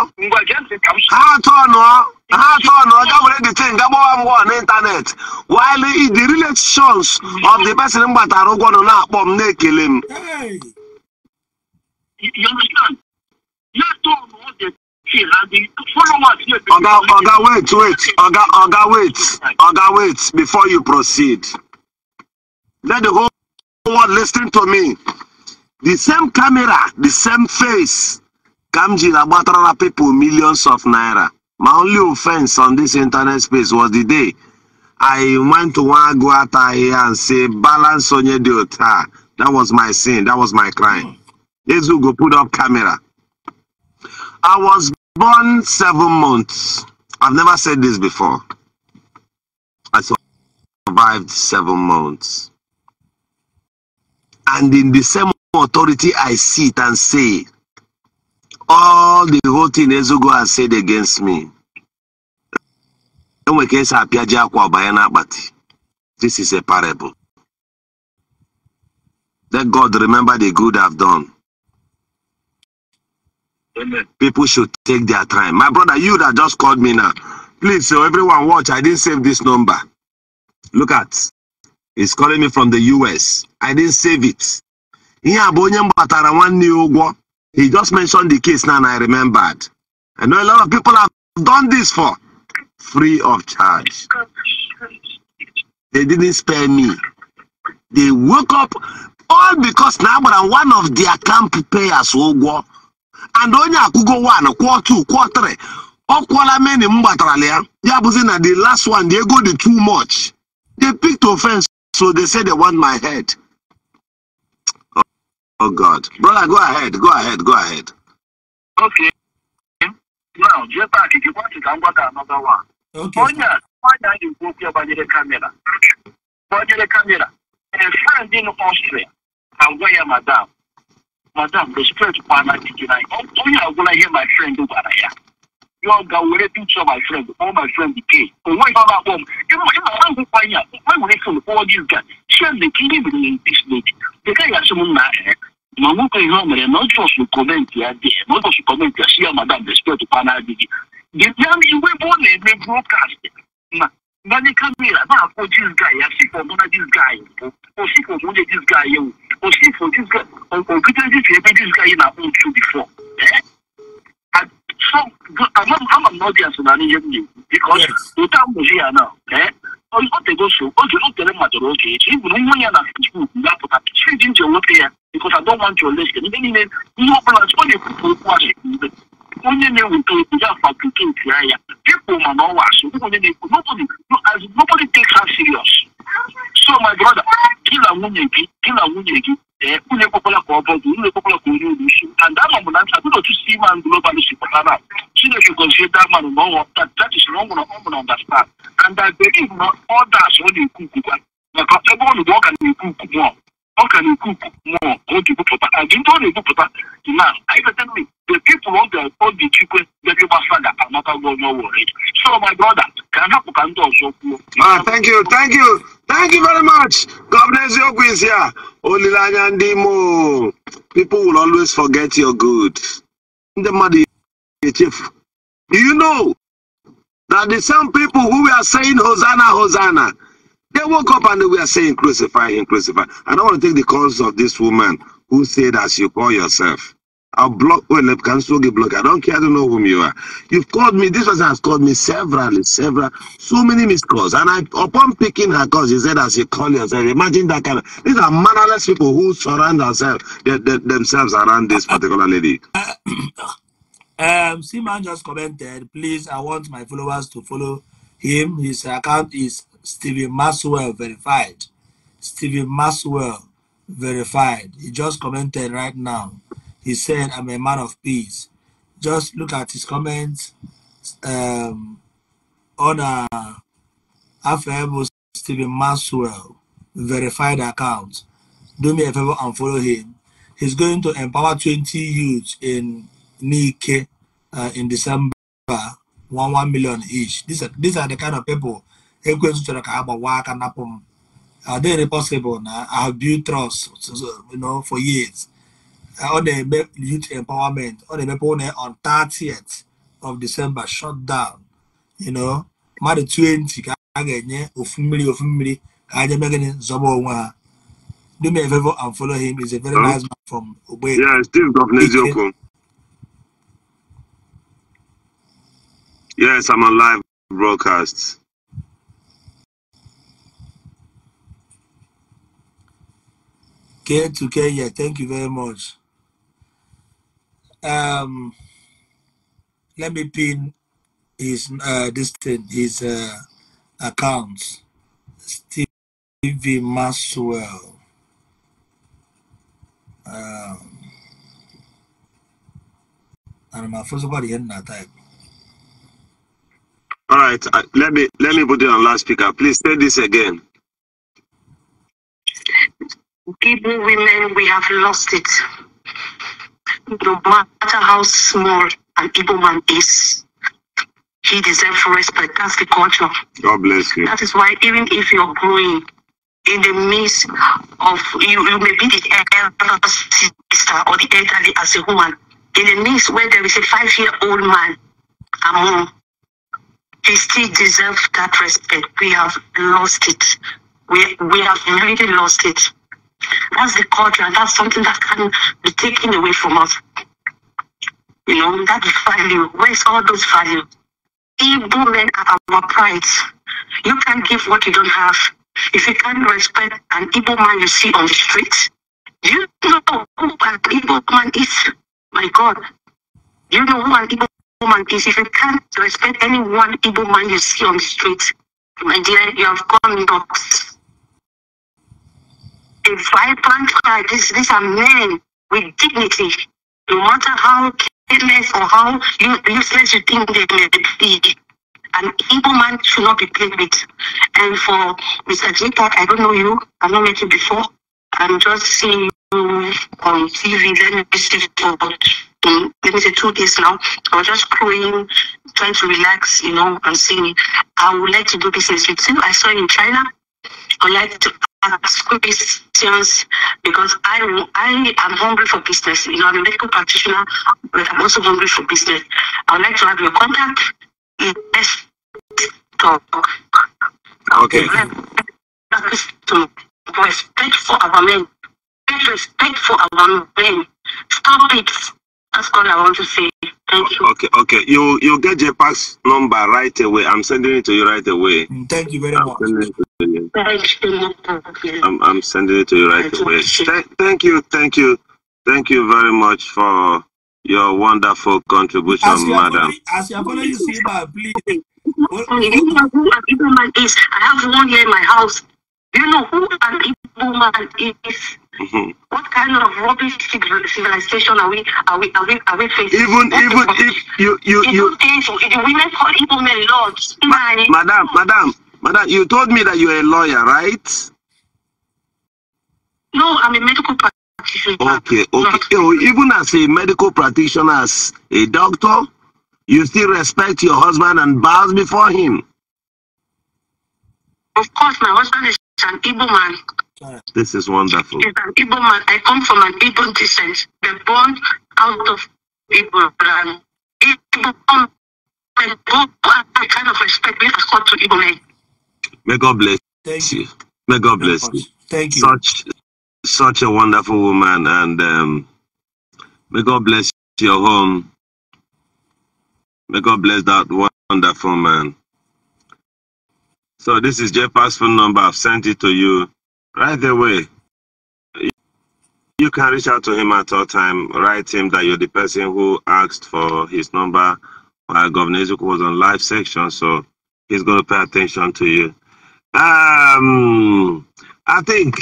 ha atọ nọ ha atọ nụọ gabere the thing gagbawa mgwọ n'ịntanetị while the relations of the person m gbatara ụgwọ nọ na-akpọ m na-ekele m You understand? Let's do all the things and the followers here. Oga, Oga, wait, wait. Oga, Oga, wait. Oga, wait. Before you proceed, let the whole world listen to me. The same camera, the same face. Kamji Labatrara people millions of naira. My only offense on this internet space was the day I went to one go out here and say balance on your daughter. That was my sin. That was my crime. Mm. Ezugo put up camera. I was born seven months. I've never said this before. I survived seven months. And in the same authority, I sit and say, all the whole thing Ezugo has said against me. This is a parable. Let God remember the good I've done. People should take their time. My brother, you that just called me now, please, so everyone watch. I didn't save this number. Look at, it's calling me from the US. I didn't save it. He just mentioned the case now and I remembered. I know a lot of people have done this for free of charge. They didn't spare me. They woke up all because now, but one of their camp payers will go. and onye akwụgo one kwụọ two kwụọ three ọ kwụọla meni m gbatarala ya ya bụzi na the last one the ego dị too much they picked offense so they say they want my head oh, oh god brother go ahead go ahead go ahead okay now jepak jikwati ka m gwata another one onye a nwanyị a na-ekwu okwu ya gbanyere kamera gbanyere kamera a friend in Austria agwa ya madam madam respect kwa na didi na onye agwụla ihe my friend gwara ya yọ ga were picture my friend All my friend pay onwe ihe ọ na-akpọ m ịma na ngwụkwa ya enwere fon kpọọ gị ga shende ka ihe mere na bisnet dịka ya sị m na ma nwoke ihe o mere na ọjọsụ kọmentị ya dị na ọjọsụ kọmentị ya si ya madam respect kwa na didi dịbịa iwe bụ ọ na-eme brokast na money camera máa kó this guy àsìkò ọmọdé this guy ìbò òsìkò ọmọdé this guy yẹn o òsìkò this guy òkúta this guy this guy yẹn na own true before ẹ so àmọ́ àmọ́ nọ́ọ̀dì àsọ̀nà ni yẹn nìyẹn because òtá àmọ̀sí yà náà ẹ ọ tego so oge o tere mmadụrụ oge echi ibụrụ nwa ya na facebook ga-apụta chidi m ji enweta ya because I don't want your lesson ndị niile ihe ọ bụla ọ na-ekwupụ okwu asị mgbe onye na-eweta obodo afabricate anya people ma na ọwa asụ onye na-ekwu nobody no takes her serious so my brother gị na nwunye gị gị na nwunye gị ee unu ekwekwala ka ọ bọdụ unu ekwekwala ka onye olu isi and ama m na abụrụ otu si man global si pụta na chineke gọzie damanụ na ọnwa that is na ọ nwụrụ ọ nwụrụ understand and i believe na others ọ na-ekwu ukwukwa maka ebe ọ nụrụ ọ ga na-ekwu ukwu mmụọ ọka na-ekwupụ mmụọ o ji bupụta ka gị ndị ọ na-ebupụta na ivetemi the people on the body chikwe bịara ịgbasa ga anatago onye ọwụrụ so my brother ka a hapụ ka ndị ọzọ kwuo thank you thank you thank you very much gọvanọ eziokwu is here olileanya ndị imo people will always forget your good ndị mmadụ echefu do you know that the same people who were saying hosanna hosanna They woke up and they were saying, crucify him, crucify. I don't want to take the calls of this woman who said, as you call yourself. I'll block, well, can still get blocked. I don't care, I don't know whom you are. You've called me, this person has called me several, several, so many missed calls. And I, upon picking her calls, he said, as you call yourself, imagine that kind of, these are mannerless people who surround themselves, they, they, themselves around this particular lady. um, Simon just commented, please, I want my followers to follow him. His account is Stephen Maxwell verified. Stephen Maxwell verified. He just commented right now. He said, I'm a man of peace. Just look at his comments um, on a Afemo Stephen Maxwell verified account. Do me a favor and follow him. He's going to empower 20 youths in Nike uh, in December, one one million each. These are these are the kind of people Ekwensu chọrọ ka ha gbawa aka napụ m ọ dịghị possible na I have built trust you know, for years ọ na-eme youth empowerment ọ na-emepe ụlọ on 30th of December shut down you know mmadụ 20 ka a ga-enye ofu mmiri ofu mmiri ka ha jebe gịnị zọba onwe ha do me a favor and follow him he's a very huh? nice man from Ogbe yeah Steve Governor Eziokwu yes I'm on live broadcast Care to Kenya. yeah, thank you very much. Um, let me pin his uh, this thing, his uh, account, Stevie Maxwell. Um, and first All right, let me let me put it on last speaker. Please say this again people, women, we have lost it. No matter how small an Igbo man is, he deserves respect. That's the culture. God bless you. That is why even if you're growing in the midst of you, you may be the elder sister or the elderly as a woman. In the midst where there is a five-year-old man among, he still deserves that respect. We have lost it. We we have really lost it. That's the culture, and that's something that can be taken away from us. You know, that value. Where's all those value? Evil men are our pride. You can't give what you don't have. If you can't respect an evil man you see on the street, you know who an Igbo man is? My God. you know who an Igbo woman is? If you can't respect any one evil man you see on the street, my dear, you have gone nuts a vibrant cry. These, these are men with dignity. No matter how careless or how useless you think they may be, an evil man should not be played with. And for Mr. Jita, I don't know you. I've not met you before. I'm just seeing you on TV. Let me see for mm, let me say two days now. I was just crying, trying to relax, you know, and saying, I would like to do business with you. I saw you in China. I would like to questions because I, I am hungry for business. You know, I'm a medical practitioner, but I'm also hungry for business. I would like to have your contact. let talk. Okay. To respect for our men. Respect for our men. Stop it that's all I want to say. Thank you. Okay, okay. You you get JPAC's number right away. I'm sending it to you right away. Thank you very I'm much. Sending it to you. I'm, I'm sending it to you right away. thank you, thank you, thank you very much for your wonderful contribution, as madam. Already, as you have already seen that, please. I have one here in my house. You know who an evil man is? Mm-hmm. What kind of rubbish civilization are we are we are we are we facing? Even what even if you you you, you painful. the women call evil men lords. Ma- madam, madam, madam, you told me that you're a lawyer, right? No, I'm a medical practitioner. Okay, okay. No. Oh, even as a medical practitioner, as a doctor, you still respect your husband and bows before him. Of course, my husband is an evil man. This is wonderful. an Igbo man. I come from an Igbo descent. The are born out of Igbo land. Igbo and go kind of respect we have to Igbo men. May God bless Thank you. May God bless you. Thank you. Such such a wonderful woman and um, may God bless your home. May God bless that wonderful man. So this is Jeff phone number. I've sent it to you. Right way, you can reach out to him at all time. Write him that you're the person who asked for his number. While Governor Ezuk was on live section, so he's going to pay attention to you. Um, I think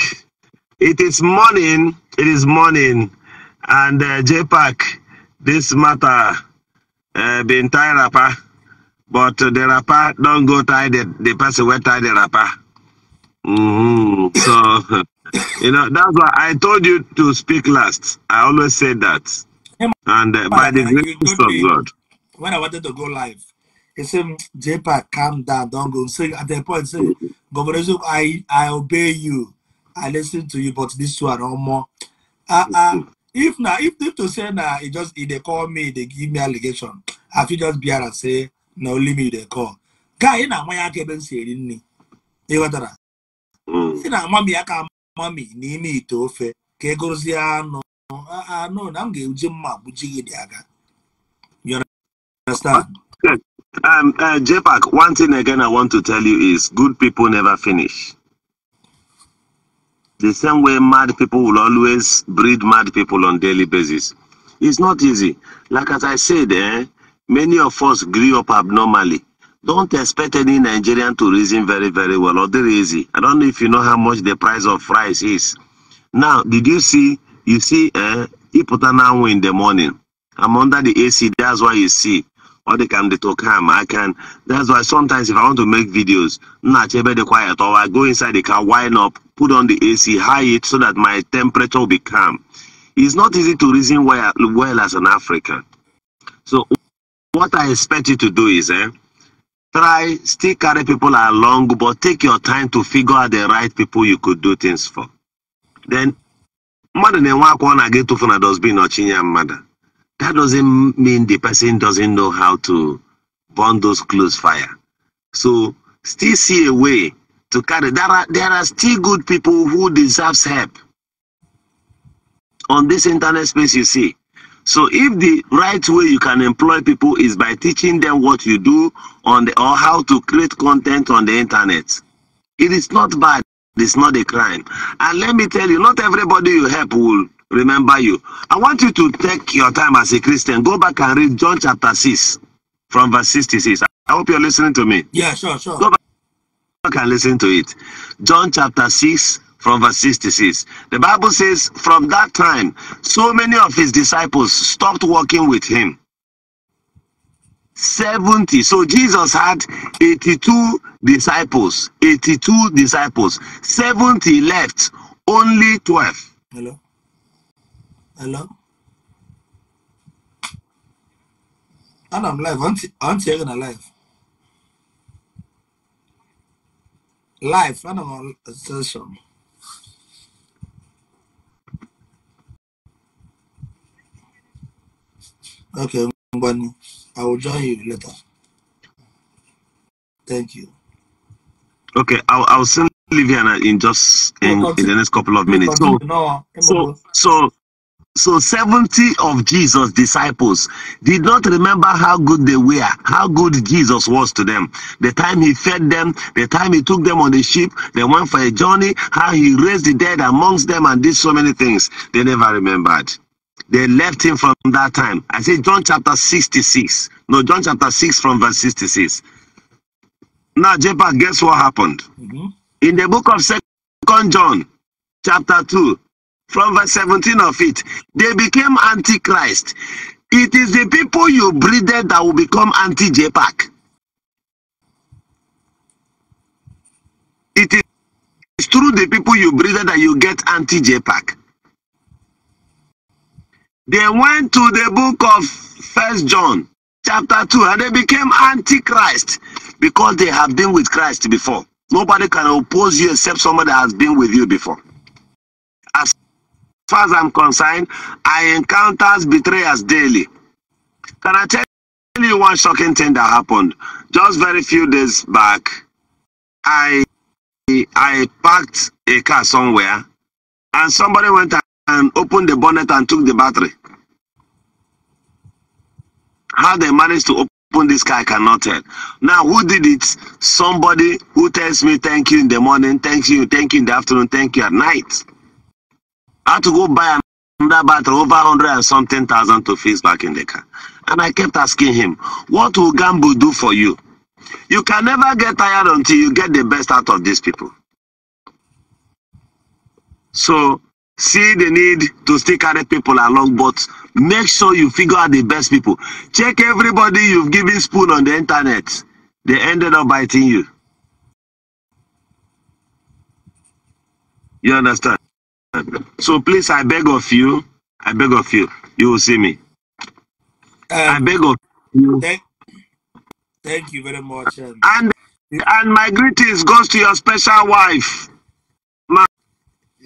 it is morning. It is morning, and uh, JPAC, this matter uh, been tied up, but the rapper don't go tie the, the person where tie the rapper. Mm-hmm. So, you know, that's why I told you to speak last. I always say that. And uh, by the grace of God. When I wanted to go live, he said, "Japa, calm down, don't go. So at that point, say, Governor, I, I obey you. I listen to you, but this one no more. Uh, uh, if now, if, if to say now, it just if they call me, they give me allegation. I feel just be and say, no, leave me, they call. Guy, you know, my academic here didn't he? You got that? Mm. si na amami aka amami n'ime ite ofe ka egozie anụ anụ na m ga-eji mma gbuji gị dị aga Um, uh, JPAC, one thing again I want to tell you is good people never finish. The same way mad people will always breed mad people on daily basis. It's not easy. Like as I said, eh, many of us grew up abnormally don't expect any Nigerian to reason very, very well or they reason. I don't know if you know how much the price of rice is. Now, did you see? You see, uh, put an hour in the morning. I'm under the AC, that's why you see. Or they can they talk him. I can. That's why sometimes if I want to make videos, not the quiet, or I go inside the car, wind up, put on the AC, high it so that my temperature will be calm. It's not easy to reason well, well as an African. So, what I expect you to do is, eh? Try, still carry people along, but take your time to figure out the right people you could do things for. Then, mother, na na-enwe akwa o to na-aga ịtụfu na dosbin your mother That doesn't mean the person doesn't know how to burn those close fire. So, still see a way to carry. There are, there are still good people who deserves help. On this internet space, you see, so if the right way you can employ people is by teaching them what you do on the, or how to create content on the internet, it is not bad. It's not a crime. And let me tell you, not everybody you help will remember you. I want you to take your time as a Christian. Go back and read John chapter 6 from verse 66. I hope you're listening to me. Yeah, sure, sure. Go back and listen to it. John chapter 6 from verse 66. The Bible says, From that time, so many of his disciples stopped working with him. 70. So Jesus had 82 disciples. 82 disciples. 70 left. Only 12. Hello? Hello? And I'm live. I'm are a you Life, Live. I don't know. Okay, Mbani, I will join you later. Thank you. Okay, I'll, I'll send Liviana in just in, in the next couple of minutes. So, so, so, so 70 of Jesus' disciples did not remember how good they were, how good Jesus was to them. The time he fed them, the time he took them on the ship, they went for a journey, how he raised the dead amongst them, and did so many things. They never remembered. They left him from that time. I say John chapter 66. No, John chapter 6 from verse 66. Now, Jepa, guess what happened? Mm -hmm. In the book of Second John, chapter 2, from verse 17 of it, they became antichrist. It is the people you breeded that will become anti-JPAC. It is through the people you breeded that you get anti-JPAC. They went to the book of First John chapter 2 and they became antichrist because they have been with Christ before. Nobody can oppose you except somebody that has been with you before. As far as I'm concerned, I encounter betrayers daily. Can I tell you one shocking thing that happened? Just very few days back, I I parked a car somewhere and somebody went and opened the bonnet and took the battery. How they managed to open this car, I cannot tell. Now, who did it? Somebody who tells me thank you in the morning, thank you, thank you in the afternoon, thank you at night. I had to go buy another battery, over 100 and something thousand to fix back in the car. And I kept asking him, what will Gambo do for you? You can never get tired until you get the best out of these people. So see the need to stick other people along, but make sure you figure out the best people. Check everybody you've given spoon on the internet. They ended up biting you. You understand? So please, I beg of you, I beg of you, you will see me. Um, I beg of you. Thank, thank you very much. Um, and and my greetings goes to your special wife.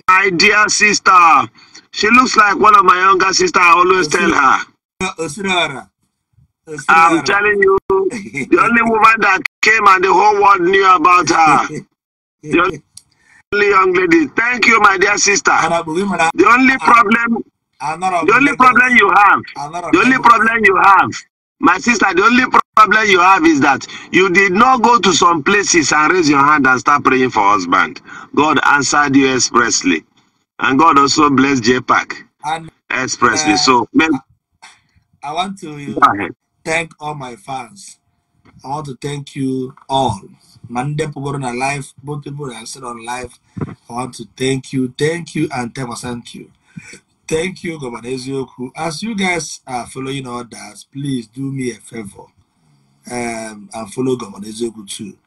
my dear sister. She looks like one of my younger sister. I always tell her. I'm telling you, the only woman that came and the whole world knew about her. The only young lady. Thank you, my dear sister. The only problem, the only problem you have, the only problem you have My sister, the only problem you have is that you did not go to some places and raise your hand and start praying for husband. God answered you expressly. And God also blessed J Park expressly. Uh, so, man, I want to thank all my fans. I want to thank you all. Monday people live, both people are still on live. I want to thank you, thank you, and thank you. Thank you, Governor Ezioku. As you guys are following orders, please do me a favor um, and follow Governor Ezioku too.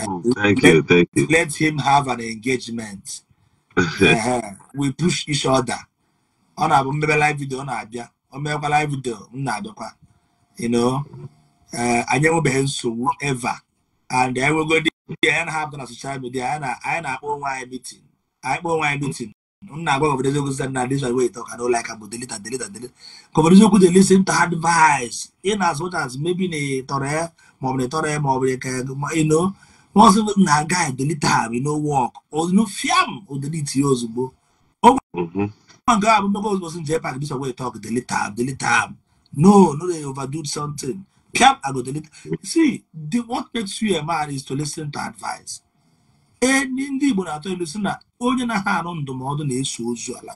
Oh, um, thank let, you, thank you. Let him have an engagement. uh, we push each other. On our na-abụ live video on our o live video m na-abịakwa you know uh, anyị enwebeghị nsogbu ever and anyị nwegodi ihe anyị have na social media anyị na-akpọ onwe anyị meeting anyị kpọọ onwe anyị meeting na-agwa obodo eziokwu site na this way talk I don't like about delete and delete and delete obodo eziokwu dey listen to advice in as much as maybe na tọrọ ya ma ọ bụ na tọrọ ya ma ọ bụ na ka ino wọn sọ na guy delete am no work ozugbo fiam o delete ya ozugbo mhm. o nke a bụ mmekọ ozugbo si jee pak this way talk delete am delete am no no dey overdo something fiam i go delete see the what makes you a man is to listen to advice ndị Igbo na-atọ ilu si na onye na-aha arụ ndụmọdụ na-eso ozu ala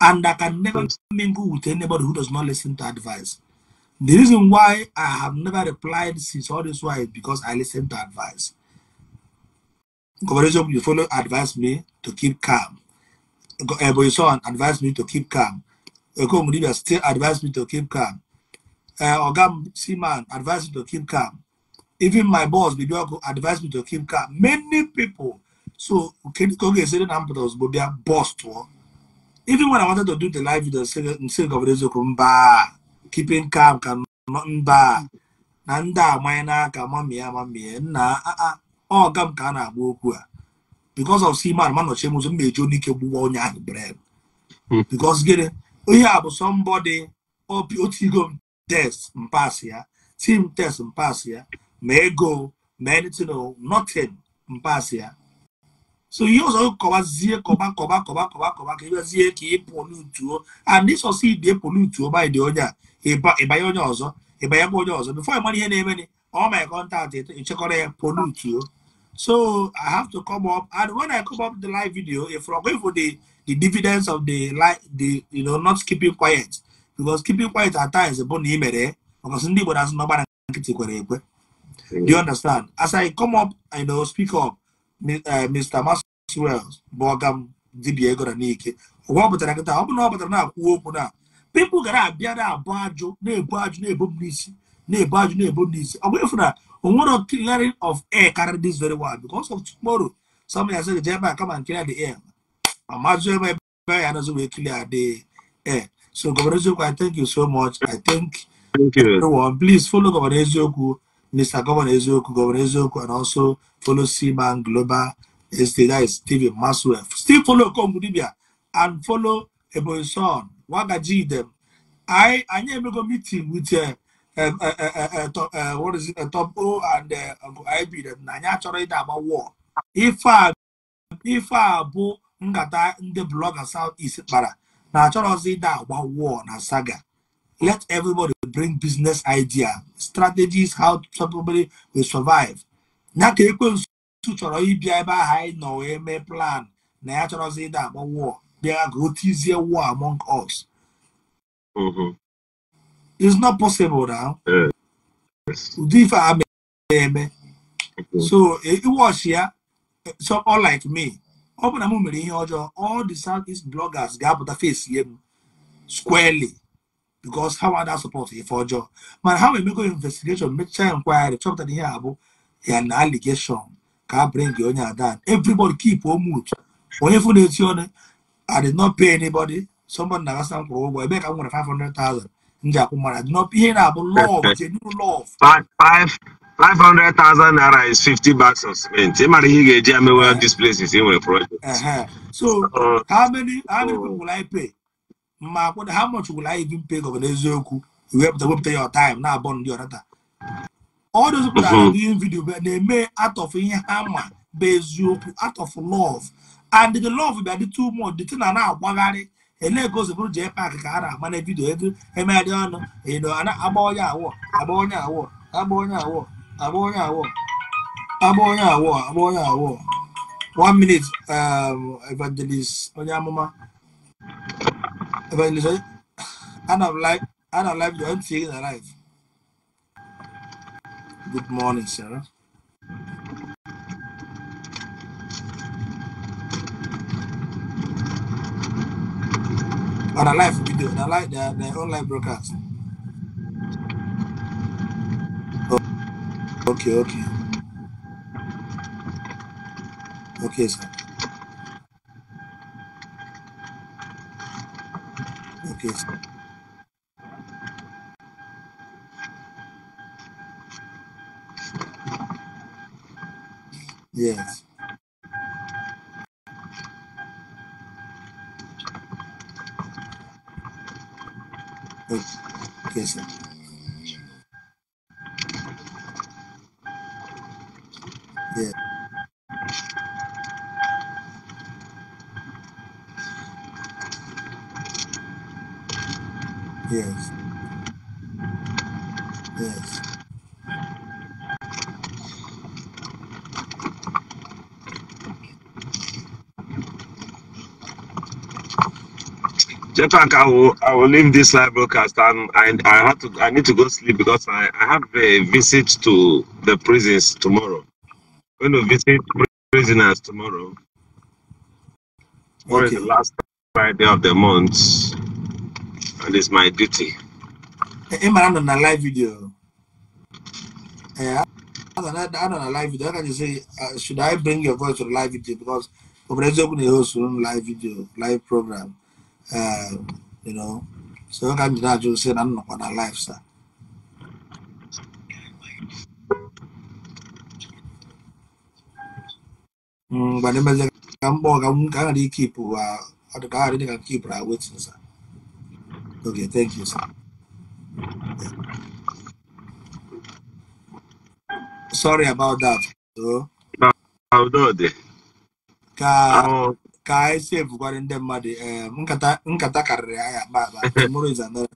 and I can never mingle with anybody who does not listen to advice. The reason why I have never replied since all this why is because I listen to advice. Conversation, you follow advised me to keep calm. Eboyson eh, advised me to keep calm. Eh, Okomudibia still advised me to keep calm. Uh, eh, Ogam Seaman advised me to keep calm. Even my boss, Bibioko, advised me to keep calm. Many people so nke ka ọ ga esere na mpụta ozugbo bịa bọs tụọ even when I wanted to do the live video nsị gọvanọ eziokwu mba keeping calm ka mba na ndị amanye n'aka mamie amamie nna ọga m ka a na-agba okwu a because of siman manọchie m ụzọ na onye ike gbuwa onye ahụ gịnị a bụ somebody obi oh, test ya tim ego ya So he also cover zie cover cover cover cover cover ka ebe zie ka ị pọlutuo and this also ide pọlutuo by the onye a ịbanye onye ọzọ ịbanyekwa onye ọzọ before ịmara ihe na-eme ni all my contact ịchekọrọ ya pọlutuo so I have to come up and when I come up the live video if I'm going for the the dividends of the like the you know not keeping quiet because keeping quiet at times bụ na ị mere ọkọsị ndị Igbo na-asụ n'ọgba na nkịtị kwere ekwe do you hmm. understand as I come up I know speak up Mr. Eh, Maxwell Borgham dibia ego na n'ike ụwa ọ pụtara nkịta ọ bụrụ na ọ pụtara na-akwuo okwu na pipụl Bad abịa na-abụ ajụ na-ebu ajụ na-ebu m n'isi na-ebu ajụ clearing of air carry this very well because of tomorrow somebody ya sịrị jee ebe a kama nkiri the air I'm ebe ya anazi wee clear the air so Governor, eziokwu i thank you so much i thank, thank you. everyone please follow Governor eziokwu Mr. Governor Eziokwu Governor Eziokwu and also follow Seaman Global Estate, that is Stephen Maxwell. Still follow Kongudibia and follow Ebonson, Wagaji them. anyị I never go meeting with uh, uh, uh, and uh, IB them. Nanya chọrọ ịda agba war. Ife a ife a bụ nkata ndị blọga South East kpara na achọrọzi ịda agba war na saga. Let everybody bring business idea strategies how to probably will survive ya ka ekwensu chọrọ ịbịa ebe ahụ anyị nọ wee mee plan na ya chọrọzi ịda agba war bịa ka o tizie war among us mm-hmm. it's not possible now ụdị ife a eme mm-hmm. so iwọchi ya so all like me ọ bụ na m mere ihe ọjọọ all the southeast bloggers ga-apụta face ye m squarely because how other support yɛ fɔ ɔjɔ man how we make an investigation make mekyɛ inquiry chop tani here. abo yɛ na allegation Can't bring your onye adan everybody keep wɔn mood When funu eti ɔne i did not pay anybody somebody na kasa nkwuru ụgwọ ebe ka m nwere five hundred thousand ndị akwụ mara did not ihe na-abụ love genuine love. five five hundred thousand naira is fifty bucks of cement ị mara ihe ị this place is. dis places ị nwere project. Eh, eh. so uh, how many how many people will i pay. mma kwụda ha mụch gwụrụ anyị gi mpe gọvanọ eziokwu wepụta wepụta ya ọtaim na-abọ ndị ọnata ọ dozipụtara mhm. ihe vidiyo na-eme atọfụ ihe ha ma bụ eziokwu atọfụ lọv and the love bịa dị too much dịtụ na na-agbagharị ele-egozibụrụ jee paakị ka a na amana vidio vidiyo ego emegharị ọnụ ịnọ e agba onye awọ agba onye awọ agba onye awọ agba onye awọ agba onye awọ agba onye awọ one minute um, evangelist onye amụma Evangelist Oyin, Anne of Life, Anne of Life, Join Fig Alive. Good morning, Sarah. On a live video, on a live, their, their online broadcast. Oh, okay, okay. Okay, sir. okay yes In fact, I will I will leave this live broadcast. and I I have to I need to go sleep because I, I have a visit to the prisons tomorrow. I'm going to visit prisoners tomorrow. Tomorrow the last Friday of the month, and it's my duty. Eh, eh, I'm on a live video. Yeah, I don't know a live video. can you say, uh, should I bring your voice to the live video because over there, open the host live video live program. Um, you know, so how come that you I'm not on our life, sir? Mm, but then I'm bored. I'm going to keep, I uh, I'm gonna keep right with you, sir. Okay, thank you, sir. Sorry about that. So, Ka, nkata nkata tomorrow is another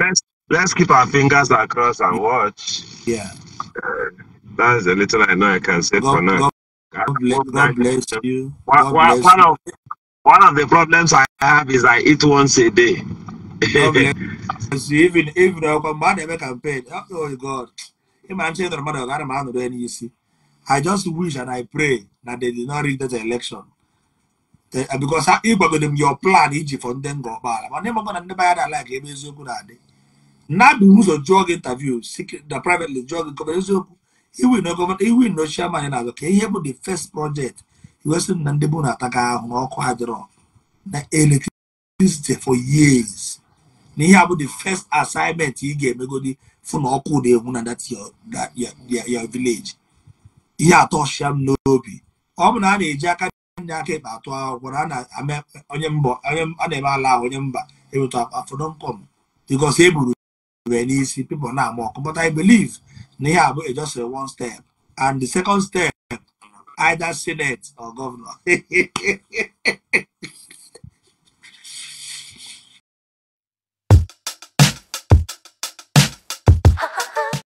let's let's keep our fingers across and watch. Yeah. Uh, that's a little I know I can say God, for now. God, God, bless, God bless you. God one, bless one you. of one of the problems I have is I eat once a day. even even our man ever campaign. Oh God. I'm saying that matter. I just wish and I pray that they did not register the election they, uh, because ịgbagodo uh, them your plan iji fọ ndị ngọ ọkpaala mana ịmagọ never ndị bayara ala ka ebe eziokwu na-adị mmadụ ụzọ jụọ gị interview the privately drug gị he will iwi government, he will na chairman na Okay, he ihe the first project iwesị na ndị bụ na-ataga ahụ n'ọkụ electricity for years na ihe the first assignment ị ga-emegodi fụ na ọkụ That's your that your your village ihe atọ shia m n'obi ọ bụ na a na-eji aka ndị aka ekpe atụ akwụkwọ na a na-eme ala ahụ onye mba afọ nọ nkọm bikos e buru n'isi pipo na-ama ọkụ but i believe na ihe bụ just one step and the second step either senate or governor